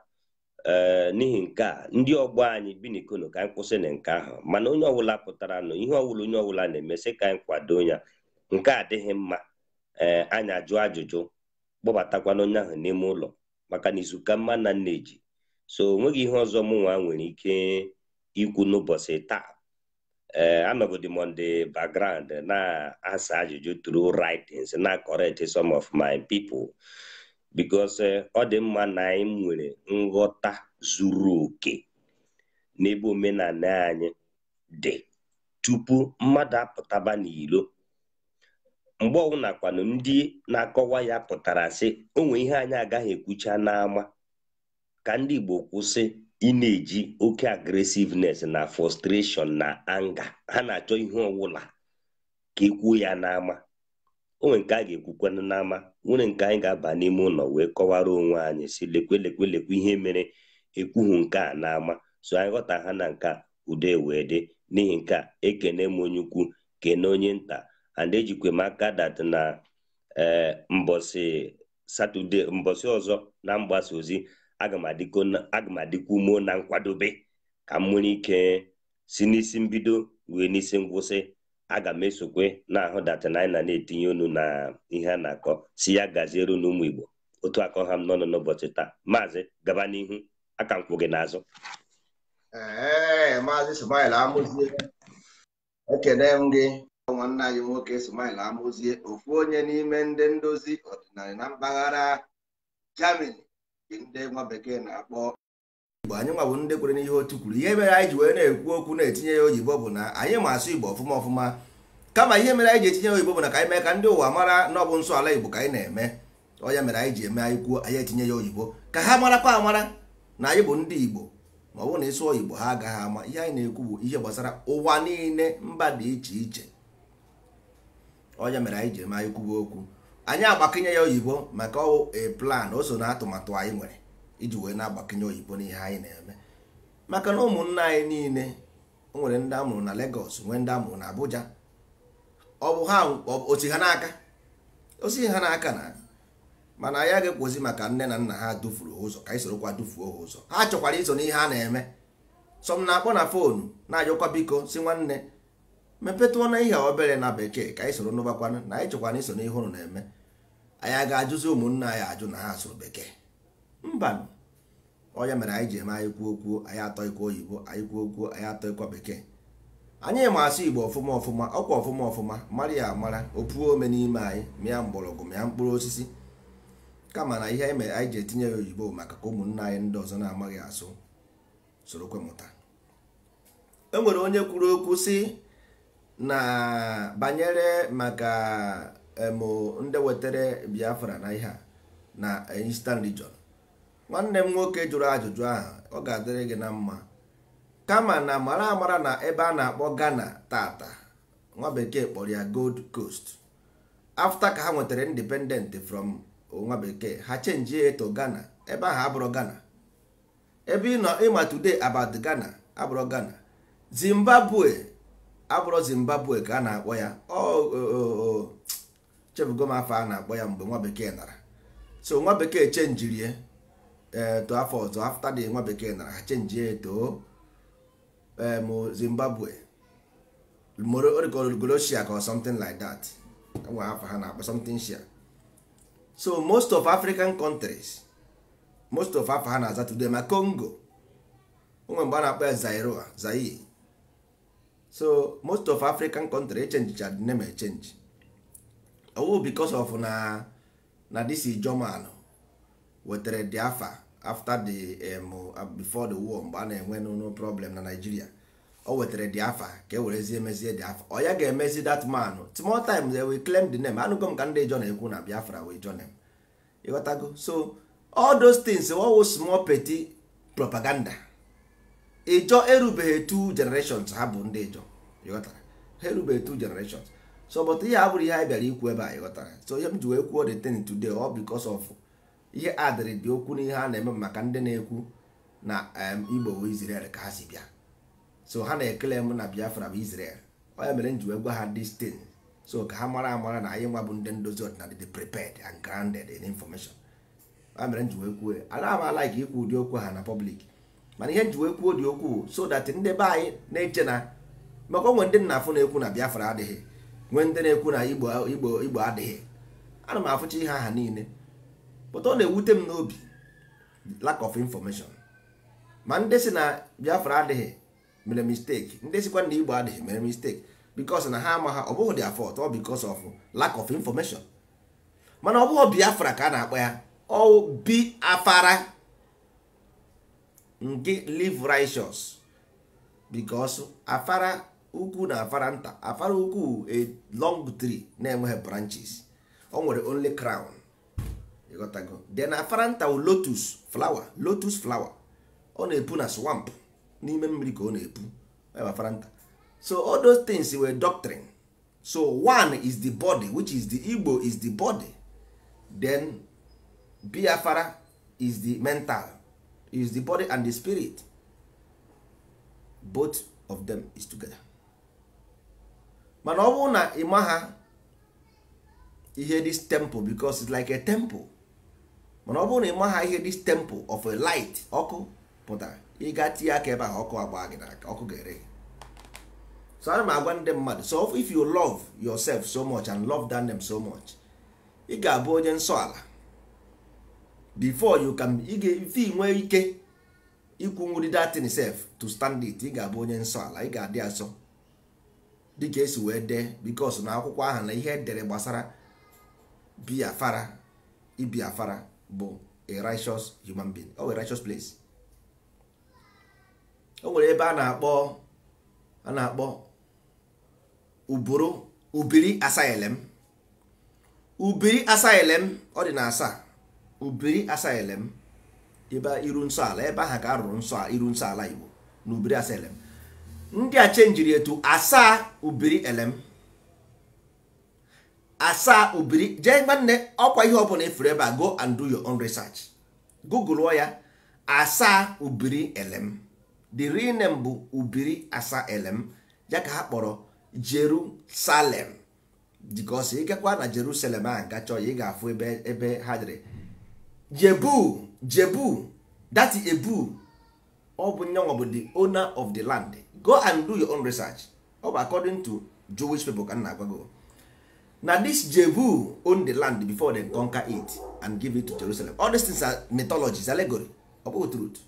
ee eh, n'ihi nke a ndị ọgbọ anyị bi ka anyị kwụsị na nke ahụ mana onye ọbụla pụtara nụ ihe ọwụla onye ọbụla na-emesị ka anyị kwado ya nke a adịghị mma ee eh, ajụ ajụjụ kpọbatakwana onye ahụ n'ime ụlọ maka na izuka mma na nneji so onweghị ihe ọzọ mụnwa nwa nwere ike ikwu n'ụbọchị taa ee eh, anọgodi m on na-asa ajụjụ tru writings na correct some of my people because eh, ọ dị mma na anyị nwere nghọta zuru oke n'ebe omenala anyị dị tupu mmadụ apụtaba n'ilo mgbe ọbụla kwanụ ndị na-akọwa ya pụtara sị o ihe anyị agaghị ekwucha n'ama ka ndị Igbo kwụsị ị na-eji oke agresiveness na frustration na anga ha na-achọ ihe ọwụla ka ekwuo ya n'ama onwe nke a ga-ekwukwanụ n'ama nwere nke anyị ga-aba n'ime ụlọ wee kọwara onwe anyị si lekwelekwelekwe ihe mere ekwuhu nke a n'ama so anyị ghọta ha na nke a udo e wee dị n'ihi nke a ekene m onye ukwu kene onye nta and ejikwa m aka dat na ee mbọsị satọde ọzọ na mgbasa ozi aga m adịkwa ume na nkwadobe ka m nwere ike si n'isi mbido wee n'isi ngwụsị aga m esokwe na-ahụ datina anyị na na-etinye onu na ihe a na-akọ si ya gaziere n'ụmụ Igbo otu akọ ha m n'ọnụ n'ụbọchị taa maazị gaba n'ihu aka gị n'azụ ee maazị amụzie ekene m gị nwanne anyị nwoke Ismail amụzie ofu onye n'ime ndị ndozi ọdịnala na mpaghara Germany ndị nwa bekee na-akpọ Igbo anyị nwa bụ ndị kwere n'ihe otu kwuru ihe mere anyị ji wee na-ekwu okwu na-etinye ya oyibo bụ na anyị ma asụ Igbo ọfụma ọfụma kama ihe mere anyị ji etinye oyibo bụ na ka anyị mee ka ndị ụwa mara na ọ bụ nsọ ala Igbo ka anyị na-eme ọ ya mere anyị ji eme anyị kwuo anyị etinye ya oyibo ka ha marakwa amara na anyị bụ ndị Igbo ma ọ bụrụ na ịsụ oyibo ha agaghị ama ihe anyị na-ekwu bụ ihe gbasara ụwa niile mba dị iche iche onye mere anyị ji ma anyị kwuwe okwu anyị agbakinye ya oyibo maka e plan o so na atụmatụ anyị nwere iji wee na-agbakinye oyibo n'ihe anyị na-eme maka na ụmụnna anyị niile nwere ndị amụrụ na Lagos nwee ndị amụrụ na Abuja ọ bụ ha osi ha n'aka osi ha n'aka na mana anyị ga ekwozi maka nne na nna ha dufuru ụzọ ka anyị sorokwa dufuo ha ụzọ ha chọkwara iso n'ihe a na-eme sọm na-akpọ na fonu na-ajụkwa biko si nwanne mepetụọ na ihe obere na bekee ka anyị soro n'ụbakwanụ na anyị chọkwana iso n'ihe ụnụ na-eme anyị a ga-ajụzi ụmụnna anyị ajụ na ha asụrụ bekee mba onye mere anyị ji eme anyị kwuo kwuo anyị atọ ikwu oyibo anyị kwuo okwuo anyị atọ ikwa bekee anyị ma asụ igbo ọfụma ọfụma ọkwa ọfụma ọfụma mara ya amara opuo ome n'ime anyị mịa mgbọrọgwụ mịa mkpụrụ osisi kama na ihe anyị mere anyị ji etinye ya oyibo maka ka ụmụnna anyị ndị ọzọ na-amaghị asụ sorokwe mụta e nwere onye kwuru okwu si na banyere maka emo ndị wetara biafra na ihe a na eastern region nwanne m nwoke jụrụ ajụjụ ahụ ọ ga-adịrị gị na mma kama na mara amara na ebe a na-akpọ ghana tata nwa bekee kpọrọ ya gold coast afta ka ha nwetara independent from nwa bekee ha chenji eto ghana ebe ahụ abụrụ ghana ebe ị nọ ịma today about gana abụrụ ghana zimbabwe abụrụ zimbabwe ka a na-akpọ ya chefugo m afọ a na-akpọ ya mgbe nwa bekee nara so nwa bekee rie eto afọ ọzọ afta dị nwa bekee nara ha chenjie eto em zimbabwe orikogolosia ka something like that e nwa afọ ha na-akpọ something shia so most of african countries most of afọ ha na-aza today ma congo onwe mgbe a na-akpọ ya zairoa zaire so most of african country echenjicha the name change owu oh, because of na na this german wetere the afa after the um, uh, before the war mgbe a na-enwe no problem na nigeria o oh, wetere the afa ka e werezie emezie the afa ọ oh, ya ga-emezi that man small time they will claim the name anụgo m ka ndị jon ekwu na biafra wee john m ịghọtago so all those things wo small petty propaganda ịjọ erubeghị two generations ha bụ ndị ịjọ ịghọtara ha erubeghị two generations so but ihe abụrụ ihe anyị bịara ikwu ebe a ịghọtara so ihe m ji wee kwuo the thing today ọ because of ihe adịrị dị okwu ihe a na-eme maka ndị na-ekwu na Igbo bụ ka ha si bịa so ha na-ekele m na Biafra bụ isrel ọ mere m ji wee gwa ha this thing so ka ha mara amara na anyị nwa bụ ndị ndozi ọdịnala dị prepared and grounded in information ọ mere m ji wee kwuo anaghị m ike ikwu ụdị okwu ha na public mana ihe nji wee kwuo dị okwu so that ndị be anyị na-eche na maka onwe ndị nna na-ekwu na Biafra adịghị nwee ndị na-ekwu na Igbo Igbo Igbo adịghị ana m afụcha ihe aha niile pụta ọ na-ewute m n'obi lack of information ma ndị si na Biafra adịghị mere mistake ndị sikwa na Igbo adịghị mere mistake because na ha ama ha ọ bụghị dị afọ ọ because of lack of information mana ọ bụghị Biafra ka a na-akpọ ya ọ Biafara nke live righteous because afara ukwu na afara nta afara ukwu a long tree na-enweghị branches o nwere only crown then afara nta wu lotus flower lotus flower ọ na-epu na swamp n'ime mmiri ka ọ na-epu afara nta so all those things were doctrine so one is the body which is the igbo is the body then biafara is the mental is the body and the spirit both of them is together mana ọ bụrụ na ịma ha ihe this temple because it's like a temple mana ọ bụrụ na ịma ha ihe this temple of a light ọkụ pụtara ịga tinye aka ebe ahụ ọkụ agba gị n'aka ọkụ ga-ere so ana m agwa ndị mmadụ so if you love yourself so much and love them so much ị ga-abụ onye nsọ ala before you can ife nwee ike ikwu nwuri datin sef to stand it ị ga-abụ onye nsọ ala ị ga-adị asọ dịka esi wee dee bikos na akwụkwọ ahụ na ihe edere gbasara biafara ibiafara bụ a righteous human being o a righteous place o nwere ebe a na-akpọ a na-akpọ ubiri asylum ubiri ọ dị na asaa ubiri elem ebe iru nsọ ala ebe ahụ ka arụrụ nsọ iru nsọ ala igbo na ubiri elem ndị a chenjiri etu asaa ubiri elem asaa ubiri jee nwanne ọkwa ihe ọbụla efere ebe a go and do your own research google ya asaa ubiri elem the real name bụ ubiri asaa elem ya ka ha kpọrọ jerusalem because ịgakwa na jerusalem a gachọ ya ị ga-afụ ebe ebe ha dịrị jebu jebu that is ebu ọ bụ nyanwa bụ the owner of the land go and do your own research ọ bụ according to jewish people ka na agwago na this jebu own the land before they conquer it and give it to jerusalem all these things are mythologies allegory ọ bụghị truth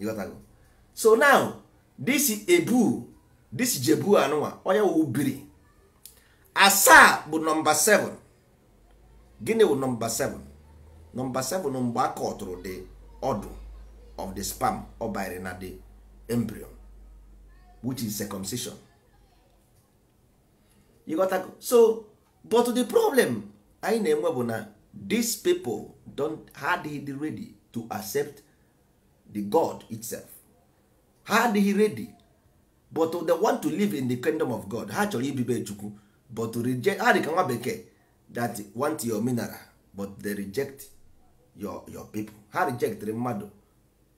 ịghọtago so now this ebu this jebu anụnwa onye wụ biri asaa bụ nọmba 7 gịnị bụ nọmba 7 nọmba 7 mgbe a kọtụrụ the ọdụ of the spam ọ banyere na the embryo which is circumcision you got to, so but the problem anyị na-enwe bụ na these people don't ha adịghị ready to accept the god itself ha adịghị ready but they want to live in the kingdom of god ha chọrọ ibibe chukwu but to reject ha dị ka nwa bekee that want your mineral but they reject your your people ha the mmadụ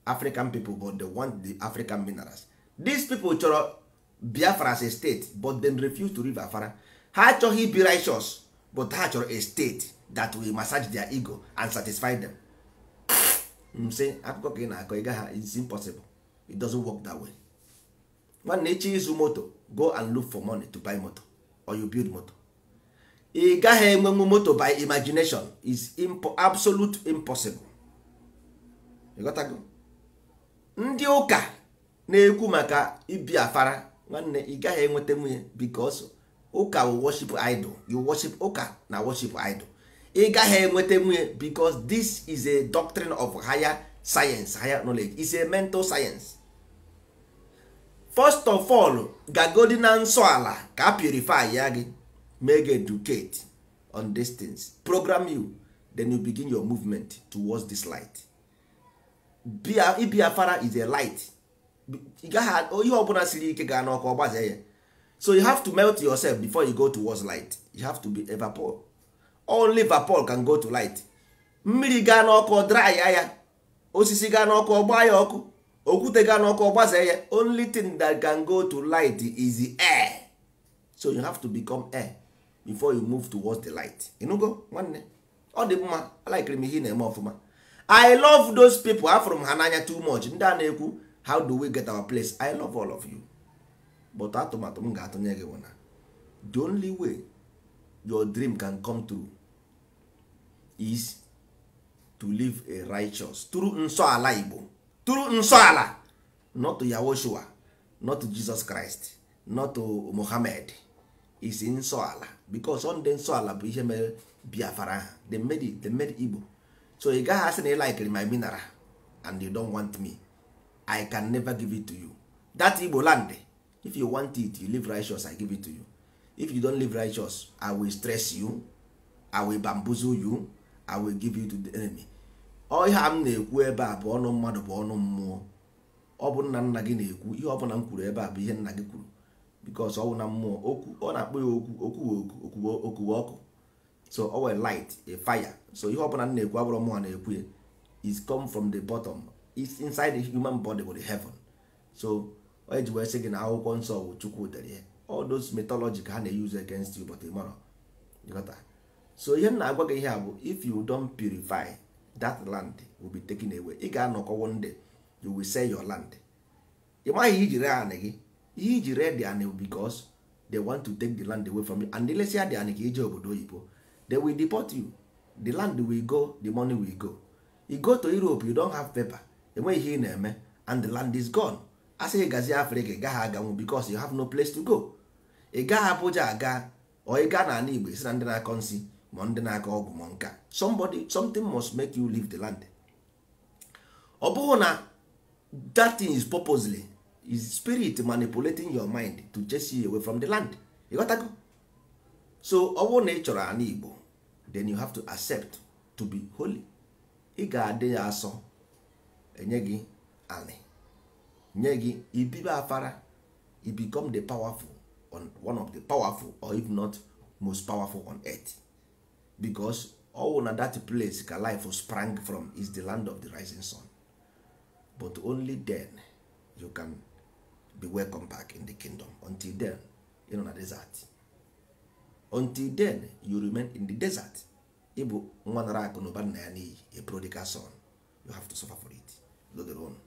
african people but they want the african minerals these people chọrọ biafra as a state but then refuse to live afara ha achọghị be righteous but ha chọrọ a state that will massage their ego and satisfy them m mm, akụkọ ka ị na-akọ ịga ha it's impossible it doesn't work that way nwanne echi izu moto go and look for money to buy moto or you build moto ị gaghị enwenwu moto by imagination is impo absolute impossible ịghọtago ndị ụka na-ekwu maka ibi afara nwanne ị gaghị enweta nwunye because ụka worship idol you worship ụka na worship idol ị gaghị enweta nwunye because this is a doctrine of higher science higher knowledge is a mental science first of all gagodi na nsọ ala ka purify ya gị make educate on these things program you then you begin your movement towards this light Biafra is a light ihe ọbụla siri ike ga n'ọkụ ọgbaze ya so you have to melt yourself before you go towards light you have to be vapor only vapor can go to light mmiri gaa n'ọkụ dry ya osisi gaa n'ọkụ ọgba ya ọkụ okwute gaa n'ọkụ ọgbaze ya only thing that can go to light is the air so you have to become air before you move towards the light go nwanne ọ dị mma alikiri m ihe na-eme ọfụma i love those people afụrụ m ha n'anya too much ndị a na-ekwu how do we get our place i love all of you but atụmatụ m ga-atụnye gị na the only way your dream can come true is to live a righteous through nsọ igbo through nsọ not to yahoshua not to jesus christ not to mohammed is nsọ because ọ ndị nsọ ala bụ ihe mere biafara ha they made it they igbo so ị gaghị asị na ị like my mineral and you don want me i can never give it to you that igbo land if you want it you live righteous i give it to you if you don live righteous i will stress you i will bamboozle you i will give you to the enemy ihe a m na-ekwu ebe a bụ ọnụ mmadụ bụ ọnụ mmụọ ọ bụ nna nna gị na-ekwu ihe ọ bụla m kwuru ebe a bụ ihe nna gị kwuru because ọnwụ na mmụọ okwu ọ na-akpọ ya okwu okwu okwuwe okuwe ọkụ so ọ were light a fire so ihe ọbụla m na-ekwu abụrụ mmụọ na-ekwu ya is come from the bottom is inside the human body with heaven so onye ji wee sị gị na akwụkwọ nsọ wụ chukwu dere ihe all those mythology ka ha na-use against you but tomorrow so ihe m na-agwa gị ihe a bụ if you don't purify that land will be taken away ị ga-anọkọ one day you will sell your land ị maghị ijiri anị gị ihe iji red anị because they want to take the land away from you and lesia dị anị ka ije obodo oyibo they will deport you the land will go the money will go you go to europe you don't have paper enweghị ihe ị na-eme and the land is gone asị ị gazie afrịka ị gaghị aganwu because you have no place to go ị gaghị A aga or ị gaa n'ala igbo isi na ndị na-akọ nsị ma ndị na-akọ ọgwụ ma nka somebody something must make you leave the land ọ bụghị na that thing is purposely is spirit manipulating your mind to chase you away from the land ịghọtago so ọ bụrụ na ị chọrọ ala igbo then you have to accept to be holy ị ga-adị ya asọ enye gị anị nye gị ibibe afara you become the powerful on one of the powerful or if not most powerful on earth because all na that place ka life sprang from is the land of the rising sun but only then you can be welcome back in the kingdom until then you know na desert until then you remain in the desert ịbụ nwa nara akụ na ụba nna ya n'iyi a prodigal son you have to suffer for it lodron